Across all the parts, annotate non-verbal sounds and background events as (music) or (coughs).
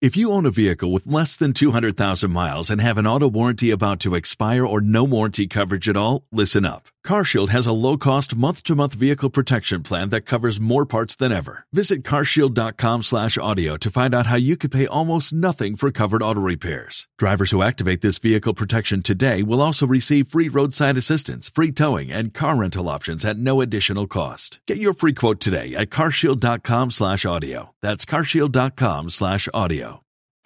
If you own a vehicle with less than 200,000 miles and have an auto warranty about to expire or no warranty coverage at all, listen up. CarShield has a low-cost month-to-month vehicle protection plan that covers more parts than ever. Visit carshield.com/audio to find out how you could pay almost nothing for covered auto repairs. Drivers who activate this vehicle protection today will also receive free roadside assistance, free towing, and car rental options at no additional cost. Get your free quote today at carshield.com/audio. That's carshield.com/audio.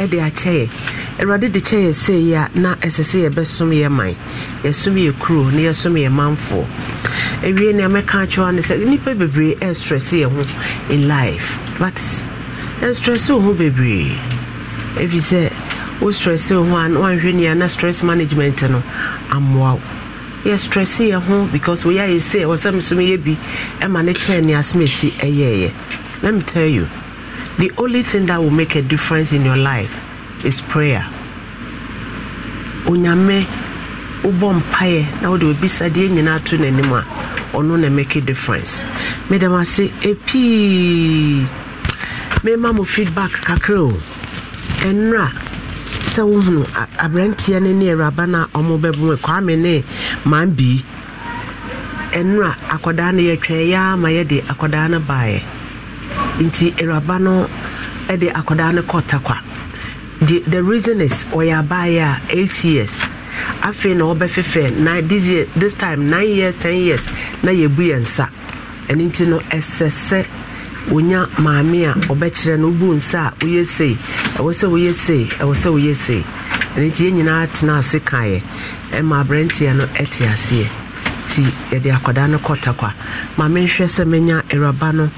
ɛde akyɛ yɛ awurade de kyɛ yɛ sei a na ɛsɛ sɛ yɛbɛsom yɛ man yɛsom yɛ kuro na yɛsom yɛ manfoɔ awie nea mɛka akyerɛwa ne sɛ nnipa bebree ɛstress yɛ ho in life but ɛnstress wo ho bebree ɛfiri sɛ wo stress wo ho a woanhwɛ nia na stress management no ammoa wo yɛ stress yɛ ho because woyɛ ayɛ sei ɛwɔ sɛ mesom yɛ bi ɛma ne kyɛn ne asɛm ɛsi ɛyɛɛyɛ let me tell you the only thing that will make a difference in your life is prayer onyame wobɔ mpaeɛ na wode sadie nyinaa to n'anim a ɔno na make a difference mede m ase ɛpii mema mo feedback kakra o ɛnora sɛ wohunu aberanteɛ no ne awuraba no a ɔmo bɛbomu kwame ne man bii ɛnora akwadaa no yɛtwɛn yɛa ma yɛde akwadaa no baeɛ nti awuraba no de akwadaa no kɔ takwa the, the reason is ɔyɛ abaayɛ a eight years afei na ɔbɛfefɛ na this year this time nine years ten years na yɛbu yɛn nsa ɛno nti no ɛsɛ sɛ wonya maame a ɔbɛkyerɛ no wobu nsa a woyɛ sei ɛwɔ sɛ woyɛ sei ɛwɔ sɛ woyɛ sei ɛno nti yɛn nyinaa tena ase kaeɛ ɛma aberanteɛ no ɛte aseɛ nti yɛde akwadaa no kɔ takwa maame nhwɛ sɛ mɛnya awuraba no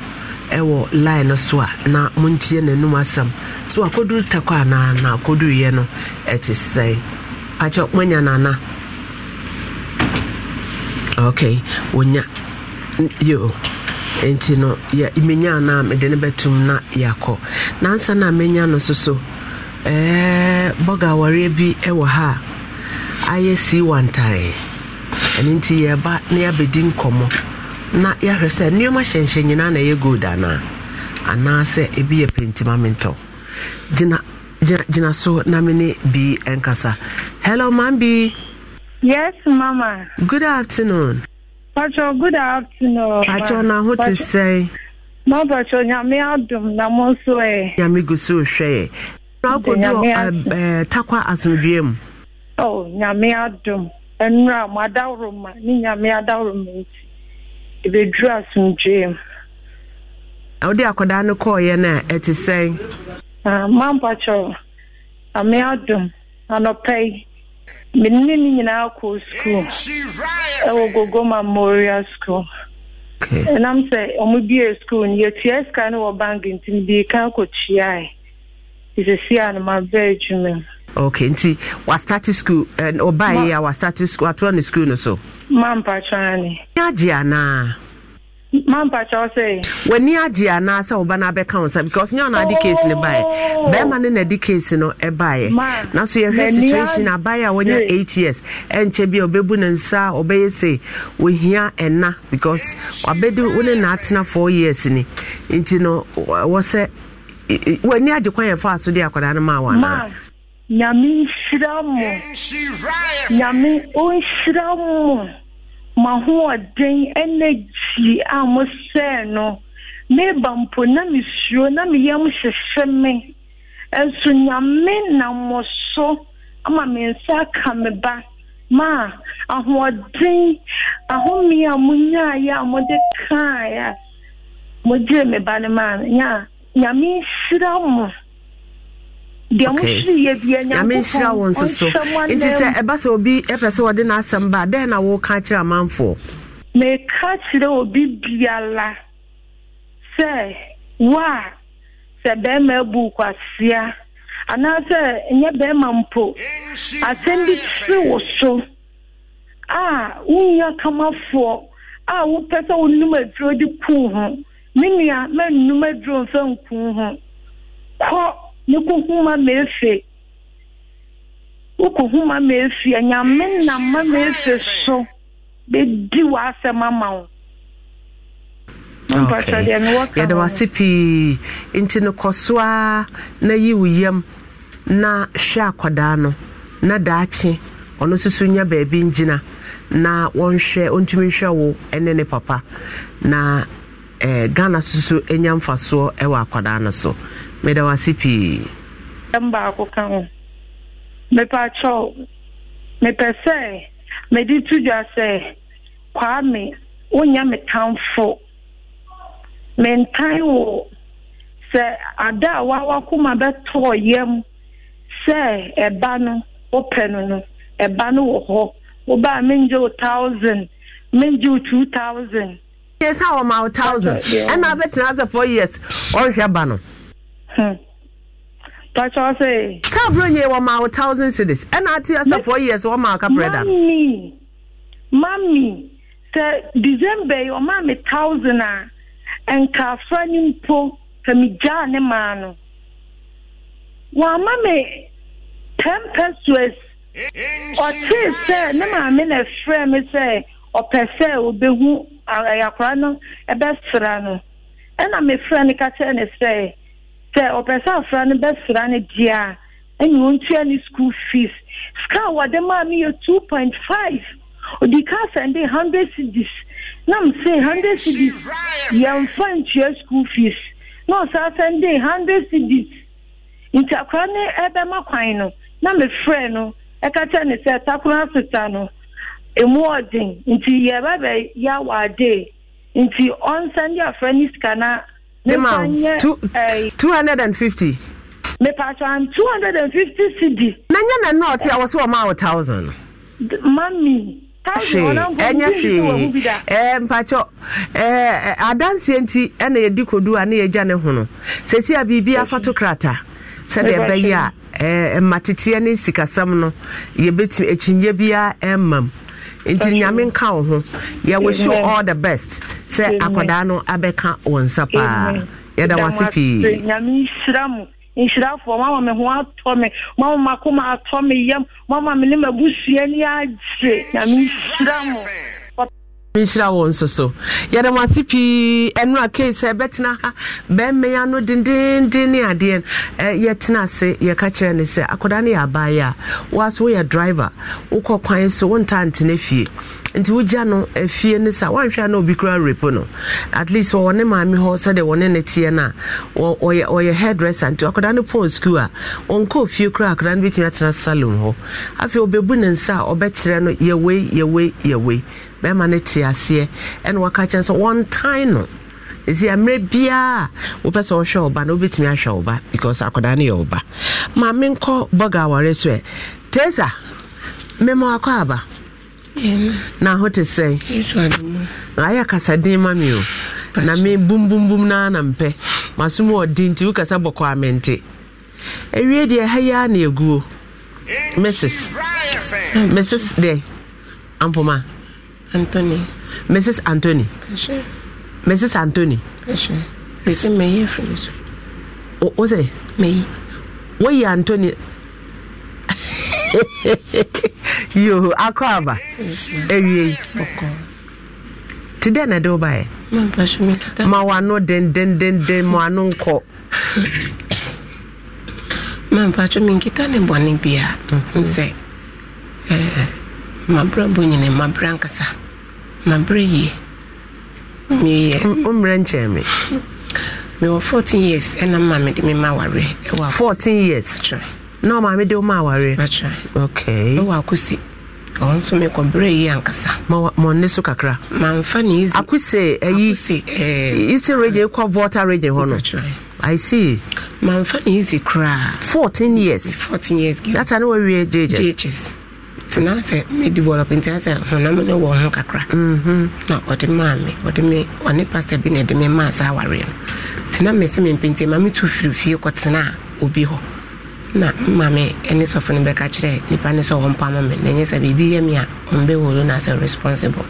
ɛwɔ line no so a na montie n'anum asɛm so akɔduru takɔ anaa na akɔduruiɛ no ɛte sɛe akyɛ moanya nana ok wɔnya yo nti no menya anaa mede no bɛtum na yɛakɔ nansa no a menya no so so eh, bɔga awareɛ bi ɛwɔ ha a ayɛ sii wantae ɛno nti yɛba na yɛabɛdi nkɔmmɔ na yɛahwɛ sɛ nneɛma hyɛnhyɛ nyinaa na ɛyɛ gold anaa anaasɛ ebi yɛ pentimamentɔ gyina gyina gyina so na me ne bi nkasa hello mam bi yes mama good afternoon patro good afternoon patro na ho te sɛe na patro nyame adom na mo nso ɛ nyame gu so hwɛ ɛ na akɔdu takwa asomdwue mu oh nyame adom ɛnura mo adaworo ma ne nyame adaworo ma nti ɛbɛduru asomdwee mu wode akwadaa no kɔɔeɛ no a ɛte sɛn mampa ame adom anɔpɛ menne ne nyinaa kɔɔ skuul ɛwɔ gogoma memorial school ɛnam sɛ ɔmo bie skuul no yɛtua sika ne wɔ bank nti mede ka kɔtuae nti a no adwuma Okay, nti wastate school ɔbaeɛ eh, a wastate school atoa ne school no so mampatwa Ni agye anaa mampatwa sɛ w'ani agye anaa sɛ woba no abɛka wo nsa because nyɛ ɔno ade case no e baeɛ bɛrima e e ne na de case no ɛbaeɛ nanso yɛhwɛ situation abaeɛ a wɔnya eight years ɛnkyɛ bi a ɔbɛbu ne nsa ɔbɛyɛ se wɔhia ɛna because wabɛdi wo ne naatena four years ni nti no wɔ sɛ w'ani agye kwan yɛfa so de akwadaa no maa wɔ anaa nyame nhyira mo nyame ɔnhyira mo ma hoɔden ɛnɛgyi a mo sɛe no meba mpo na mesuro na meyam hyehye me ɛnso nyame na so ama me nsa aka me ba ma ahoɔden ahome a monyaeɛ a mode kaeɛ a mogyee me ba no maa no nyame nhyira mo nyamehyira wo nso so nti sɛ ɛba sɛ obi ɛpɛ sɛ wɔde n'asɛm ba dɛn na woka kyerɛ amanfoɔ meka kyerɛ obi biala sɛ wo a sɛ bɛrima abu kwasea anaasɛ nyɛ bɛrima mpo asɛm bi kyere wo so a a wopɛ sɛ aduro kuu ho me nua aduro mfa ho ne ko ma efe wokɔ huma ma efe anyame na ma ma efe so bedi w'asɛm ama wo yɛda wase pii nti no kɔ so na yi wo yam na hwɛ akwadaa no na daakye ɔno nso nya baabi ngyina na wɔnhwɛ ɔntumi nhwɛ wo ne ne papa na eh, ghana soso nya mfasoɔ wɔ akwadaa no so meda wase pii ɛm ka ho mepɛ mepɛ sɛ mede to dwa sɛ kwaa me wonya me tamfo mentan wo sɛ ada a wawakoma bɛtɔɔ yam sɛ ɛba no wopɛ no no ɛba no wɔ hɔ wobaa mengye wo thousand mengye wo two thousand yɛ wɔma wo thousand ɛna wobɛtena sɛ four years ɔnhwɛ ba no Hmm. Cabro nye wɔ ma wo thousand cities ɛna ati asa four years wɔ ma akapere da. Mami mami sɛ December yi ɔma mi thousand a ah. nkaafra ni mpo fɛmi gyaa ne maa no wɔama mi ten pesos ɔtee sɛ ne maame ah, e e na frɛ mi sɛ ɔpɛ sɛ obehu ɛyakora no ɛbɛsra no ɛna mi frɛ no kakyɛ ne sɛ. sɛ ɔpɛ sɛ afra no bɛsra no deɛ a ɛne ɔntua ne school fees sika a wɔde maa me yɛ two point five ɔdi ka sɛnde hundred cedis na m se hundred cedis yɛmfa ntua school fees na ɔsaa sɛnde hundred cedis nti akora ne ɛbɛma kwan no na mefrɛ no ɛka kyɛ ne sɛ takora asesa no emu ɔden nti yɛbɛbɛ yɛ awɔ ade nti ɔnsɛnde afra ne sika na mema wo 250 mepatwan 250 cd na nyɛ na nnɔɔte a wɔ sɛ wɔma wo 1000 mami ɛnyɛ hwee eh, mpakyɛ eh, eh, adanseɛ nti ɛna yɛdi kodu a ne yɛgya ne ho no sɛsi a biribi afato krata sɛdeɛ ɛbɛyɛ a mmateteɛ ne sikasɛm no yɛbɛtumi akyinnye biara ɛmmam nti nyame nka wo ho yɛwɔ show all the best sɛ akwadaa no abɛka wɔ nsa paa yɛda wase pii nyame nhyira mo nhyirafoɔ mama me ho atɔ me mama makoma atɔ me yam mama me ne mabusua ni agye nyame nhyira mo nhyira wɔn nso so yɛde mo ase pii ɛno a kei sɛ ɛbɛtena ha bɛmma ya no dendenden ne adeɛ yɛtena ase yɛka kyerɛ ne sɛ akwadaa no yɛ abaayɛ a woaso driver wokɔ kwan so wonta ntena fie nti wogya no afie ne sa woanhwɛ na obi kura repo no at least wɔwɔ ne maame hɔ sɛdeɛ wɔne ne teɛ no a ɔyɛ hairdresser nti akwadaa no pɔn skuul a ɔnkɔ fie kora akwadaa no bɛtumi atena salon hɔ afei obɛbu ne nsa a ɔbɛkyerɛ no yɛwei yɛwei yɛwei bɛrima no te aseɛ ɛna waka kyɛn sɛ wɔntan no ɛsi mmerɛ biaa wopɛ sɛ wohwɛ wo ba na wobɛtumi ahwɛ wo ba because akwadaa no yɛ wo ba ma menkɔ bɔga aware so ɛ tesa mema wakɔ aba na ho te sɛn ayɛ kasaden ma me o na me bumbumbum na mpɛ masom ɔdi nti wokasa bɔkɔ a mente ɛwie deɛ ɛha yi na ɛguo mrs mrs deɛ ampoma Anthony. Mrs. Anthony. Sure. Mrs. Anthony. Sure. Sisi meyi efiri so. O o sɛ. Meyi. Woyi Anthony. Yoo akɔ aba. Ewie. Ɔkɔ. Ti dɛ na de o ba yɛ. Mpa so mi kita. Ma wa ano dendendenden ma ano nkɔ. Mpa so mi nkita ne bɔ ne bia. Nsɛ. Ɛɛ. mabrɛ bɔ nyina mabrɛ nkasa mabrɛ yie meyɛ wommerɛ nkyɛn me mewɔ 14 years ɛna ma mede me ma awareɛ ɛwɔ 14 years na ɔma mede wo ma awareɛ okay ɛwɔ akosi ɔno nso mekɔbrɛ yi ankasa mɔne so kakra mamfa ne easy akose ayi eh, eastern region kɔ volta region hɔ no i see mamfa ne easy koraa 14 years 14 years gata ne wawie jhs tena sɛ me develop nti sɛ honam no wɔ mm-hmm. ho kakra na ɔde maa me ɔde me ɔne pastor bi na ɛde me maa saa awareɛ no tena me sɛ mempenti ma metu firi fie kɔtena a obi hɔ na mma me ne sɔfo no bɛka kyerɛ nnipa no sɛ ɔmpa ma me na ɛnyɛ sɛ biribi yɛ me a ɔmbɛworo no asɛ responsible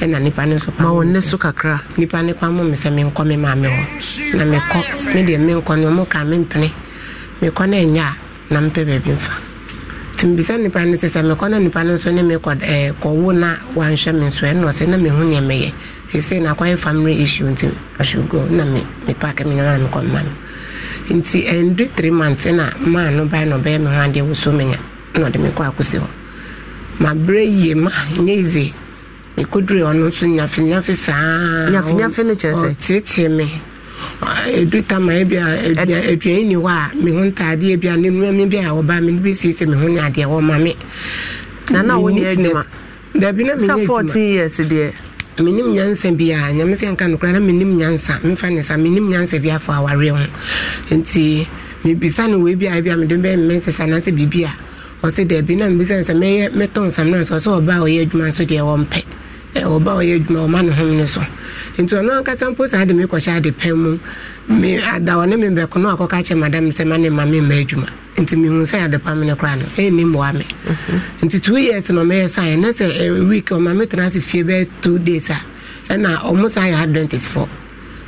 ɛna nipa no nso pama ne so kakra nipa ne pama me sɛ menkɔ me maa me hɔ na mekɔ me deɛ menkɔ no ɔmo ka mempene mekɔ no ɛnyɛ a na mpɛ baabi mfa timbisa nipa no sɛ sɛ mekɔ na nipa no nso ne mekɔ ɛɛ na wanhwɛ me nso ɛna ɔsɛ na mehu nea meyɛ sese na akɔyɛ family issue nti ahyɛ na me me me nyɔnua no kɔ mma no nti ɛndu eh, three months na maa no ba na ɔbɛyɛ me ho adeɛ wosɔ me nya na ɔde me akosi hɔ ma yie ma nye ize mekodure ɔno nso nyafinyafi saa nyafinyafi ne kyerɛ sɛ ɔtietie me. ɛdu tama ebia aduane ni hɔ a me ho ntaadeɛ bia ne nnuame bi a wɔba me no bɛsiesie me ho ne adeɛ wɔma me nana wonyɛ adwuma dabi na menyɛ adwuma 14 years deɛ menim nyansa biaa nyame sɛ nka nokora na menim nyansa memfa ne sa menim nyansa bi afɔ awareɛ ho nti mebisa no wei bi a bi a mede bɛmmɛ nsesa anaasɛ biribi a ɔse daabi na mebisa no sɛ mɛyɛ mɛtɔ nsam no sɛ ɔsɛ ɔba a ɔyɛ adwuma nso deɛ wɔmpɛ ɔba ɔyɛ adwuma ɔma ne hom no so nti ɔno ankasa mpo saa de mekɔhyɛ ade pɛn mu me ada membɛko no akɔka kyɛ madam sɛ ma ne ma memma adwuma nti mehu sɛ ade pa me no koraa no ɛnni mmoa me mhm. nti two years no mɛyɛ sae na sɛ week ɔma metena ase fie bɛyɛ two days a ɛna ɔmo saa yɛ adventist fɔ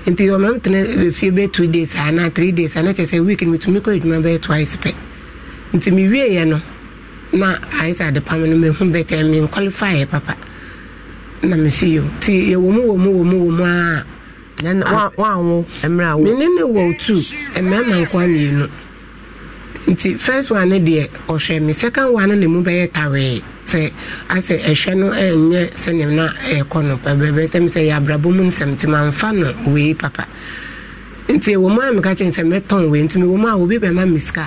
nti ɔma metena fie bɛyɛ two days a anaa three days a na kyɛ sɛ week no metumi kɔ adwuma bɛyɛ twice pɛ nti mewieɛ no na ayɛ sɛ ade pa me no mehu bɛtɛ menqualifyɛ papa na mesi yo nti yɛwɔ mu wɔ mu wɔ mu wɔ mu a wanwo mmerɛ mene ne wɔ tu mmarima nkoa mmienu nti first one ne deɛ ɔhwɛ me second one no ne mu bɛyɛ tawee sɛ asɛ ɛhwɛ no ɛnyɛ sɛneɛ na ɛkɔ no bɛbɛbɛ sɛm sɛ yɛ abrabɔ mu nsɛmtema mfa no wei papa nti ɛwɔ mu a meka kyɛn sɛ mɛtɔn wei nti mewɔ mu a obi bɛma me sika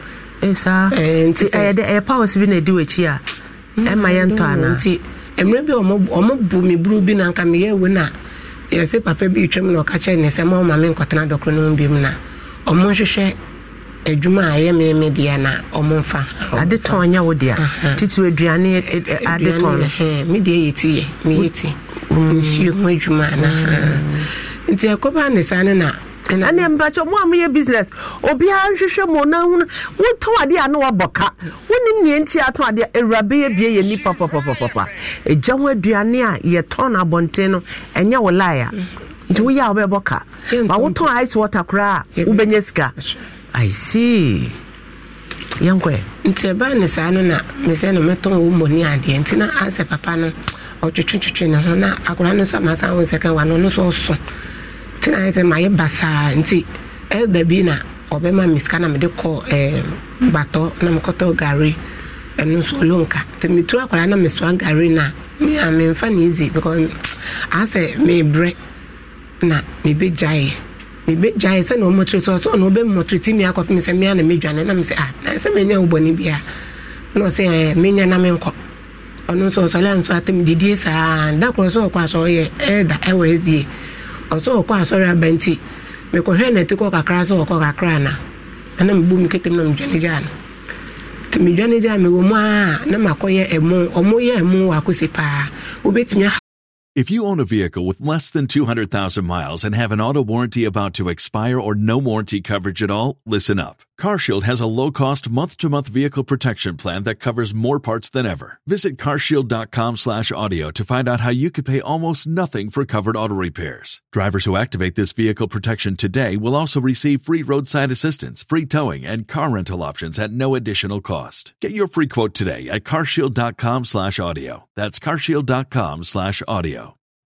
saa eh, nti ɛyɛ dɛ ɛyɛ powers bi na ɛdi w'akyi a mm, ɛma yɛntɔ anaa nti mmerɛ bi ɔmo bu me buru bi na nka meyɛ we na yɛsɛ papa bi retwam na ɔka kyerɛ ne sɛ ma ɔma me nkɔtena dɔkoro no mu bi mu na ɔmo nhwehwɛ adwuma a ɛyɛ meme deɛ na ɔmo mfa ade tɔn nyɛ wo deɛ titiri aduane e, e, e, ade tɔn me deɛ yɛ ti yɛ meyɛ ti mm. nsuo ho adwuma na mm. nti ɛkɔba ne saa ne na ɛne mpakyɛ mo a moyɛ business obiara nhwehwɛ mu na hunu wotɔn adeɛ a na wabɔ ka wonim neɛ nti atɔn adeɛ awurabe yɛ bie yɛ nipa papapapa ɛgya ho aduane e a yɛtɔn abɔnten no ɛnyɛ e a nti woyɛ a ka ma wotɔn ice water koraa a sika i see nti ɛbaa e ne saa no na mesɛ no mɛtɔn wo mmɔni adeɛ nti na papa no ne ho na akora no nso wa no tena ayɛ sɛ mayɛ basaa nti ɛda eh, bi na ɔbɛma misika na mede kɔ eh, batɔ na mekɔtɔ gare ɛno nso ɔlonka nti meturu akwadaa na mesoa gare no a me memfa ne easy because (tsk) asɛ mebrɛ na mebɛgyaeɛ mebɛgyaeɛ sɛ na ɔmmɔtire sɛ ɔsɛ ɔna ɔbɛmmɔtire ti mi akɔfe me sɛ mea na medwane na mesɛ ah na sɛ menya wobɔne bia na ɔsɛ eh, menya na menkɔ ɔno nso ɔsɔle a nso atam didie saa da korɔ sɛ ɔkɔ asɛ ɔyɛ ɛda ɛwɔ sda ɔsɛ ɔkɔ asɔre aba nti mekɔhwɛ na ɛte kɔ kakra sɛ ɔkɔ kakra na ɛna mebu me ketem na medwane gyaa no nti medwane gyaa mewɔ mu a na makɔyɛ ɛmo ɔmo yɛ ɛmo wɔ akɔsi paa wobɛtumi If you own a vehicle with less than 200,000 miles and have an auto warranty about to expire or no warranty coverage at all, listen up. CarShield has a low-cost month-to-month vehicle protection plan that covers more parts than ever. Visit carshield.com/audio to find out how you could pay almost nothing for covered auto repairs. Drivers who activate this vehicle protection today will also receive free roadside assistance, free towing, and car rental options at no additional cost. Get your free quote today at carshield.com/audio. That's carshield.com/audio.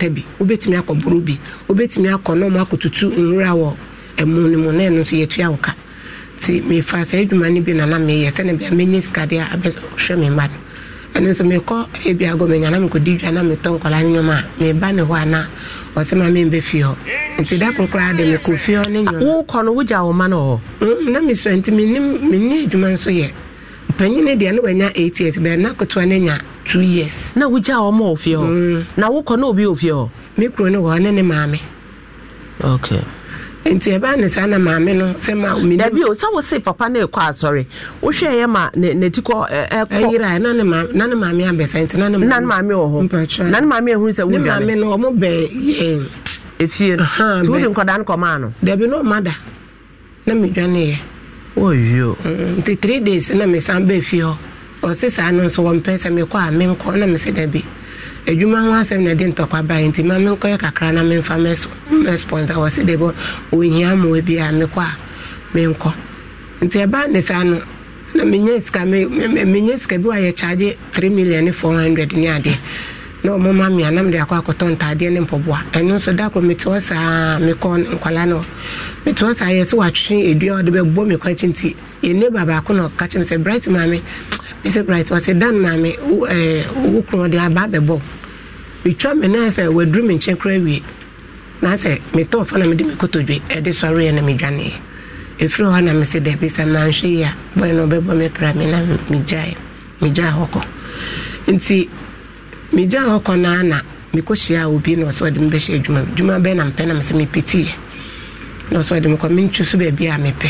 akata bi wobɛtumi akɔ boro bi wobɛtumi akɔ na ɔmo akɔtutu nwura wɔ ɛmu no mu na ɛno nso yɛtua wo ka nti mefa saa adwuma bi nana meyɛ sɛne bia mɛnya sikadeɛ a abɛhwɛ me mma no ɛno nso mekɔ ebi agɔ menya na mekɔdi dwa na metɔ nkɔla no nwom a ne hɔ a na ɔsɛ ma membɛ fie hɔ nti da koro koraa de mekɔ fie hɔ ne nwom wokɔ no wogya wo ma no hɔ na mesua nti menni adwuma nso yɛ panyin ne deɛ ne wanya eight years bɛn na ketewa ne nya two years. na wogya a wɔn wɔ fie hɔ. Mm. na wokɔ na obi wɔ fie hɔ. mi kuro ne wɔ ne ne maame. okay. nti ɛbaa ne saa na maame no sɛ ma mi. dabi o sáwọ se papa ne kɔ asɔre wohwɛ ɛyɛ ma ne ne ti kɔ ɛkɔ. ɛyira na ne na ne maame abɛsa nti na ne maame. na ne maame wɔ hɔ na ne maame ehun sɛ wuli maame. ne maame no ɔmo bɛɛ yɛn. efie no tuuri nkɔdaa nkɔmaa no. dabi n'o ma da na mi dwa oyo nti mm, three days na mesan bɛɛ fi hɔ ɔse saa no nso wɔmpɛ sɛ mekɔ a menkɔ na mesɛ da bi adwuma e ho asɛm na ɛde ntɔkwa bae nti ma menkɔyɛ kakra na memfa mɛsponsa wɔse da bi ɔhia mmoa e bi a mekɔ a menkɔ nti ɛbaa e ne saa no na menya sika menya sika bi wayɛ kyagye 3 million four hundred ne adeɛ na ɔmo ma na anam de akɔ akɔtɔ ntaadeɛ ne mpɔboa ɛno nso da koro mete hɔ saa mekɔ nkwadaa no mete hɔ saa yɛ sɛ watwe edua ɔde bɛbɔ mi kɔ akyi nti yɛne ba baako na ɔka kyerɛ sɛ bright maame mese bright ɔsɛ dan maame ɛɛ wo kuro de aba abɛbɔ metwa mi na sɛ waduru mi nkyɛn kora wie na sɛ metɔ ɔfa na mede mi kotodwe ɛde sɔre na mi dwaneɛ efiri hɔ na mese dɛbi sɛ manhwɛ yi a bɔyɛ na ɔbɛbɔ mi pra mi na mi gyae hɔ kɔ nti megya hɔ kɔ naa na mekɔhyia a obi na ɔsɛ ɔde mebɛhyɛ adwuma adwuma bɛɛ na mpɛ nam sɛ mepetiiɛ na ɔsɛ ɔde mekɔ mentwi so baabi a mepɛ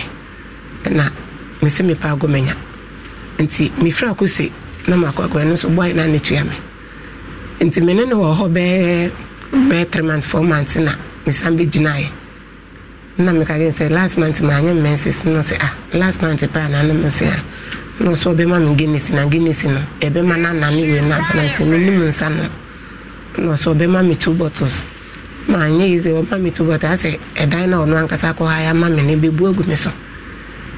na mesɛ mepɛ agɔ manya nti mefiri akɔse na makɔakɔɛ no nso bɔe na netua me nti mene ne wɔ hɔ bɛɛ bɛɛ three months four months na mesan bɛgyinaeɛ na mekagye sɛ last month maanyɛ mmɛnsis no sɛ ah last month pɛ anaa no sɛ a ah na ɔsɛ ɔbɛma me guinness na guinness na ɛbɛma no anane wei no abana sɛ menim nsa no na ɔsɛ ɔbɛma me two bottles na anyɛ yi sɛ ma me two bottles asɛ ɛdan na ɔno ankasa kɔ ha ama me no bɛbu agu me so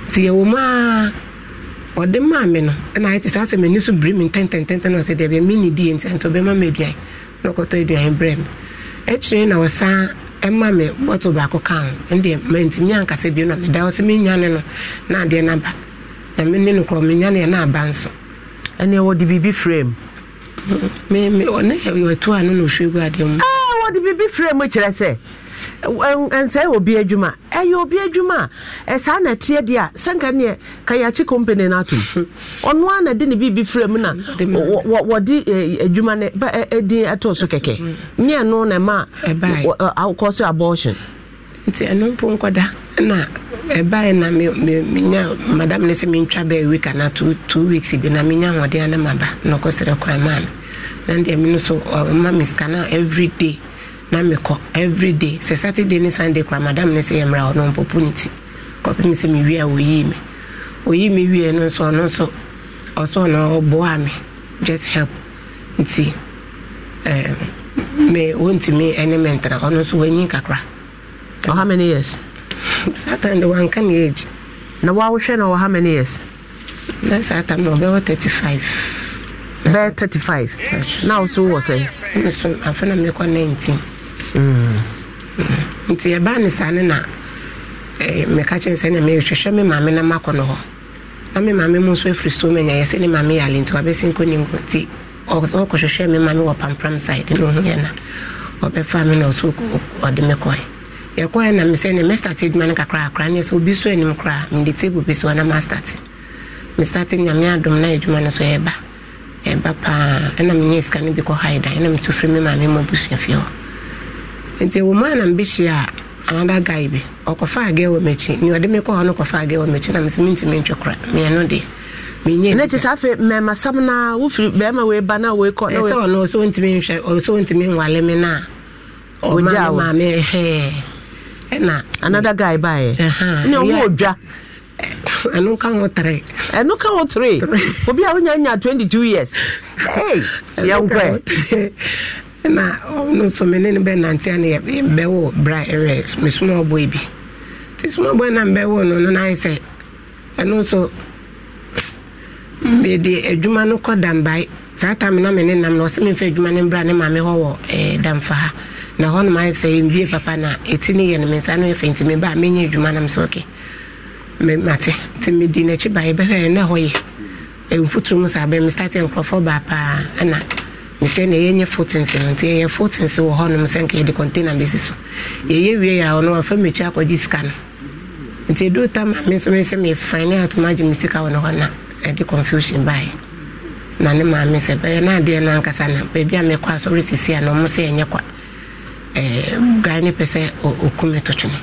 nti yɛwɔ mu a ɔde maa me no ɛna ayɛ te sɛ asɛ m'ani so biri me ntɛntɛntɛntɛ na ɔsɛ deɛ me ne die nti nti ɔbɛma me aduan na ɔkɔtɔ aduan brɛ me akyire na ɔsan ɛma me bottle baako ka ho ɛndeɛ mantimi ankasa bio na meda hɔ sɛ menya ne no na adeɛ no aba na me ne no korɔ ni neɛ na aba nso ɛneɛ wɔde biribi frɛ m ne yɛto a no na ɔhwɛ gu adeɛ mu wɔde biribi frɛ mu kyerɛ sɛ nsɛe obi adwuma ɛyɛ obi adwuma a saa na ɛteɛ deɛ a sɛnka neɛ company no atom ɔno a na de ne biribi frɛ mu na mm, wɔde adwuma no din ɛtɔɔ so kɛkɛ nyɛ no na ɛma kɔ so abortion nti ɛno mpo nkɔda na ɛbaɛ na menya madam ne sɛ mentwa bɛɛ week ana two weeks bi na menya ahoɔden ana maba na ɔkɔserɛ kwan maa me na deɛ me no so ɔma me sika na everyday na mekɔ everyday sɛ saturday ne sunday kora madam ne sɛ yɛmmra ɔno mpɔpo ne ti kɔpe me sɛ mewie a wɔyii me ɔyii me wie no nso ɔno nso ɔsɔ no ɔboa me just help nti me wɔntumi ɛne me ntena ɔno nso wɔanyi kakra Oh, how many years? That time the one can age. Na was she na how many years? Na saa time no were 35. They're 35. Na wo so wɔ sɛ? Nso afɛ na mekɔ 19. Nti ɛbaa ne saa ne na send a mail to show me maame na makɔ no I mean, mammy, most of nso afiri I send my sɛ into a basin, couldn't go tea. Or so, nkɔ you ɔkɔhwehwɛ me or wɔ pampram side na ɔhu yɛ na ɔbɛfa me na ɔso ɔde me yɛkɔɛ na me sɛ ne mɛstate adwuma no kakrakra ne sɛ obi so anim koraa mede table bi so ana mastate mestate nyame adom na adwuma no so yɛba ɛba paa ɛna menyɛ sika no bi kɔ haida ɛna meto firi me maame ma busua fie hɔ nti wɔ mu a na mebɛhyia another guy bi ɔkɔfa agɛ wɔ m'akyi ne ɔde me kɔ hɔ no kɔfa agɛ wɔ m'akyi na mesɛ mentumi ntwe kora meɛno deɛ ɛsɛ ɔno ɔsɛ ɔntumi nhwɛ ɔsɛ ɔntumi nwale me no a ɔma maame na another guy baeɛ ne ɔmo ɔdwa ɛno ka ho tere ɛno tere obi a nya 22 years yɛnkɔɛ na ɔno nso ne bra ɛwɛ mesoma bi soma na mbɛwo no no sɛ nso mede adwuma no kɔ na me nam na ɔsɛ adwuma mbra ne ma hɔ eh, ha na hɔnom ayɛ sɛ ɛnwie papa na ɛti ne yɛ no me nsa no yɛfɛ nti mebaa menyɛ adwuma nam sɛ ɔke mate nti medi n'akyi baeɛ bɛhwɛ na hɔ yɛ mfuturo mu saa bɛn mestate nkurɔfoɔ baa paa ɛna mesɛ na yɛnyɛ fotense no nti yɛyɛ fotense wɔ hɔnom sɛ nka yɛde container bɛsi so yɛyɛ wie yɛ a ɔno wafa mmɛkyi akɔgye sika no nti ɛduru tam a me nso me sɛ mefane ne atoma agye me sika wɔ no hɔ na ɛde confusion baeɛ na ne maame sɛ bɛyɛ no adeɛ no ankasa na baabi a mekɔ asɔre sisi a na ɔmo sɛ ɛnyɛ kwa bra ne pɛ sɛ ɔkum to twene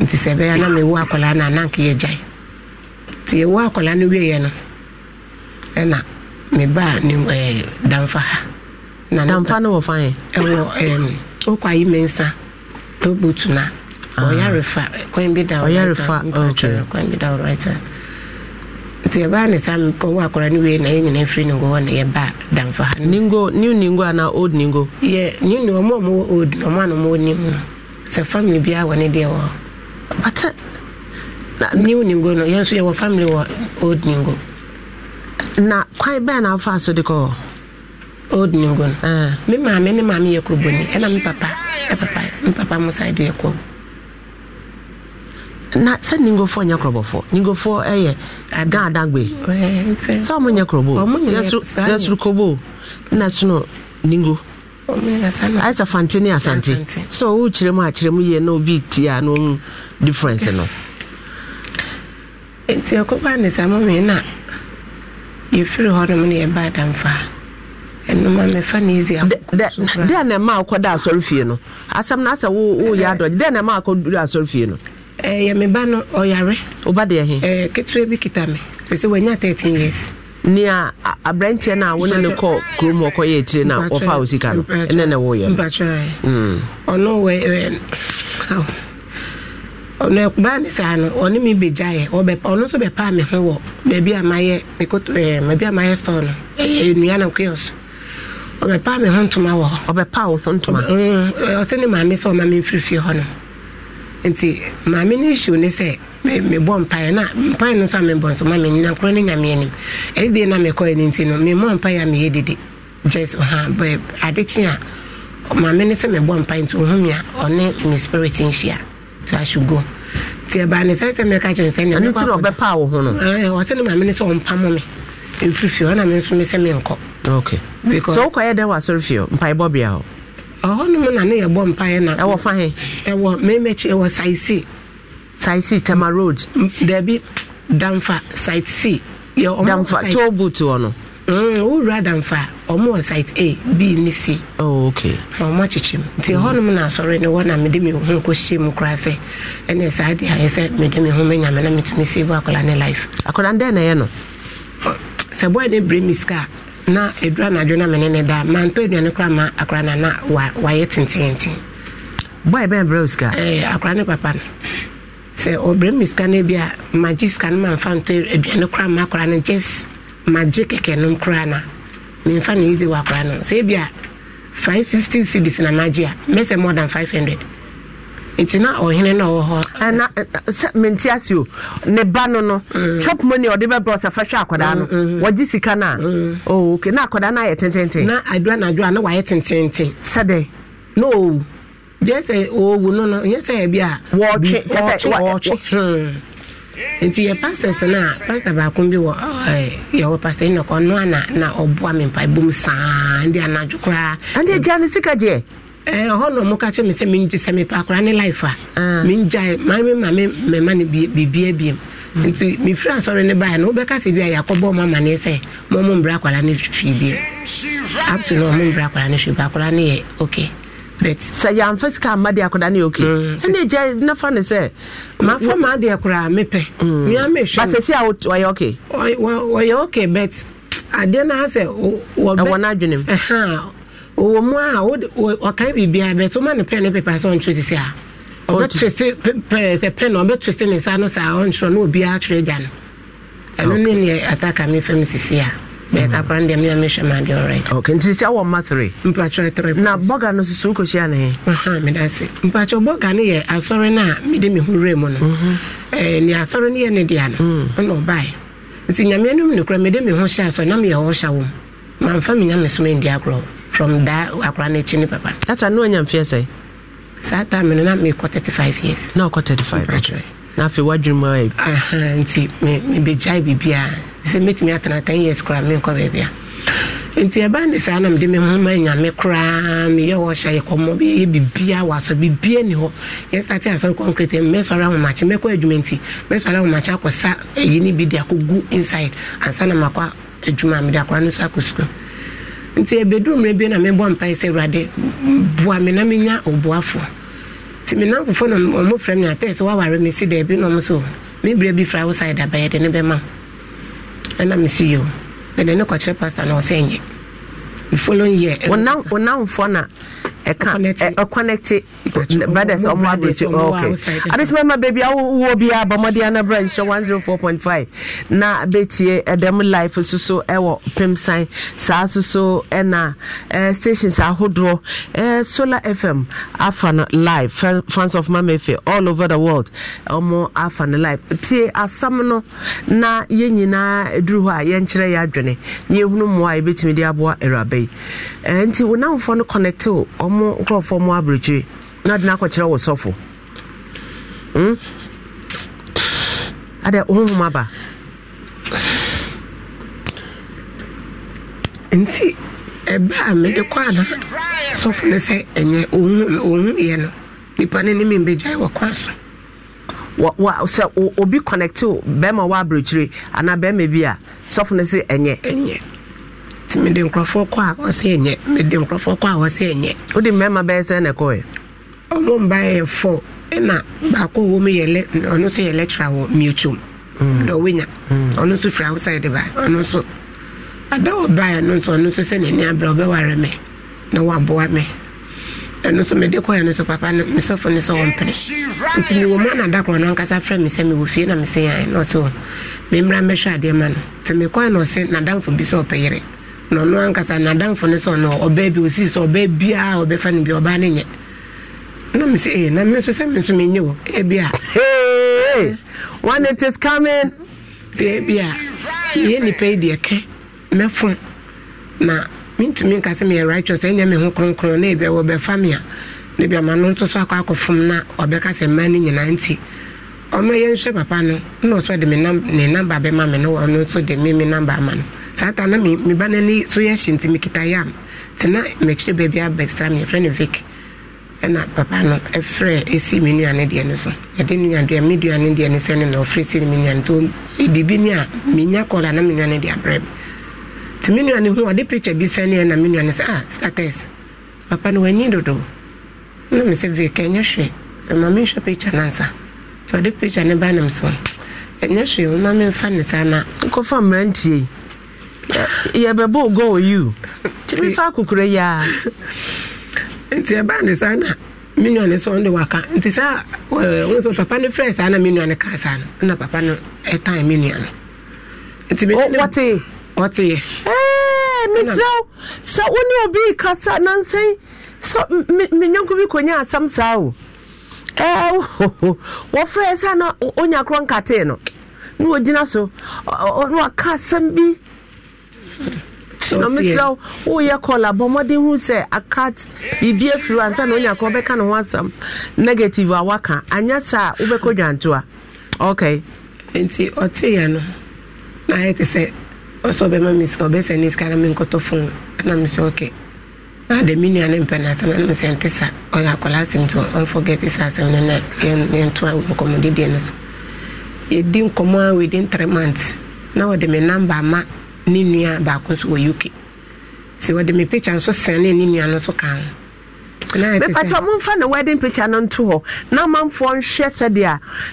nti sɛ ɛbɛyɛ na mewu akwadaa no ananke yɛgyae nti yɛwu akwadaa no wieɛ no ɛna mebaa ne damfa ha damfa no wɔ fan ɛwɔ wokɔ ayi me nsa tobutu na ah. ɔyare fa kwan bi da ɔyare fa kwan bi da ɔrɛta nti yɛbaa ne saa ɔwɔ akɔra no wei na yɛ nyina firi ningo hɔ na yɛba damfa ha ningo new ningo anaa old ningo yɛ new ningo ɔmo ɔmo wɔ old na ɔmo ano ɔmo wɔ new no sɛ family biara wɔ ne deɛ wɔ bata uh, na new ningo no yɛn nso yɛwɔ family wɔ old ningo na kwan bɛn na afa so de kɔ old ningo no eh. me maame ne maame yɛ kuruboni ɛna me papa ɛpapa me papa mo side yɛ kɔ na sɛ ningofoɔ nyɛ korɔbɔfoɔ ningofoɔ ɛyɛ eh, adan adan gbe sɛ ɔmo nyɛ korɔbɔ yɛsurukɔbɔ na sono ningo ayɛ sɛ fante ne asante sɛ ɔwo kyerɛ mu akyerɛ mu na obi ti a na ɔmu difference no. nti ɛkɔba ne saa mɔmi na yɛfiri hɔnom ne yɛba adamfa ɛnoma mɛfa ne izi dɛ na ɛma akɔda asɔre fie no asɛm na asɛ woyɛ adɔgye dɛ na ɛma akɔduru asɔre no ɛyɛ eh, me ba eh, no ɔyare woba deɛ he ɛɛ ketewa bi kita me sɛsɛ years. nea no a wone ne kɔ kurom ɔkɔyɛ akyire no wɔfa wo sika no ne woyɛ ɔno ɔno ne saa no mi bɛgyaeɛ ɔno nso bɛpaa me ho wɔ baabi a mayɛ baabi eh, a mayɛ store no ɛyɛ nnua na ɔbɛpaa me ho ntoma wɔ hɔ ɔbɛpaa wo ho ntoma ɔsɛ mm, ne maame sɛ ɔma me hɔ nti maame no issue ne sɛ mebɔ mpaeɛ na mpaeɛ no nso a mebɔ nso ma menina korɔ ne nyame anim ɛde deɛ na mekɔɛ no nti no memmɔ mpaeɛ a meyɛ dede just ha adekye a maame no sɛ mebɔ mpaeɛ nti ɔhome a ɔne me spirit nhyia to ahwe go nti ɛbaa ne sɛ sɛ meka kyɛn sɛ neɛbɛpaa wo ho no ɔsɛ ne maame no sɛ ɔmpamo me ɛmfiri fie me nso me sɛ menkɔ sɛ wokɔyɛ dɛn wɔ asɔre fie mpaebɔbea hɔ ɔhɔnom na ne yɛbɔ mpaeɛ na ɛwɔ fa he ɛwɔ memɛkyi ɛwɔ saisi saisi tama road daabi damfa site c damfa tolbot wɔ no mm, wowura damfa ɔmo wɔ site a b ne c oh, ok ɔmo akyekye mu nti na asɔre ne wɔ na mede me ho mu sɛ ɛne saa de ayɛ sɛ mede me ho mɛnyame na metumi save akɔla ne life akɔla na ɛyɛ no sɛ bɔɛ ne sika a na edura na adwo na mene ne da mantɔ aduane kora ma akora na na wayɛ tententen boy bɛn brɛ sika ɛɛ eh, akora ne papa no sɛ ɔbrɛ mi sika no bi a magye sika no mamfa ntɔ aduane kora ma akora no just magi kɛkɛ nom kora na memfa ne yizi wɔ akora no sɛ ebi a five fifty cedis na magye a mɛsɛ more than five hundred nti na ɔhene na ɔwɔ hɔ. ɛna sɛ menti ase o ne ba no no mm. chop money ɔde bɛ brɔ sɛ fɛhwɛ akwadaa no mm, mm, wɔgye sika no a oh okay na akwadaa no ayɛ tententen. na adua na adua na wayɛ tententen. sɛdeɛ. no owu gyɛ owu no no nyɛ sɛ ɛbi a. wɔɔtwe kyɛ sɛ wɔɔtwe. Hmm. nti yɛ pastors no a pastor baako bi wɔ yɛwɔ pastor enoch ɔno a na na ɔboa me mpaebom saa ndi anadwo koraa. ɛnde agya ne sika gyeɛ. ɛhɔ eh, na ɔmo ka kyerɛ mi sɛ mi ngye sɛ mi pa akora ne life a mi ngya maa mi ma mi mɛma ne bibia e hmm. nti mi firi asɔre ne ba yɛ e no bi a yɛakɔ bɔ ɔmo sɛ mo mbra na ɔmo mbra akora ne hwii biem akora ne yɛ okay but sɛ de ne hmm. na fa ne ma adeɛ koraa mepɛ hmm. mea mehwɛ basɛ si a ɔyɛ oke ɔyɛ oke but adeɛ ɛwɔ mu wɔ mu a ɔkae biribiaa bɛto ma ne pɛ ne pepa sɛ ɔntwerɛ sisi a ɔbɛtwerɛ sɛ pɛ na O sɛ ne nsa no saa ɔntwerɛ na obi twerɛ gya no ɛno ne ataka mi fam sisi a bɛɛta kora no deɛ mea ma deɛ ɔrit ok nti sisi awɔ mma three mpatwerɛ three na bɔga no susu wokɔhyia ne he bɔga no yɛ asɔre mu no asɔre no yɛ ne no ɔna nti na ɔhyɛ from da uh-huh, akora eh, eh, no akyi papa ata no anya mfeɛ sɛ saa time no na mekɔ 35 years na ɔkɔ 35 na afei woadwene mu ayɛ nti mebɛgyae biribiaa sɛ mɛtumi atena 10 years koraa menkɔ baabia nti ɛba ne saa na mede me ho ma nyame koraa meyɛ wɔhyɛ yɛ kɔmmɔ yɛ bibia wɔ asɔ bibia ni hɔ yɛsate asɔre concrete mɛsɔre ahomakye mɛkɔ adwuma nti mɛsɔre ahomakye akɔsa ayi ne bi de akɔgu inside ansa na makɔ adwuma mede akora no so akɔ sukuu nti ebedu mmerɛ bi na mebɔ mpae sɛ awurade boa me na menya ɔboafo nti me namfofo na ɔmo frɛ me atɛ sɛ woaware me si daabi na ɔmo so me berɛ bi fra wo side abɛyɛ de ne bɛma ɛna me so ne kɔkyerɛ pastor na ɔsɛ nyɛ the following year. ɔnamfoɔ na ɛka ɛconnect brothers ɔmo abirikyi okay adesima beebi awowo biara bɔmɔden anabra nhyɛ one zero four point five na betie ɛdɛm eh, life soso ɛwɔ eh, pimsan saa soso ɛna eh, ɛɛ stations ahodoɔ ɛɛ solar fm afa live fans of mamefe all over the world ɔmo afa no live tie asam na yɛn nyinaa eduru hɔ a yɛn kyerɛ yɛ adwene na yɛn hunu mmoa yɛbɛtumi bɛyi nti wo namfoɔ no connecte ɔmo nkurɔfoɔ mu aberɛkyire na de no akɔkyerɛ wo sɔfo hmm? adɛ honhom aba nti ɛbɛ a mede kɔ ana sɔfo no sɛ ɛnyɛ ɔhu yɛ no nipa no ne membɛgyae wɔ kɔ wa sɛ obi connecte bɛrima wɔ aberɛkyire anaa bɛrima bi a sɔfo no sɛ ɛnyɛ ɛnyɛ nti mede nkurɔfoɔ kɔ a ɔsɛ ɛnyɛ mede nkurɔfoɔ kɔ a ɔsɛ ɛnyɛ wode mmarima bɛyɛ sɛ na ɔmo mba yɛ fo ɛna baako wɔ mu yɛ ɔno nso yɛ wɔ dɛ ɔno nso firi ba ɔno ada no nso ɔno nso sɛ na waboa me ɛno nso mede kɔɛ no nso papa no mesɔfo no sɛ na mesɛ na na ɔno ankasa n'adamfo no sɛ ɔno ɔbaa bi osii sɛ ɔbaa biara ɔbɛfa no bi ɔbaa no nyɛ na me sɛ ee eh, na me nso sɛ me nso nye o ebi a. hey when it is coming. ebi a yɛ nipa yi deɛ kɛ mɛfon na ntumi nka sɛ meyɛ righteous ɛnyɛ me ho kronkron na ebi a wɔbɛfa me a na ebi ama no nso so akɔ akɔfom na ɔbɛka sɛ mmaa no nyinaa nti ɔno yɛnhwɛ papa no na ɔsɔ de ne namba bɛma me na ɔno nso de me me namba ama no. saa taa na me ba n'ani so yɛ hye nti mekita yam nti na baabi abɛsra me yɛfrɛ no vik ɛna papa no ɛfrɛ ɛsi me nuane deɛ no so yɛde nuadeɛ me duane deɛ no sɛ no na ɔfrɛ si no me nuane nti e, biribi a menya kɔla na me nuane de abrɛ me nti me nuane ho ɔde picture bi sɛneɛ na me nuane sɛ ah status papa no wanyi dodo na me sɛ vik ɛnyɛ hwɛ sɛ ma menhwɛ pikya no ansa nti ɔde picture ne ba nam so ɛnyɛ hwee ma memfa ne saa na nkɔfa mmerantie yɛbɛbɔ goal you kyimi (laughs) fa akokora yi a nti ɛbaa ne saa na me ne sɔn de waka eh, papa ne saa na na papa no ɛtan eh, no nti ɛɛ oh, eh, sɛ obi kasa asam saa o ɛɛ (laughs) saa na no na so ɔno waka bi. mesrɛ woyɛ kɔla bɔ mmɔden hu sɛ akat biribi afiri ansa na onya ka wobɛka ne ho asɛm negative a woaka anyɛ saa wobɛkɔ dwanto a ok nti ɔteeɛ no na sɛ ɔsɛ ɔbɛma me sika ɔbɛsɛ na menkɔtɔ fon ana mesɛ ɔkɛ na de me nua ne mpɛ no asɛm nte sa ɔyɛ akɔla asɛm nti asɛm no na yɛntoa nkɔmmɔdedeɛ no so yɛdi nkɔmmɔ a na wɔde me ne nua baako nso wɔ uk nti wɔde me picture nso sɛn ne nua no nso ka ho mepakyɛ momfa ne wedding picture no nto hɔ na manfoɔ nhwɛ sɛdeɛ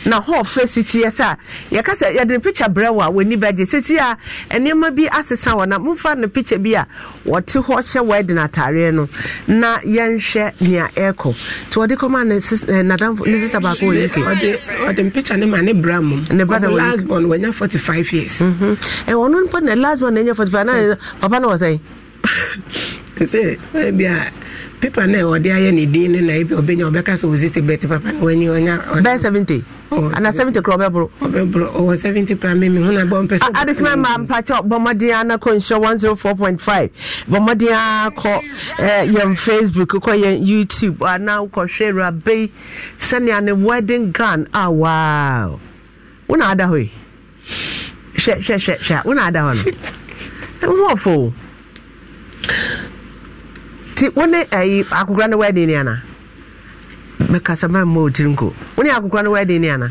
a na hɔ fɛ si teɛ sɛ a yɛka sɛ yɛde ne picture brɛ wɔ a w'ani bɛgye sɛsi a nneɛma bi asesa wɔ na momfa ne picture bi a wɔte hɔ hyɛ wedding atareɛ no na yɛnhwɛ nea ɛrekɔ nti wɔde kɔma ne eh, nadamfo ne sista baako wɔ uk ɔde mpicture no ma ne bra mom ne bra da wɔ uk lasbon wanya 45 years ɛwɔ mhm. eh, no mpo ne lasbon na ɛnya five na hmm. papa na wɔ (laughs) sɛ sɛ bia pepa na ɔde ayɛ ne din no na ebi ɔbɛnya ɔbɛka sɛ ɔsi tibɛti papa na wɔnyi ɔnya. bɛn seventy ana seventy kura ɔbɛboro. ɔbɛboro ɔwɔ seventy pra mi mi hun na bɔ mpɛ sɛ. adesima maa mpakyɛ bɔmmɔden ana kɔ one zero four point five bɔmmɔden akɔ yɛn facebook kɔ yɛn youtube ana kɔhwɛ rabe sani ne wedding gown a waaw wona ada hɔ yi hwɛ hwɛ hwɛ hwɛ wona ada hɔ no ɛwɔ (laughs) fo. nti wo ne ayi eh, akokora no wadi ne ana mekasa mamma ɔtiri nko wo ne akokora no wadi ne ana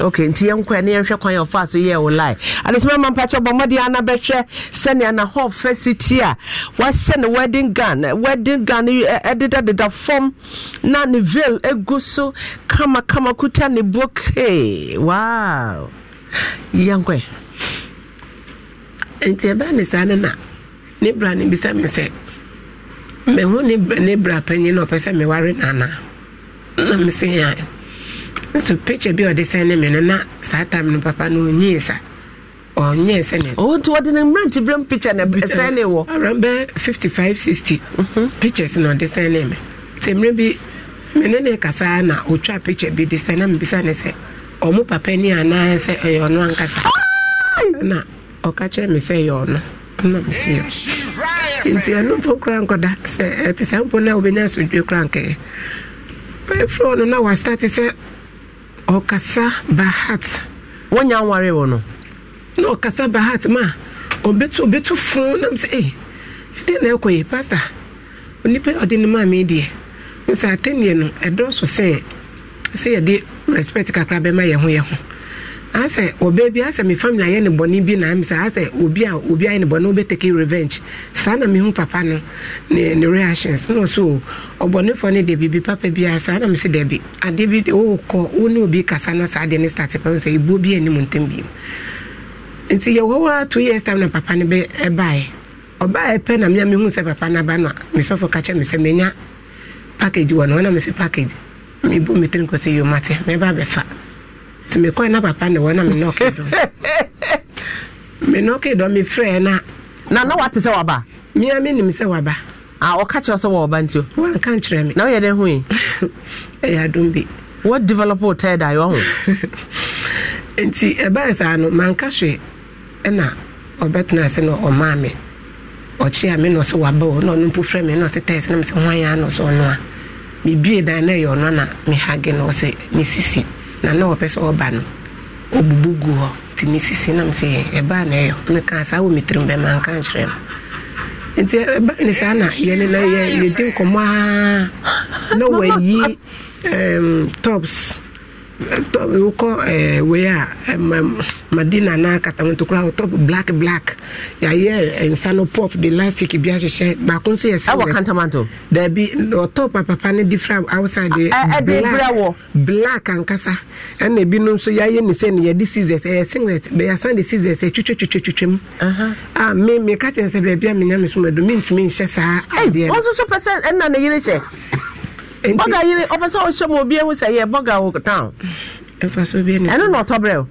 ok nti yɛnkɔ ne yɛnhwɛ kwan yɛ ɔfa so yɛ wo lie adesoma ma mpakyɛ bɔ mmɔde ana bɛhwɛ sɛnea na hɔ fɛ siti a wahyɛ ne wedding gown eh, wedding gown ɛdedadeda eh, fam na ne veil egu so kamakama kuta ne bokee wow yɛnkɔ nti ɛbɛa ne saa no na ne bra ne bisa me sɛ mehu ne bra panyin na ɔpɛ sɛ meware nana na mese a nso picture bi a ɔde sɛn ne me no na saa tam no papa no ɔnyee sa ɔnyee sɛ ne ɔnti wɔde ne mmerante berɛm picture na sɛn ne wɔ around bɛ 55 60 mhm. pictures na ɔde sɛn ne me nti mmerɛ bi me ne ne kasaa na ɔtwa picture bi de sɛn na mbisa ne sɛ ɔmo papa ni anaa sɛ ɛyɛ ɔno ankasa na ɔka kyerɛ me sɛ ɛyɛ ɔno na mesɛ yɛ nti ɛno mpo kora nkɔda sɛ ɛte eh, saa mpo no a wobɛnya asomdwe kora nkɛɛ bɛfrɛ no na wastate sɛ ɔkasa bahat wonya nware wɔ no na ɔkasa bahat ma ɔbɛtu ɔbɛtu fo nam sɛ e eh, ɛdeɛ na ɛkɔ yi pasta onipa ɔde no maa me deɛ nsɛ atenneɛ no ɛdɔɔso sɛ sɛ yɛde respect kakra bɛma yɛ ho yɛ ho asɛ ɔbaa bi asɛ mi family ayɛ ne bɔnne bi na mi sɛ asɛ obi a obi ayɛ ne bɔnne ɔbɛ take revenge saa na mi hu papa no ne ne reactions na ɔso ɔbɔnnefoɔ ne debi bi papa bi a saa na mi sɛ debi adeɛ bi de ɔɔkɔ ɔne obi kasa na saa deɛ ne start pɛm sɛ ebuo bi anim ntɛm bi nti yɛ wɔ hɔ two years time na papa ne bɛ ɛbaeɛ ɔbaa ɛpɛ na mi a mi hu sɛ papa n'aba no a mi sɔfo kakyɛ mi sɛ mi nya package wɔ no ɔna mi sɛ package mi bu mi tirim kɔ sɛ yomate mi ba bɛfa. nti mekɔe na papa ne wɔ na mene ɔke dɔ mene ɔke dɔ mefrɛ na na na wate sɛ waba mea menim sɛ waba a ɔka kyerɛ sɛ wɔwɔba nti wanka nkyerɛ me na woyɛ dɛn hoe ɛyɛ adom bi what develop wo tɛɛ daeɛ ho nti ɛbaɛ saa no manka hwɛ ɛna ɔbɛtena ase na ɔmaa me ɔkye a me na ɔsɛ waba o na ɔno mpo frɛ me na ɔsɛ tɛɛ sɛ na mesɛ hwan yɛ a na ɔsɛ ɔno a mebie dan na ɛyɛ ɔno na mehage na ɔsɛ ne sisi na na wɔpɛ sɛ ɔba no ɔbubu gu hɔ nti mesisi nam sɛ ɛbaa na ɛyɛ meka saa wɔ metirim bɛma nka nkyerɛ no nti ɛbaa ne saa na yɛne na yɛdi nkɔmmɔ a na wayi tops wokɔ ɛɛ eh, wei a ɛmɛ eh, madina na katamantokura wɔ top black black yɛayɛ eh, nsa no puff de elastic bi ahyehyɛ baako nso yɛ silver ɛwɔ kantamanto daabi ɔtɔ papapa ne different outside de black black ankasa ɛna ebinom nso yɛayɛ ne sɛ yɛde scissors ɛyɛ singlet bɛyɛ de scissors ɛtwitwa twitwa twitwa mu a me me kakyɛ nsɛ baabi a me nya me so ma do me nhyɛ saa adeɛ bɔga yere ɔpɛ sɛ ɔhyɛ ma obi ahu sɛ yɛ bɔga wo town ɛno na ɔtɔ berɛ o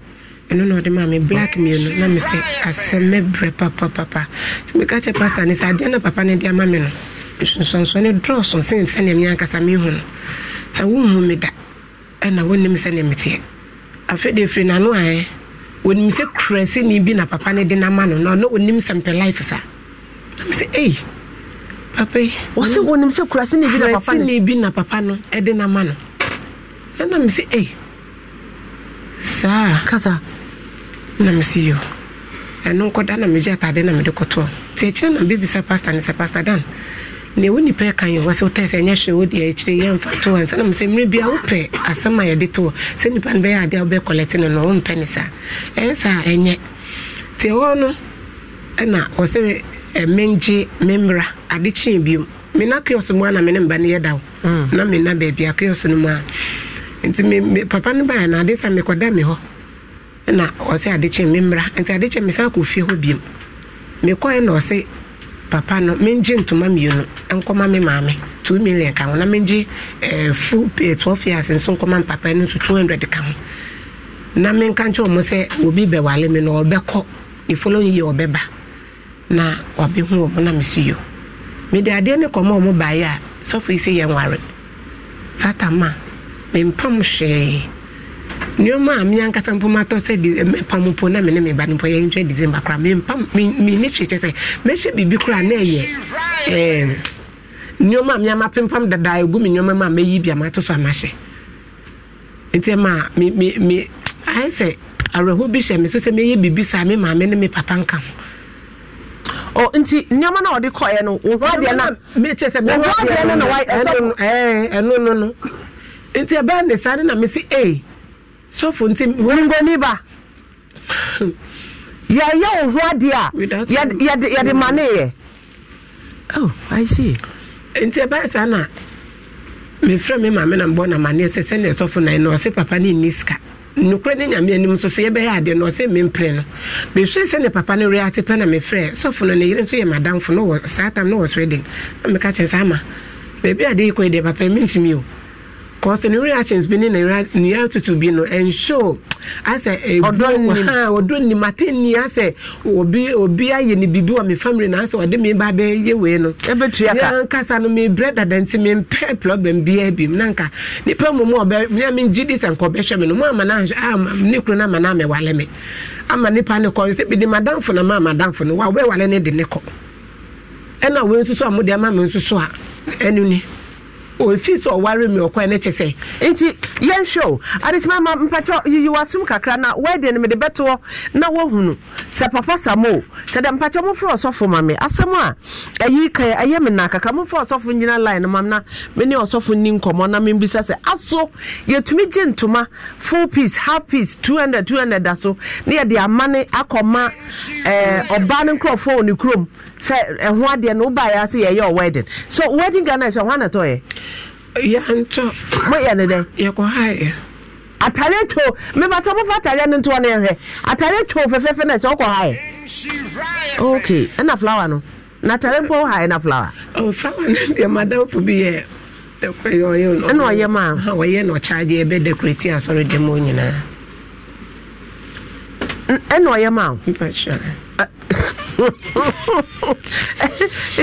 ɛno na ɔde maa me black mmienu na me sɛ asɛm mɛbrɛ papapapa sɛ meka kyɛ pastor ne sɛ adeɛ na papa no de ama me no nsonsoane dɔɔso sen sɛnea me ankasa mehu no sɛ wohu me da ɛna wonnim sɛnea meteɛ afei de ɛfiri n'ano aɛ wɔnim sɛ kurasini bi na papa no de no ama no na ɔno ɔnim sɛ mpɛ life saa na me sɛ ei hey papa yi wɔsi wɔnim sɛ kurasi ne bi na papa no kurasi ne bi na papa no ɛde na ma no ɛna mi si ɛy saa kasa na mi si yio ɛno nkɔda na mi gye ataade na mi de kɔtɔ te akyire na beebi sɛ pastor ne sɛ pastor dan na ewu nipa yɛ kan yi wɔ sɛ wotɛ sɛ ɛnyɛ hwɛ wodi akyire yɛ nfa to wɔn nsa na mi sɛ mmiri bi a wopɛ asɛm a yɛde to wɔ sɛ nipa no bɛyɛ adeɛ a wobɛ kɔlɛte no na wɔn mpɛ ne saa ɛnsa ɛnyɛ te hɔ no ɛna wɔsɛ mengye mmemra adịchi ade m biom mena kios mu a na mene mba ni yɛ daw hmm. na mena baabi a kiosk no mu nti papa no na adịsa sa mekɔda na ọsị ade kyee me mmra nti ade na papa no mengye ntoma mmienu maame two million ka ho na eh, eh, twelve years na menka nkyɛ sɛ obi bɛwale me na wabɛhu wɔ mo na mesi yo mede adeɛ ne kɔma ɔ mo baeɛ a sɔfo yi sɛ yɛnware sata ma mempam hwee nneɔma a meankasa mpo matɔ sɛ eh, mepam mpo na mene meba no mpo yɛntwa december koraa mempam mene hwee kyɛ sɛ mɛhyɛ biribi koraa na ɛyɛ ehm. nneɔma a meama pempam dadaa ɛgu me nneɔma ma a mɛyi bi a mato so amahyɛ nti ma me ayɛ sɛ awerɛho bi hyɛ me so sɛ mɛyɛ biribi saa me maame ne me papa nka ho ọ nti nneɛma na ɔde kɔɛ no wɔhɔ adeɛ na mekyɛ sɛ wɔhɔ adeɛ na wa ɛsɔfo ɛɛ ɛno no no nti ɛbɛn ne saa ne na mesi ee sɔfo nti wongoni ba (laughs) yɛyɛ wɔhɔ adeɛ a yɛde yɛde ma ne oh i see nti ɛbɛn saa na mefrɛ me maame na mbɔ na ma ne yɛ sɛ ne ɛsɔfo na yɛ na ɔsɛ papa ne nni sika nukura ne nyame anim nso so yɛbɛyɛ adeɛ na ɔsɛ mempere no mehwɛ sɛ ne papa no reate pɛ na mefrɛ sɔfo no ne yere nso yɛ madamfo no wɔ saa tam no wɔ sweden na meka kyerɛ saa ma baabi adeɛ yi kɔ yi deɛ papa mentumi o because ne reactions bi ne ne nea tutu bi no nso asɛ ebiwa ɔdɔ nim ate ni asɛ obi obi ayɛ ni bibi wɔ mi family na asɛ ɔde mi ba bɛ yɛ wei no ɛbɛtua ka yɛn kasa no mi brɛ dada nti mi mpɛ problem biara bi mu nanka nipa mu mu ɔbɛ mi a mi gyi di sɛ nkɔ bɛhwɛ mi no mu ama na ahwɛ ama ne kuro na ama na ama wale mi ama nipa ne kɔ nsɛ bi de madamfo na ma amadamfo no wa ɔbɛ wale ne de ne kɔ ɛna wɔn nso a mo de ama mi nso so a ɛnu ni. ofie sɛ ɔware me ɔkwan ne te sɛ nti yɛnhwɛ o adekyema ma mpakyɛ yiyiwasom kakra na wɔde no mede bɛtoɔ na woahunu sɛ papa samo sɛ dɛ mpakyɛ mofrɛ ɔsɔfo ma me asɛm a ɛyi ka ɛyɛ me na kaka mofrɛ ɔsɔfo nyina line no mam na mene ɔsɔfo ni nkɔmmɔ na membisa sɛ aso yɛtumi gye ntoma full piece half piece two hundred, two hundred da so na de, ama eh, ne akɔma ɔba ọba nkurɔfoɔ wɔ ne kurom sɛ ɛho adeɛ no wobaeɛ ase yɛyɛ wedding so wedding ghana ɛhyɛ ho anatɔyɛ yɛntɔ moyɛ ne dɛn yɛkɔhaeɛ atare two mebatɔ mofa atare no ntoɔ no ɛhwɛ atare two fɛfɛfɛ no ɛhyɛ wokɔhaeɛ ok ɛna flower no na atare mpo wohaeɛ na flower flower no deɛ madamfo bi yɛ ɛna ɔyɛ ma ɔyɛ na ɔkyaagye ɛbɛdekorati asɔre dɛ ma nyinaa ɛna ɔyɛ ma (laughs)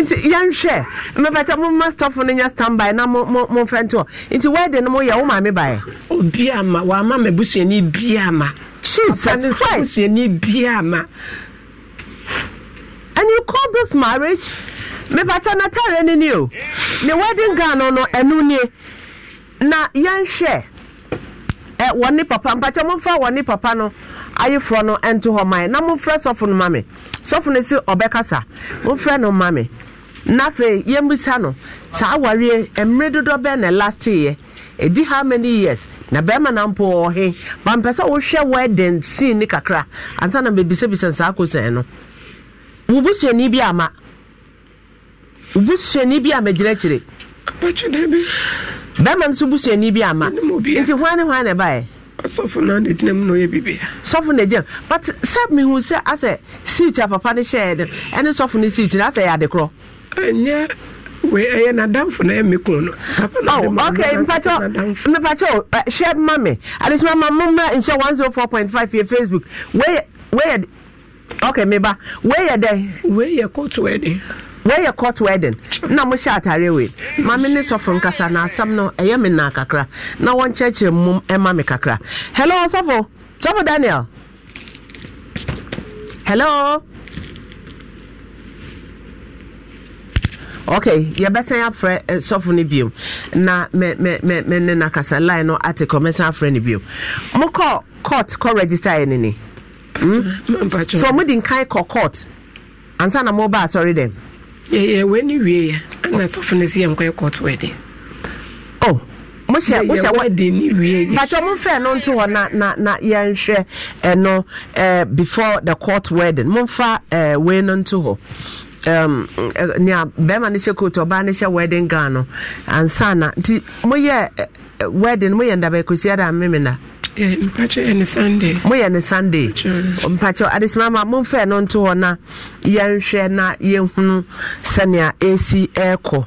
nti yɛnhwɛ mepɛkyɛ momma stɔfo no nyɛ standby na momfɛ nto hɔ nti wɛde no moyɛ wo me baɛ obia ma wama mabusuani bia ma jesus christ busuani bia ma and you call this marriage mepɛkyɛ natare ne ni o ne wedding gown no ɛno nie na yɛnhwɛ Eh, wɔne papa mpakyɛ momfa wɔne papa no ayeforɔ no nto hɔ man na momfrɛ sɔfo no ma me sɔfo no si ɔbɛkasa momfrɛ no ma me na afei yɛmmisa no saa awareɛ mmerɛ dodo bɛ na last lasteeɛ ɛdi how many years na bɛrima na mpo ɔhe bampɛ sɛ wohwɛ wedding scene ne kakra ansa na mebisabisa saa kosɛn no wo busuani bi ama wo busuani bi ama magyina akyire bɛrima nso busuani bi ama nti hwan ne hwan na ɛbaeɛ sɔfo no na gyina mu na ɔyɛ biribia sɔfo na gyina but sɛ mehu sɛ asɛ seat a papa no hyɛɛ no ɛne sɔfo no seat no asɛ yɛ adekorɔ ɛnyɛ wei ɛyɛ nadamfo na ɛme kun no oh, ok mpakyɛ mepakyɛ hwɛ ma me adesoma ma mommra nhyɛ 104.5 yɛ facebook wei yɛ ok meba wei yɛ dɛn wei yɛ court wedding wɔyɛ court wedding na mohyɛ atare wei maame ne sɔfo nkasa na asɛm no ɛyɛ me naa kakra na wɔnkyerɛkyerɛ mmom ɛma me kakra hello sɔfo sɔfo daniel hello okay yɛbɛsan afrɛ sɔfo no biom na me me me me na kasa line no ate kɔ mɛsan afrɛ no biom mokɔ court kɔ register yɛ ne ne so mode nkan kɔ court ansa na mobaa asɔre dɛm yɛyɛ w'ani wie ɛna sɔfo no si yɛ nkɔ yɛ kɔɔto wɛde mohyɛ mohyɛ wɛde ni wie oh. yɛ pàtó oh, mo fɛ no nto hɔ na na na yɛnhwɛ ɛno eh, ɛɛ eh, before the court wedding mo nfa ɛɛ eh, wei no nto hɔ. Um, nea bɛrima no hyɛ coat ɔbaa no hyɛ wedding gown no ansa na nti moyɛ wedding moyɛ ndabɛkosia da memena Eh, mpakyɛ yɛ eh, ne sunday moyɛ ne sunday mpakyɛ adesima ma momfɛ no nto hɔ na yɛnhwɛ na yɛhunu sɛnea ɛsi ɛɛkɔ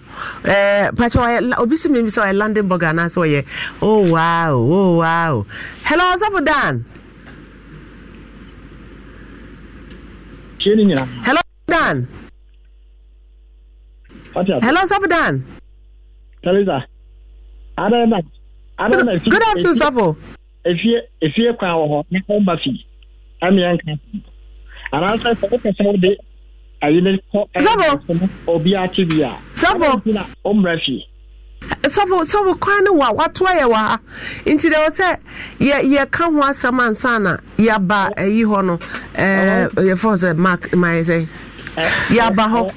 eh, mpakyɛ obi si mimi sɛ ɔyɛ london burg anaasɛ ɔyɛ oh wow oh wow hello ɔsɔfo dan hello dan hello ɔsɔfo dan Teresa. Good afternoon, Safo efie efie kwan wɔ hɔ ne ho ba fi amia nka anaasɛ sɛ wopɛ sɛ wode ayi ne kɔ ɛsɛbɔ obi ate bi a sɛbɔ ɔmmra fie sɔfo sɔfo kwan ne wa watoa yɛ wɔ ha nti deɛ wɔ sɛ yɛ yɛka ho asɛm ansa na yɛaba ayi hɔ no ɛɛ yɛfɔ sɛ mark mayɛ sɛ yɛaba hɔ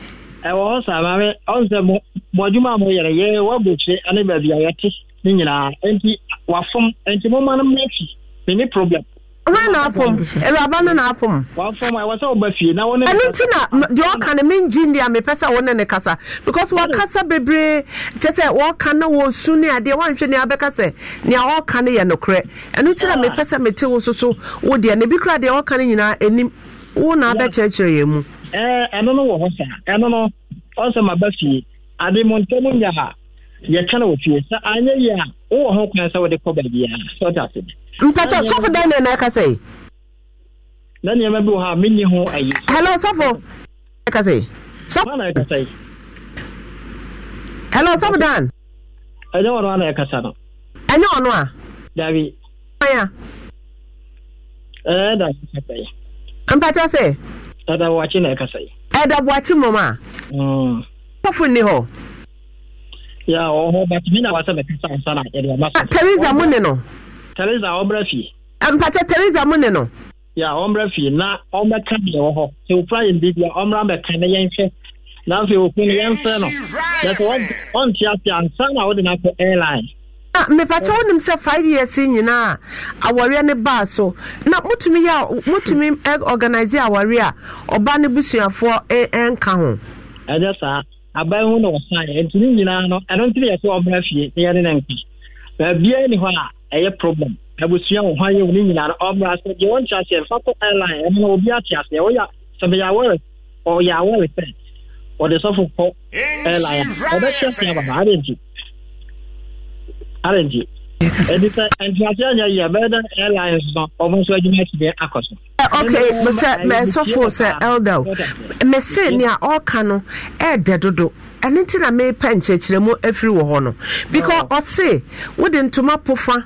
ɛwɔ hɔ saa maame ɔn sɛ mo mo adwuma a mo yɛrɛ yɛ wabɔ kyerɛ ane baabi a yɛte ne nyinaa nti wafom nti mo ma no mmefi ne ne problem ha na afom awuraba no na afom wafom a wasa wɔba fie na wɔne ɛno nti na deɛ ɔka no mengye ndi a mepɛ sɛ na ne kasa because wɔkasa bebree kyɛ sɛ na no wɔsu ne adeɛ woanhwɛ ne abɛka sɛ nea ɔka no yɛ nokorɛ ɛno nti na mepɛ sɛ mete wo so wo deɛ na bi kora deɛ ɔka no nyinaa ɛnim na abɛkyerɛkyerɛ yɛ mu eh, ɛno no wɔ hɔ saa ɛno no ɔsɛ maba fie ade nya ha yɛka wɔ fie sɛ wowɔ ho kwan sɛ wode kɔ baabiaa sɛ ɔte ase mpɛtɛ sɔfo dɛn na ɛna ɛka sɛ na nneɛma bi wɔ ha menni ho ayi hello sɔfo ɛka sɛ sɔfona ɛka sɛ hello sɔfo dan ɛnyɛ ɔno a na ɛkasa no ɛnyɛ ɔno a dabi aya ɛda ɛkasa yi mpɛtɛ sɛ ɛda wɔakye na ɛkasa yi ɛda mmom a mm. sɔfo nni hɔ ya ɔhɔ but mi na wasɛ mɛkasa ansa na yɛde e, ɔma so. Ah, teresa mu ne no. teresa ɔmbrɛ fie. Ah, mpakyɛ teresa mu ne no. ya ɔmbrɛ fie na ɔmɛka deɛ wɔ hɔ sɛ ofura yɛn bi bia ɔmra mɛka na yɛn hwɛ na afei okun no yɛn fɛ no yɛsɛ ɔnte ase ansa na ɔde na akɔ airline. Ah, mepakyɛ wonim sɛ five years nyinaa awareɛ ne baa so na motumi yɛ motumi organise awareɛ a ɔba ne busuafoɔ e, e, nka ho ɛnyɛ saa aban ho na wɔsaeɛ nti ne nyinaa no ɛno nti ne yɛ sɛ ɔmra fie ne yɛne ne nka baabia ni hɔ a ɛyɛ problem abusua wo ho ayɛ wo ne nyinaa no ɔmra sɛ deɛ wɔnte aseɛ mfa kɔ airline ɛno na obi ate aseɛ woyɛ sɛ bɛyɛ awɔre ɔyɛ awɔre sɛ ɔde sɔfo kɔ airline a ɔbɛkyɛ se ababa adɛnti adɛnti ɛdi sɛ ntuase anya yie bɛyɛ dɛ airlines no ɔmo nso o mese nea ɔka no ɛɛdɛ dodo ɛne ti na because oh. ɔse wode ntoma pofa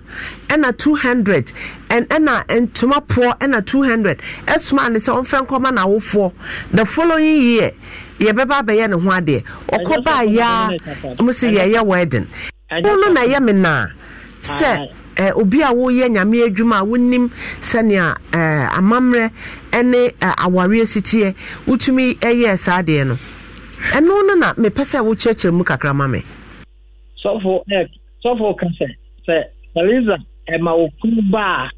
two hundred ɛna ntoma poɔ ɛna two hundred ɛsoma ne sɛ ɔmfɛ nkɔma n'awofoɔ the following year yɛbɛba abɛyɛ ne ho adeɛ ɔkɔ baa yaa mo se wedding. ɛno na sɛ eh, obi a woyɛ nyame adwuma a wonim sɛnea eh, amammerɛ ne eh, awareɛ siteɛ wotumi ɛyɛɛ saa deɛ no ɛno no na mepɛ sɛ wokyerɛkyerɛ mu kakra ma me sɔfo ka sɛ sɛ theresa ɛma wo kunu ba a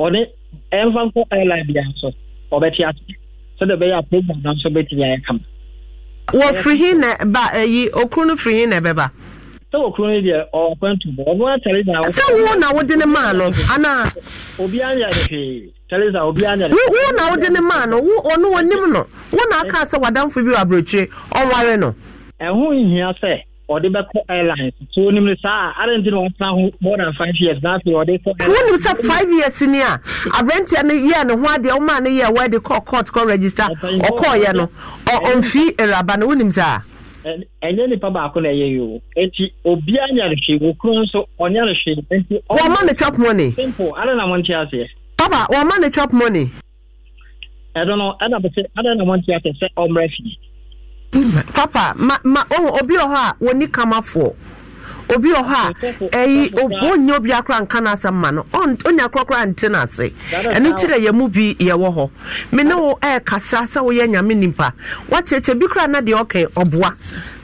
ɔne ɛmfa nkɔ airline bia so ɔbɛte ase sɛdeɛ ɛbɛyɛ a program nanso bɛtumi ayɛ kama wɔfiri hi na ba ayi okuru no firi na ɛbɛba sɛ wɔ kuro no deɛ ɔnkwan tu bɔ ɔno atare na sɛ wo na wode ne maa no anaa obiara nyɛ ade hwee teresa obiara nyɛ ade wo na wode ne maa no wo ɔno wɔnim no wo na aka sɛ wadamfo bi wɔ aberɛkyire ɔware no ɛho nhia sɛ ɔde bɛkɔ airlines so wonim no saa ade nti na wɔmpena ho more than five years na afei ɔde kɔ wonim sɛ five years ni a aberanteɛ no yɛɛ ne ho adeɛ womaa no yɛɛ wɔde kɔ court kɔ register ɔkɔɔyɛ no ɔmfii awuraba no wonim saa ɛnyɛ nipa baako na ɛyɛ yi o eti obi nyare hwee nso ɔnyare hwee eti. wɔn ma ne chop money. simple ada na mo nti aseɛ. papa wɔn ma ne chop money. ɛdo no ɛna bɛ sɛ ada na mo nti aseɛ sɛ papa ma ma obi wɔ hɔ a wɔn ni kama obi wɔ hɔ a ɛyi ɔnya obi akora nka no asɛm ma no ɔnya korakora nte no ase ɛno nti dɛ yɛmu bi yɛwɔ hɔ me ne wo ɛɛkasa sɛ woyɛ nyame nipa woakyerɛkyerɛ bi koraa na deɛ ɔkɛ ɔboa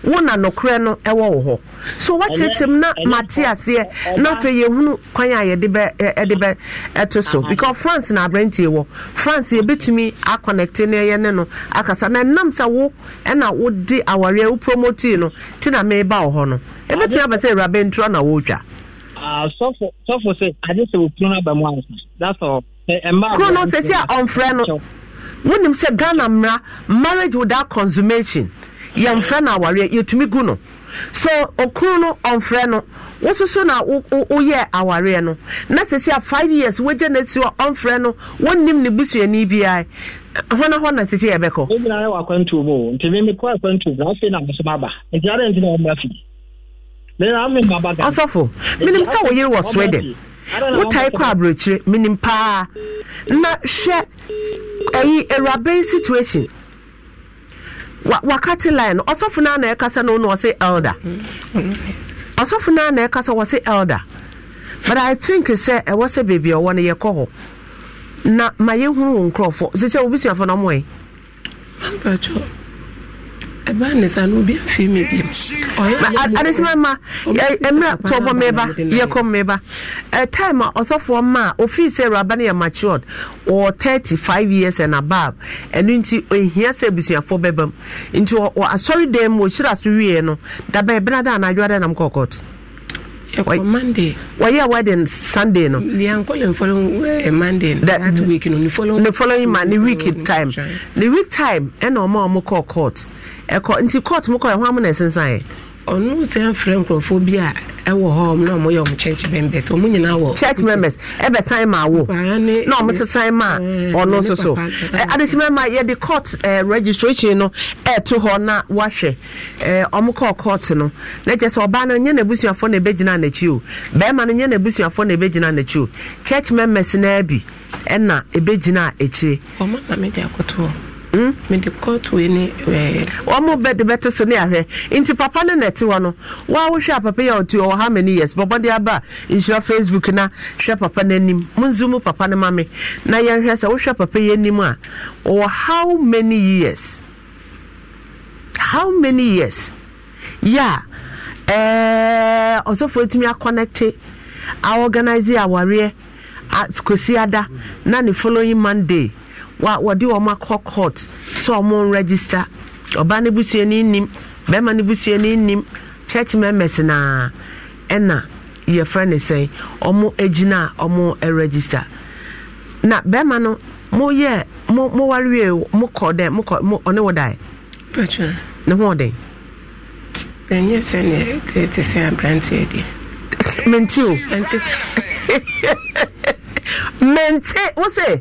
wo na nokorɛ no ɛwɔ wo hɔ so woakyerɛkyerɛm na mate aseɛ na afei yɛhunu kwan a yɛde bɛ ɛto so because france na aberantie wɔ france yɛbɛtumi aconnecte no ɛyɛ ne no akasa na ɛnam sɛ wo ɛna wode awareɛ wo promotii no nti na meba wo hɔ no ɛbɛtumi ah, aba sɛ awuraba ntura na wɔretwa sɔfo sɛ sɛ wɔkuro a ɔmfrɛ no wonim sɛ ghana mmara marriage without consummation yɛmfrɛ no awareɛ yɛtumi gu no so okuru no ɔmfrɛ no wososo na woyɛ awareɛ no na sɛsi a five years wogya no asi hɔ ɔmfrɛ no wonnim ne busuani biara hɔn hɔ na sisi ebi na ayɛ wɔ akwantuo mu o nti mi mi kɔ akwantuo mu afei na nti ara nti na wɔn ma ɔsɔfo sɛ wɔ sweden wotae kɔ na hwɛ situation wakate line no ɔsɔfo no ana ɛkasa no no ɔse elder ɔsɔfo no ana ɛkasa wɔse elder but i think sɛ ɛwɔ sɛ baabi a ɔwɔ no yɛkɔ hɔ na ma yɛhunu wo nkurɔfoɔ sɛ sɛ wobisuafo no ɔmoɛ ɛba no obi afei mi bi adesima ma mmerɛ tɔbɔ mmeba yɛkɔ mmeba time a ah, ɔsɔfoɔ ma a ofii sɛ eh, awuraba no yɛ eh, matured wɔ 35 years and above ɛno nti ohia sɛ abusuafoɔ bɛba mu nti wɔ asɔre dan mu ɔhyira so wieɛ no dabɛ ɛbena na anadwo ada nam kɔkɔt ɛkɔ monday wɔyɛ wedding sunday no yɛnkɔle following eh, monday that week no ne following ma ne week time ne week time ɛna ɔma ɔmo kɔɔ court ɛkɔ nti court mu kɔ ɛho amu na ɛsensan ɔno sɛ mfrɛ nkurɔfoɔ bi a ɛwɔ hɔ m na ɔmoyɛ ɔmo church members ɔmo nyinaa wɔ church members ɛbɛsan ma wo na ɔmo sesan ma ɔno nso so adehyemɛ ma yɛde court registration no ɛɛto hɔ na wahwɛ ɔmo kɔɔ court no na kyerɛ sɛ ɔbaa no nyɛ n'abusuafoɔ na ɛbɛgyina n'akyi o bɛrima no nyɛ n'abusuafoɔ na ɛbɛgyina n'akyi o church members naa bi ɛna ɛbɛgyina akyire ɔmo na mede akɔto hɔ Hmm? mede court wei ne eh, ɔmo bɛde bɛte so ne ahwɛ nti papa no nɛte hɔ no woawohwɛ a papa yɛ ɔti ɔwɔ ha many years bɔbɔ de aba nhyira facebook na hwɛ papa no anim monzu mu papa no ma me na yɛnhwɛ sɛ wohwɛ papa yi anim a ɔwɔ how many years how many years yɛ eh, a ɔsɔfoɔ atumi akɔnɛte a organise awareɛ kosi ada na ne following monday wa wɔde wɔn akɔ court sɛ wɔn register ɔbaa no busuani nim bɛrima no busuani nim church members na ɛna yɛfrɛ ne sɛn wɔn gyina a wɔn register na barima no mo yɛ mo mo warewie mo kɔ dɛ mo kɔ mo ɔne wɔ dae. pɛtwa ne ho ɔden. ɛnyɛ sɛ ne tete sɛ aberanteɛ deɛ. menti o. (laughs) menti wose.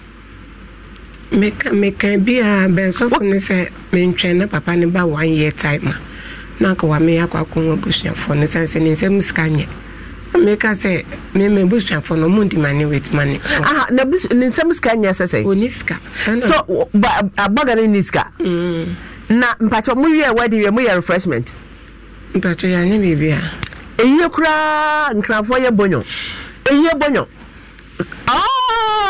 meka bi a bɛnsɔfo no sɛ mentwɛn na papa ne ba one year time a na anka wa meyɛ akɔ akɔhu abusuafoɔ no sane sɛ ne nsɛm sika nyɛ meka sɛ mema abusuafoɔ no ɔmo ndi mane wit mane ne nsɛm sika nyɛ sɛ sɛ sika so abɔga no ni sika mm. na mpakyɛ mowie wadi wie moyɛ refreshment mpakyɛ yɛanyɛ biribi a ɛyie koraa nkrafoɔ yɛ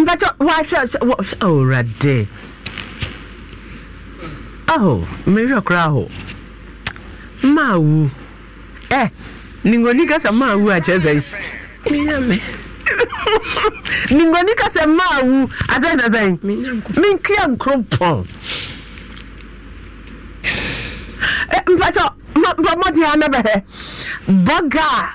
mpatɛ wahwɛ owurade aho mmerehwɛ koraa ho maa mau ɛ ningoni kasa maa wu akyerɛ sɛ menyame ningoni kasa maa wu adɛn na sɛn menkria nkoropɔn mpatɛ mbɔmmɔde a na bɛhɛ bɔga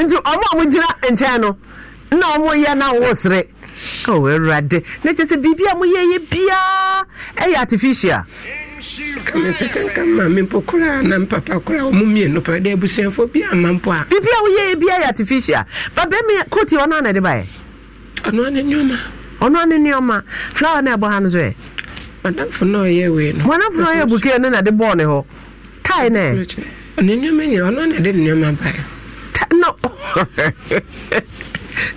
nti ɔmo a mogyina nkyɛn no na ɔmo na ɔwɔ sere ɔwɔ awurade na sɛ biribi a moyɛ yɛ biaa ɛyɛ artificial nka ma na mpapa koraa ɔmo mmienu pa dɛ abusuafoɔ bi ama mpo a biribi a woyɛ yɛ biaa yɛ artificial babɛmi koti ɔno ana de baɛ ɔno ane nneɔma ɔno ane nneɔma flower na ɛbɔ ha no na ɔyɛ wei no madamfo ɔyɛ na de bɔɔ ne hɔ tae ne nneɔma nyina ɔno ane de no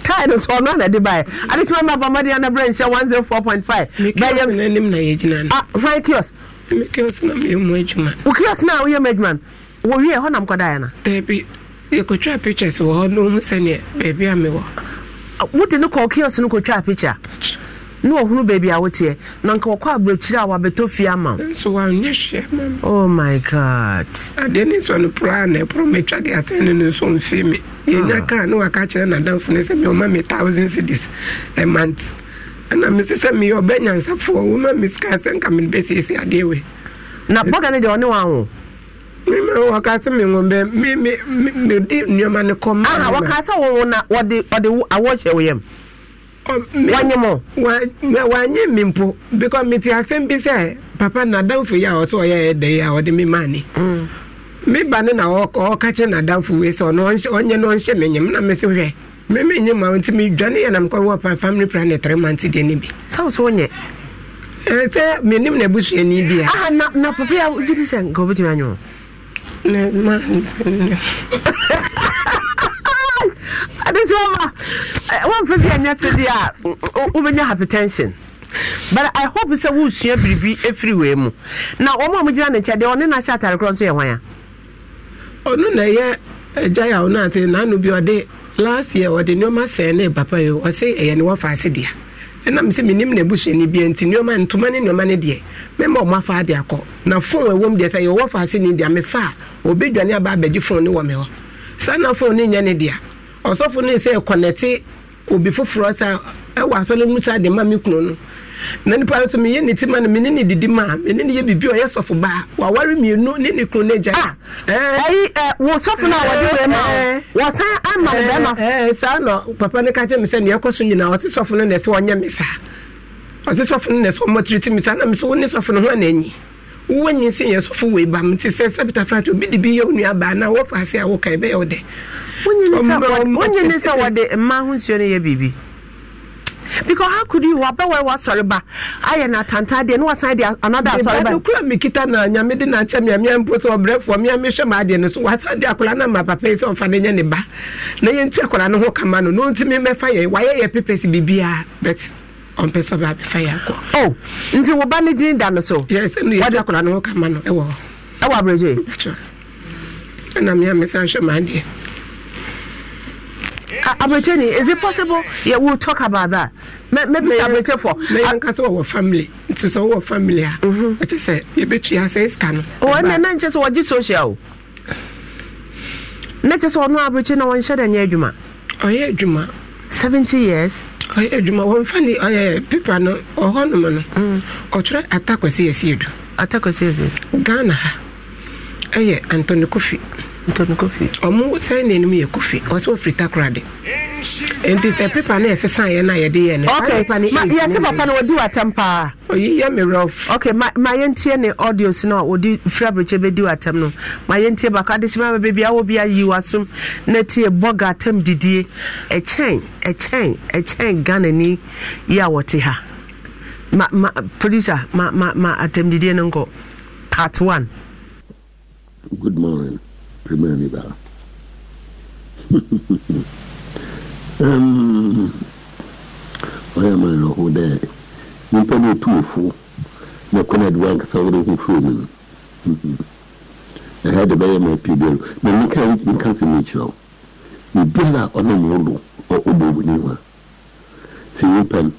tide nso ɔno ana de baɛ adesima ma ba mɔden ana brɛ nhyɛ one zero four point five. bɛyɛ mi n'anim na yɛ gyina no. ah hwan kios. mi kios na mi mu adwuma. o kios na o yɛ mu adwuma no wɔ wie hɔ nam kɔ da yɛ na. beebi yɛkotwa pictures wɔ hɔ na ohun sɛnea beebi a mi wode ne kɔ kios no kotwa picture na ɔhunu baabi a woteɛ na nka wɔkɔ aburokyire a wabɛtɔ fie ama wo nso wanyɛ hwɛ mama oh my god adeɛ ne nsɔ no poraa na ɛporɔ matwa de asɛn no no nso mfie me yɛnya ah. kaa ne waka kyerɛ nadamfo no sɛ meɔma me thousand cities a month ɛna mese sɛ meyɛ ɔbɛ nyansafoɔ woma me sika sɛ nka mede bɛsiesie adeɛ we na bɔga no deɛ ɔne wawo wɔka sɛ mewɔbɛ mede nnuɔma no kɔma wɔka sɛ wɔwo na wɔde awɔ hyɛ wo wanyɛ mɔ because mi ti asɛm bi sɛ papa nadamfo yi a ɔsɛ ɔyɛ ɛdɛ ya a ɔde mi maa ni mm. me ba ne na ɔka kyɛ nadamfo yi sɛ ɔno ɔnyɛ no ɔnhyɛ ne nyɛm na mi si hwɛ mi mi nyɛ ma nti mi dwa ne yɛ nam kɔ wɔ three months deɛ ne bi. sáwọ sọ wọn yɛ. ɛ sɛ nim na ebusuani bi a. ah na na papa yi a jiri ne ma n (laughs) adeɛ nti wɔma eh, wɔmfa bi anyɛ se a wobɛnya hypertension but i hope sɛ woresua biribi ɛfiri wei mu na wɔn a mogyina ne nkyɛn deɛ ɔne no ahyɛ atare korɔ nso yɛ hwan ɔno na ɛyɛ eh, a ɔno ate n'ano bi ɔde last year ɔde nneɛma sɛn ne papa yi ɔse ɛyɛ ne wɔfa ase deɛ ɛnam na busuani bia nti nneɔma ntoma ne nneɔma no deɛ mɛma fa de na deɛ sɛ ase ne deɛ na phone ne ɔsɔfo no sɛ kɔnɛte obi foforɔ sa ɛwɔ asɔre mu sa de ma me kunu no na nipa nso meyɛ ne ti ma no mene ne didi ma mene ne yɛ biribi ɔyɛ sɔfo baa waware mmienu ne ne kunu no agya ah, ɛyi wo sɔfo no a wɔde wɛ ma wɔsan ama wo bɛma saa na papa no ka kyerɛ me sɛ neɛ ɛkɔ so nyinaa ɔse sɔfo no na ɛsɛ ɔnyɛ me saa ɔse sɔfo no na ɛsɛ ɔmmɔtiri ti me saa na me sɛ wo ne sɔfo no ho ana anyi wonyi si yɛ sɔfo wei ba mte sɛ sɛbita frate bi de bi yɛ onua na wɔfa ase a woka ɛbɛyɛ wo dɛ wonye ne sɛ wɔde mma ho nsuo yɛ biribi because how could you wabɛ wɔ wasɔre ba ayɛ na atantan deɛ ne wasan de another asɔre ba kura mekita na nyame mpo so wasan de papa yi sɛ ɔfa na na ɔmpɛ sɛ ɔbɛ abɛfa yɛ akɔ. o oh, nti wo ba ne din da no so. yɛrɛ sɛ nuyɛ ɔdi akɔla ne Ẹ wọ. no na mi ni is it possible yeah, we talk about that mɛ mɛ bi aburoje fɔ. mɛ nkasa wọ family nti sɛ family a. ɛkyɛ mhm. sɛ yɛbɛtua sɛ esika no. wɔn oh, na social. ne kyɛ sɛ ɔno aburoje na nyɛ adwuma. ɔyɛ adwuma. seventy years. ɔyɛ adwuma wɔmfa ne ɔyɛ pepa no ɔhɔnom no mm. ɔtwerɛ atakwasi yɛsi edu. atakwasi yɛsi. ghana ha ɛyɛ antoni kofi ntɔno kofi ɔmo sɛnde no mu yɛ kofi ɔsɛ ofiri takora de nti sɛ pepa no ɛsesan yɛ no a yɛde yɛ ne yɛse papa no wɔdi watam paa oyi yɛ me rɔf ok ma yɛntie ne audios no a wɔde firi aberɛkyɛ bɛdi watam no ma yɛntie baako adehyema ba baabi a bi ayi wasom na tie bɔga atam didie ɛkyɛn ɛkyɛn e ɛkyɛn e ghanani yi a wɔte ha ma ma producer ma ma ma atam didie no nkɔ part one good morning primärmiddag. ɔyɛ ma no ho dɛ nipa no ɔtuofo na kwan adi wankasa wode ho firi mu no ɛha de bɛyɛ ma pii biaro na meka meka sɛ mekyerɛ wo biribiara a ɔnam wodo ɔbɔ w'ani ho a sɛ nipa no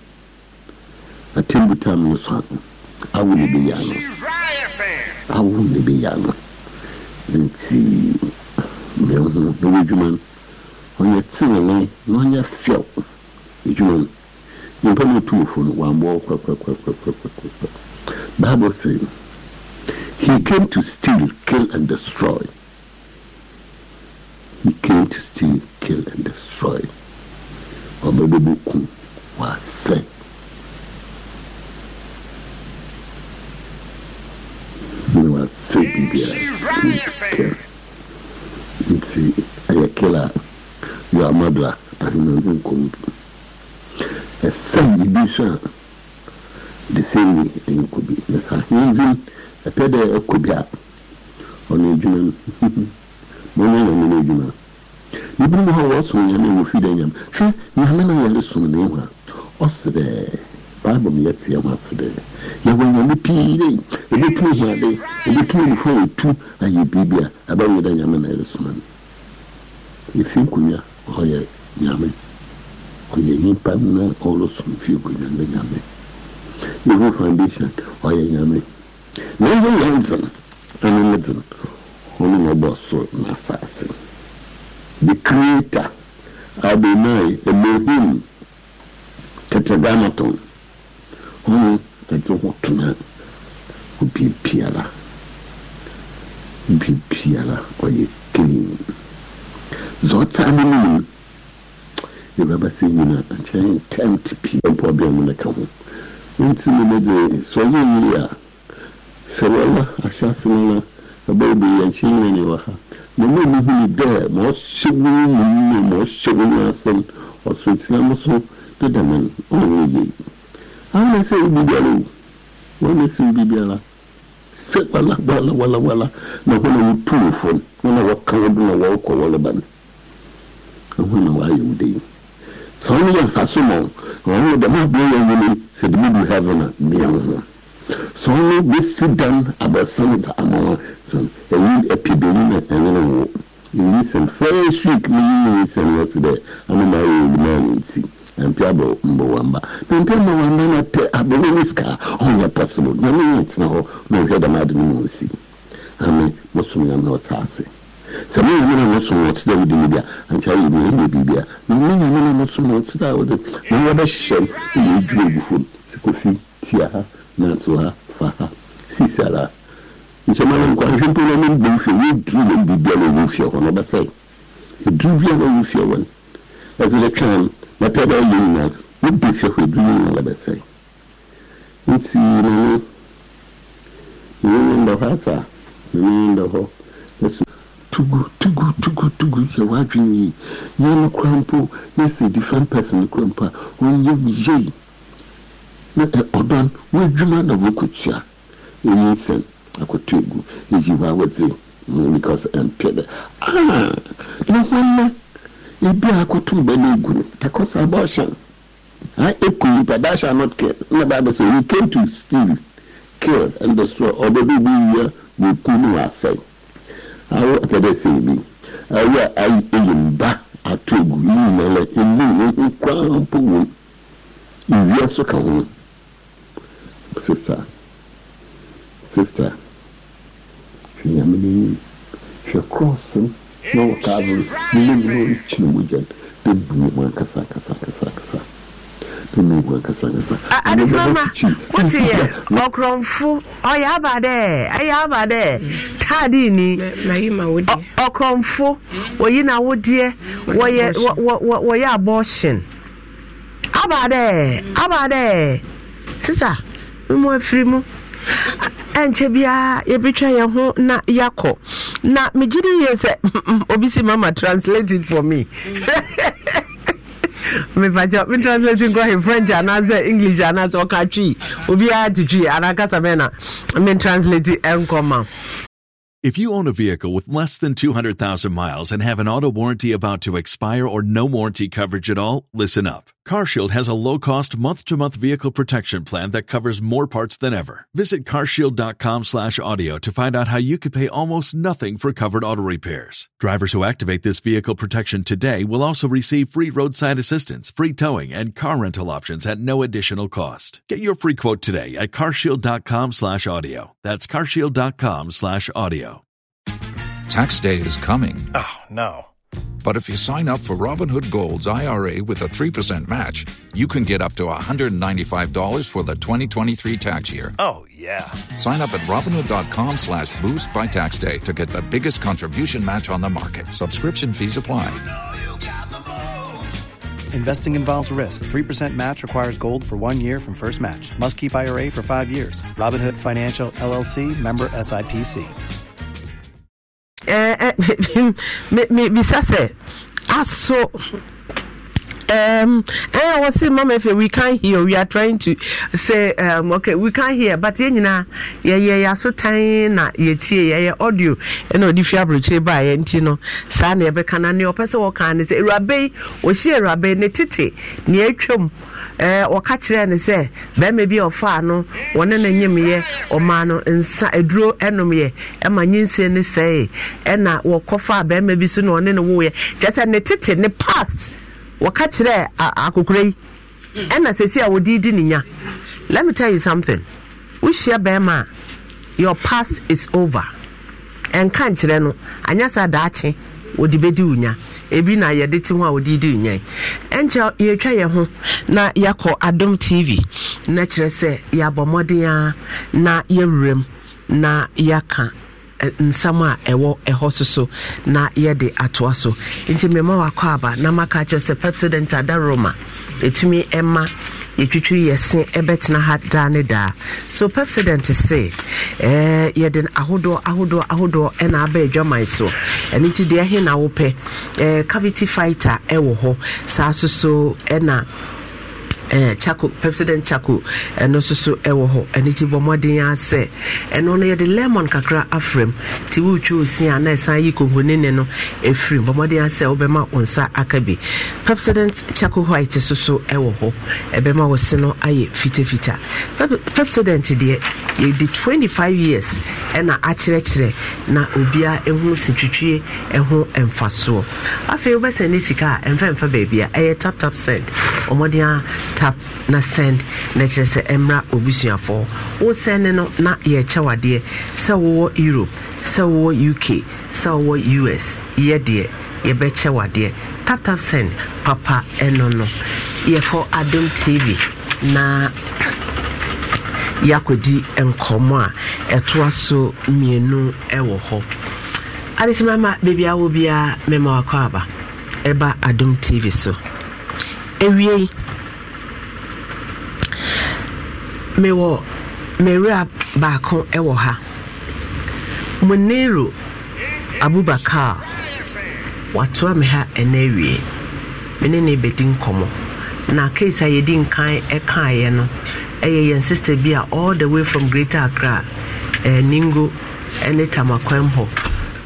atembu tam no so awo ne bɛyɛ ano awo ne bɛyɛ ano nti mehu bɛyɛ adwuma no ɔnyɛ tenene na ɔnyɛ fɛw adwuma no nyimpa no ɔtu wofo no wammɔ kwakwakwakwakwakwakwa bible say he came to steal kill and destroy he came to steal kill and destroy ɔbɛbɛbɛku waasɛe była co Biblia. nti ɛyɛ kila yɛ amadra ahena no nkɔm ɛsɛn ebi so a de sɛn ni ɛnyɛ kɔ bi na saa ahenzin ɛpɛ dɛ ɛkɔ bi a ɔno adwuma no (laughs) mɔnyɛ na ɔno adwuma ebinom hɔ a wɔsom nyame wɔ fi dɛ hwɛ nyame na yɛre som ne ho a ɔserɛɛ bible mi yɛ teɛ mu ase dɛ yɛwɔ nyame pii dɛ ɛbɛtumi hu ade ɛbɛtumi nifo a ɛtu ayɛ biribi a ɛbɛnyɛ dɛ nyame na ɛresoma no ɛfi nkonnwa hɔ yɛ nyame ɔyɛ nnipa na ɔresom fie nkonnwa ne nyame yɛhu foundation ɔyɛ nyame na ɛyɛ yɛn ɛne ne dzen ɔno na ɔbɔ soro na asase the creator adonai elohim tetragrammaton hwan na de ho tena obi biara obi biara ɔyɛ clean dza ɔtaa no no mu yɛbɛba sɛ nyina nkyɛn tent pii mpɔ bia mu no ka ho nti no no de sɛ ɔyɛ yie a sɛ wɔla ahyɛ ase no na ɛbɛyɛ bɛyɛ nkyɛn nyina ne wɔ ha na mo ni huni dɛ ma ɔhyɛ wo mu mu ma ɔhyɛ wo mu asɛm ɔsoro tia mo so deda no ɔwɔ yie ama ese ibi biara o wɔn ese ibi biara sɛ wala wala wala wala na wɔn uh, a wotu wɔ fam wɔn a wɔka wɔn do na wɔrekɔ wɔreba no wɔn na wɔayɛ wo de yi sɛ wɔn yɛ nfaso ma wɔn wɔn dɛm aburo yɛ wɔn yi sɛ dɛm edu heaven a mmea wɔn ho sɛ wɔn besi dan abɛsan dza ama wɔn sɛ ɛyi ɛpi bɛyi na ɛnyɛ wɔn yi sɛn fɛn suik ne yi yi sɛn wɔsi dɛ ama na mpiabɔ mbɔwamba na mpia mbɔwamba na pɛ abɛwɔ ne sika ɔnyɛ possible na ne yɛ tena hɔ na ɔhwɛ dɛm ade no mu nsi ame mosom yam na ɔta ase sɛ me nyame na mosom ɔkyerɛ wode mu bi a ankyɛ woyɛ mu ɛnyɛ biribi a na me nyame na mosom ɔkyerɛ a wode na wɔbɛhyehyɛ m na yɛdwiri agu fam sikofi tia ha nanso ha fa ha sisi ara nkyɛmara nkwanhwɛ mpo na ne mbom fie wɔduru wɔ biribiara ɔwɔ fie hɔ no ɔbɛsɛe ɛduru biara ɔwɔ fie hɔ no ɛsɛ mɛtɛ bɛ yɛ nyinaa ne bi hwɛ hwɛ duru nyinaa la bɛ sɛ nti nane nane bɛ hɔ ata nane bɛ hɔ ɛso tugu tugu tugu tugu yɛ wadwin yi yɛ no kora mpo yɛ sɛ different person no kora mpo a ɔnyɛ yie na ɔdan wɔadwuma na wɔkɔtua ɛyi nsɛm akɔtɔ egu ɛyi wa wɔdze mu because ɛmpɛ dɛ ah na wɔn nɛ ebi akoto bɛlɛ egu no because abortion ha eku nipa that shall not kill na bible say he came to steal kill and destroy ɔbɛ bi bi wia wɔ ku no asɛn awo akɛdɛ sɛ ebi awo a ayi eyi mba ato egu yi nyinaa emu wɔn nkwa mpo wɔn ewia nso ka ho sista sista hwɛ nyame n'enyim hwɛ kɔɔso. na ọka abụrụ nne m na onye dị bụ m akasa akasa akasa akasa adesimama wotiɛ ɔkorɔmfo ɔyɛ aba dɛ ɛyɛ aba dɛ taade ni ɔkorɔmfo oyi na wodeɛ wɔyɛ wɔyɛ aba dɛ aba dɛ sisa afiri ɛnkyɛ biara yɛbɛtwa yɛn ho na yɛakɔ na megye de yie sɛ obi si mama translate it for me (laughs) mefakyɛ me translate nkɔ he french anaasɛ english anaasɛ ɔka twi obiara te twi anaakasa mɛ na me translate ɛnkɔ ma If you own a vehicle with less than 200,000 miles and have an auto warranty about to expire or no warranty coverage at all, listen up. CarShield has a low-cost month-to-month vehicle protection plan that covers more parts than ever. Visit carshield.com/audio to find out how you could pay almost nothing for covered auto repairs. Drivers who activate this vehicle protection today will also receive free roadside assistance, free towing, and car rental options at no additional cost. Get your free quote today at carshield.com/audio. That's carshield.com/audio. Tax day is coming. Oh, no. But if you sign up for Robinhood Gold's IRA with a 3% match, you can get up to $195 for the 2023 tax year. Oh, yeah. Sign up at Robinhood.com slash boost by tax day to get the biggest contribution match on the market. Subscription fees apply. You know you Investing involves risk. 3% match requires gold for one year from first match. Must keep IRA for five years. Robinhood Financial, LLC, member SIPC. bisa eh, eh, (laughs) sɛ aso um ɛyɛ wɔ se mama efe we can't hear we are trying to say um okay we can't hear but yɛn nyinaa yɛyɛ So tiny na yɛtie yɛyɛ audio ɛna eh, ɔde fi aburokyire ba yɛn ti no saa na yɛbɛka na nea ɔpɛ sɛ wɔka ne sɛ ewurabe yi ɔhyia ne tete nea atwam. Eh, wɔka kyerɛɛ no sɛ bɛrima bi a ɔfaa no wɔne no nyimyɛ ɔmaa no nsa aduro nomyɛ ɛma nyinsie no sɛe ɛna wɔkɔfaa bɛrima bi so na ɔne no woyɛ kyerɛ sɛ ne tete ne past wɔka akokora yi ɛna sɛsi a wɔde di ne nya let me tell you something wohyia bɛrima a your past is over ɛnka nkyerɛ no wɔde bɛdi nya ebi na yɛde te ho a wɔde di wo nya ɛnkyɛ yɛtwa yɛn ho na yɛakɔ adom tv na kyerɛ sɛ yɛabɔ mmɔden a na yɛwuram na yɛaka nsam a ɛwɔ ɛhɔ so so na yɛde atoa so nti mmɛma wakɔ aba na maka kyerɛ sɛ pepsodent adaroma ɛtumi ɛma yɛtwitwi yɛse ɛbɛtena ha daa ne daa so pepsident se eh, yɛde ahodoɔ ahodoɔ ahodoɔ ɛna aba adwaman so ɛno nti deɛ ɛhe na wopɛ eh, cavity fighter ɛwɔ hɔ saa so so ɛna eh, chako president chako ɛno eh, nso so ɛwɔ hɔ ɛno ti bɔ mmɔden asɛ ɛno no yɛde lemon kakra afrɛm ti wotwa osi a na ɛsan yi konkonini no ɛfirim bɔ mmɔden asɛ wobɛma wo nsa aka bi president chako white so so ɛwɔ hɔ ɛbɛma wo se no ayɛ fitafita president deɛ yɛde 25 years ɛna akyerɛkyerɛ na obia ɛho sintwitwie ɛho mfasoɔ afei wobɛsɛne sika a ɛmfɛmfa baabi a ɛyɛ taptap send ɔmmɔden a tap na send na kyerɛ sɛ ɛmmra obusuafoɔ wo sɛne no na yɛkyɛw adeɛ sɛ wowɔ europe sɛ wowɔ uk sɛ wowɔ us yɛ deɛ yɛbɛkyɛw adeɛ tap tap send papa ɛno no yɛkɔ adom tv na (coughs) yɛakɔdi nkɔmmɔ a ɛtoa so mmienu ɛwɔ hɔ adekyemama beebi a wɔ biara mɛma wakɔ aba ɛba adom tv so ewie mewɔ mewura baako ɛwɔ ha munero abubakar watoa me ha ɛna awie me ne bɛdi nkɔmɔ na keesi a yɛdi nkan ɛkaeɛ no ɛyɛ yɛn bi a all the way from greater accra eh, ningo ɛne tamakwam hɔ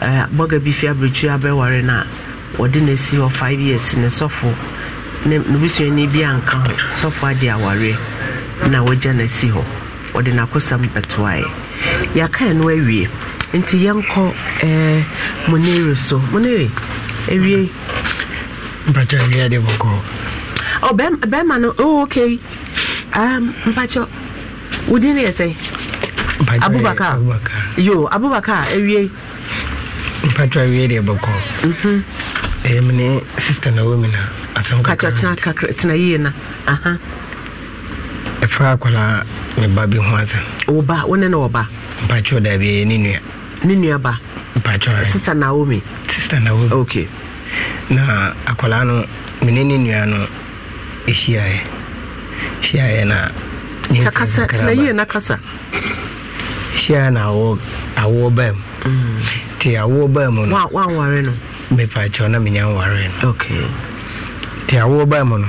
eh, bɔga bi fi abiritwi abɛware no a wɔde na esi hɔ five years ne sɔfo ne busuani bi nka ho sɔfo agye awareɛ na wɔagya no asi hɔ wɔde n'akosɛm ɛtoaeɛ yɛakae no awie nti yɛnkɔ eh, monere so monere awie mpakyɛ awie ade bɔkɔ oh bɛrima no oh okay um mpakyɛ wo din ne yɛ sɛ abubakar yo abubakar awie mpakyɛ awie deɛ bɔkɔ ɛyɛ mm-hmm. eh, mene sister na wɔ mi na asɛm kakra tena yie na aha uh -huh. ɛfa akwaraa ne ba bi ho ase wo wo ne ne wɔba mpakyɛw da bi ne nua ne nua ba naomi sister naomi okay na akwaraa no mene ne nua no ɛhyiaeɛ hyiaeɛ na kakasa na kasa baa mu nti baa mu no no na menya nware no okay nti awo baa mu no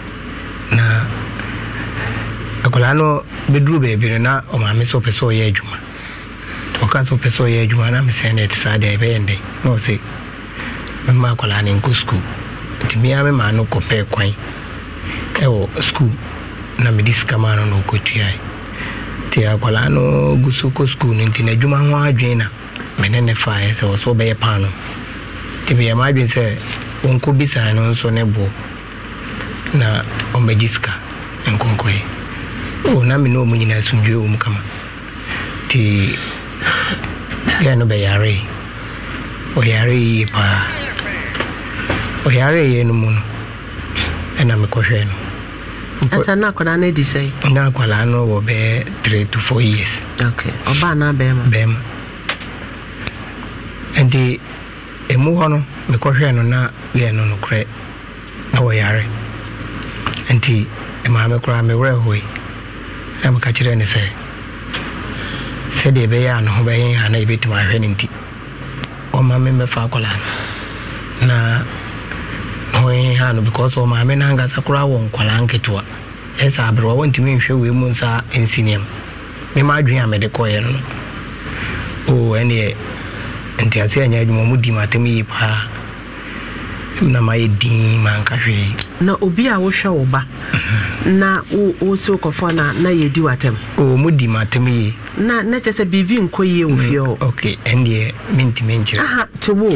na akwadaa no bɛduru baabi no na ɔmaame sɛ ɔpɛ sɛ ɔyɛ adwuma ɔka sɛ ɔpɛ sɛ ɔyɛ adwuma na mesɛ no ɛte saa deɛ ɛbɛyɛ ndɛ na ɔsɛ mɛma akwadaa no nkɔ sukuu nti mea no kɔpɛɛ kwan ɛwɔ sukuu na mede sika maa no na ɔkɔtuae nti akwadaa no gu so kɔ sukuu no nti n'adwuma ho adwene na mene ne faeɛ sɛ ɔsɛ ɔbɛyɛ paano nti meyɛ ma adwene sɛ wɔnkɔ bisaa no nso ne boɔ na ɔmmɛgye sika nkɔnkɔe o na me ne ɔmu nyinaa asomdwe wɔ mu kama nti yɛ no bɛyaree ɔyaree yie paa no mu no ɛna mekɔhwɛ no na akwadaa no adi na akwadaa no wɔ bɛyɛ three to years ɔbaa na bɛɛma bɛɛma nti ɛmu hɔ no mekɔhwɛ no na yɛ no nokorɛ na wɔyare nti maame koraa mewerɛ hoe na meka kyerɛ ne sɛ sɛdeɛ ɛbɛyɛ a ne ho bɛyɛ ha na yɛbɛtumi ahwɛ no nti ɔma me mɛfa akɔla no na ne ho yɛ ha no because ɔmaame no ankasa koraa wɔ nkwalaa nketewa ɛsɛ e aberewa wɔntumi nhwɛ wei mu nsa nsi nneɛma mema adwene a mede kɔeɛ no no ɛneɛ ntiase anya adwuma mu di m atɛm yie paa na mayɛ din manka hwee na obi a wohwɛ wo ba mhm. na wo sɛ wokɔfɔ no na yɛdi w'atɛm mu di m'atɛm yie na na kyɛ sɛ biribi nkɔ yie wɔ mm, fie hɔ ok ɛndeɛ mentimi nkyerɛ aha te wo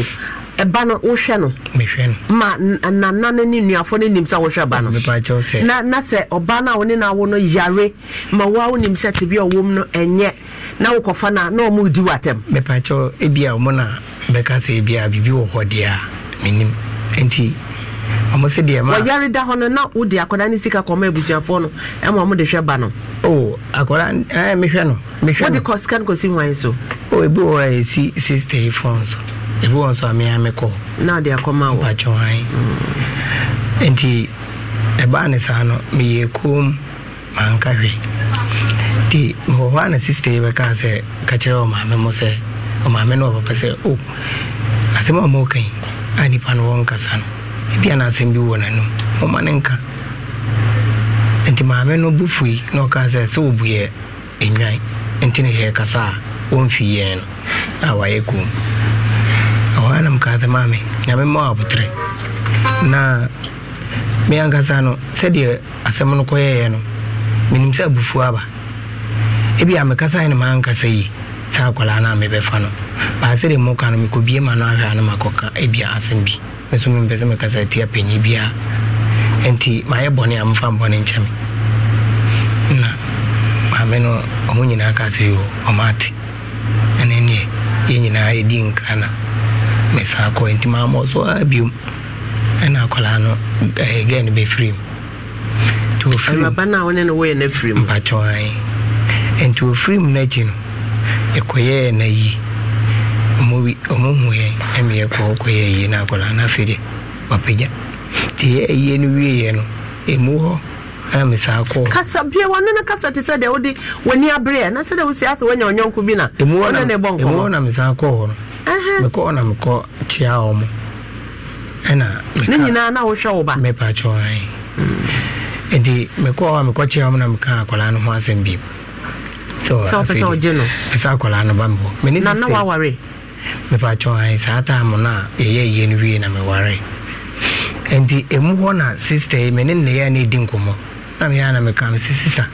ɛba no wohwɛ no mehwɛ no ma nana no ne nnuafoɔ no nim sɛ wohwɛ ba no na na sɛ ɔba no a wo ne no awo no yare ma woa wonim sɛ te bi a ɔwɔ mu no ɛnyɛ na wokɔfa no a na ɔmo di w'atɛm mepakyɛw ebia ɔmo na bɛka sɛ ebia biribi wɔ hɔ deɛ a menim nti ɔmo se deɛ ma wɔyare da hɔ no na wode akwadaa ne sika kɔma abusuafoɔ no ɛma ɔmo de hwɛ ba no o akwadaa ɛɛ mehwɛ no mehwɛ no wode kɔ sika no kɔsi hwan so o ebi wɔ a esi sixty four nso ebi wɔ nso a mea mekɔ na ɔde akɔma wɔ mpatsɔ hwan nti ɛbaa ne saa no meyɛ kom manka hwɛ nti wɔ hɔ a na sista yi bɛka sɛ ka ɔmaame mo sɛ ɔmaame no ɔpapa sɛ o asɛm a ɔmo kan a nipa no wɔnkasa no ebia na asɛm bi wɔ n'anim ɔma ne nka nti maame no bu fui na ɔka sɛ sɛ wɔbu yɛ enwan nti ne yɛ kasa a wɔmfi yɛn no a wayɛ kom ɛhɔ a nam kaa sɛ maame nyame ma abotrɛ na me ankasa no sɛdeɛ asɛm no kɔyɛɛ no menim sɛ abufuo aba ebia mekasae ne maankasa yi saa akwaraa no a mebɛfa no de mmɔka no mekɔbie ma no ahwɛ a no makɔka abia asɛm bi nso mempɛ sɛ mekasa tia panyi biara nti mayɛ bɔne a mfa mbɔne nkyɛ me na maame no ɔmo nyinaa ka sɛ yo ɔmaate ɛne neɛ yɛ nyinaa yɛdi nkra na mesaa kɔ nti maamɔ so a biom ɛna akwaraa no gɛ no bɛfiri mu nti ɔfiri mu mpakyɛ nti ɔfiri mu no akyi no ɛkɔyɛɛ na yi ɔmohu yɛn ɛme yɛkɔ kɔyɛɛ yie no akɔla na afei deɛ wapagya nti yɛyie no wieɛ no ɛmu hɔ ana mesaa kɔ kasa bia wɔno no kasa te sɛ deɛ wode w'ani aberɛ na sɛdeɛ wosi ase woanya ɔnyɔnko bi na ɔne ne bɔ nkɔmmɔ na mesaa kɔ hɔ no mekɔ na mekɔ kyea wɔ mo ɛna ne nyinaa na wohwɛ wo ba mepaakyɛ ɛ nti mekɔ hɔ a mekɔ kyea wɔ na meka akɔlaa no ho asɛm bimu sɛ wopɛ sɛ wogye no ɛsɛ akwaraa no ba mbɔ na na woaware mepakyɛ saa taamo na meware nti ɛmu sister mene nneyɛ na ɛdi nkɔmmɔ na meyɛ na meka me sɛ sista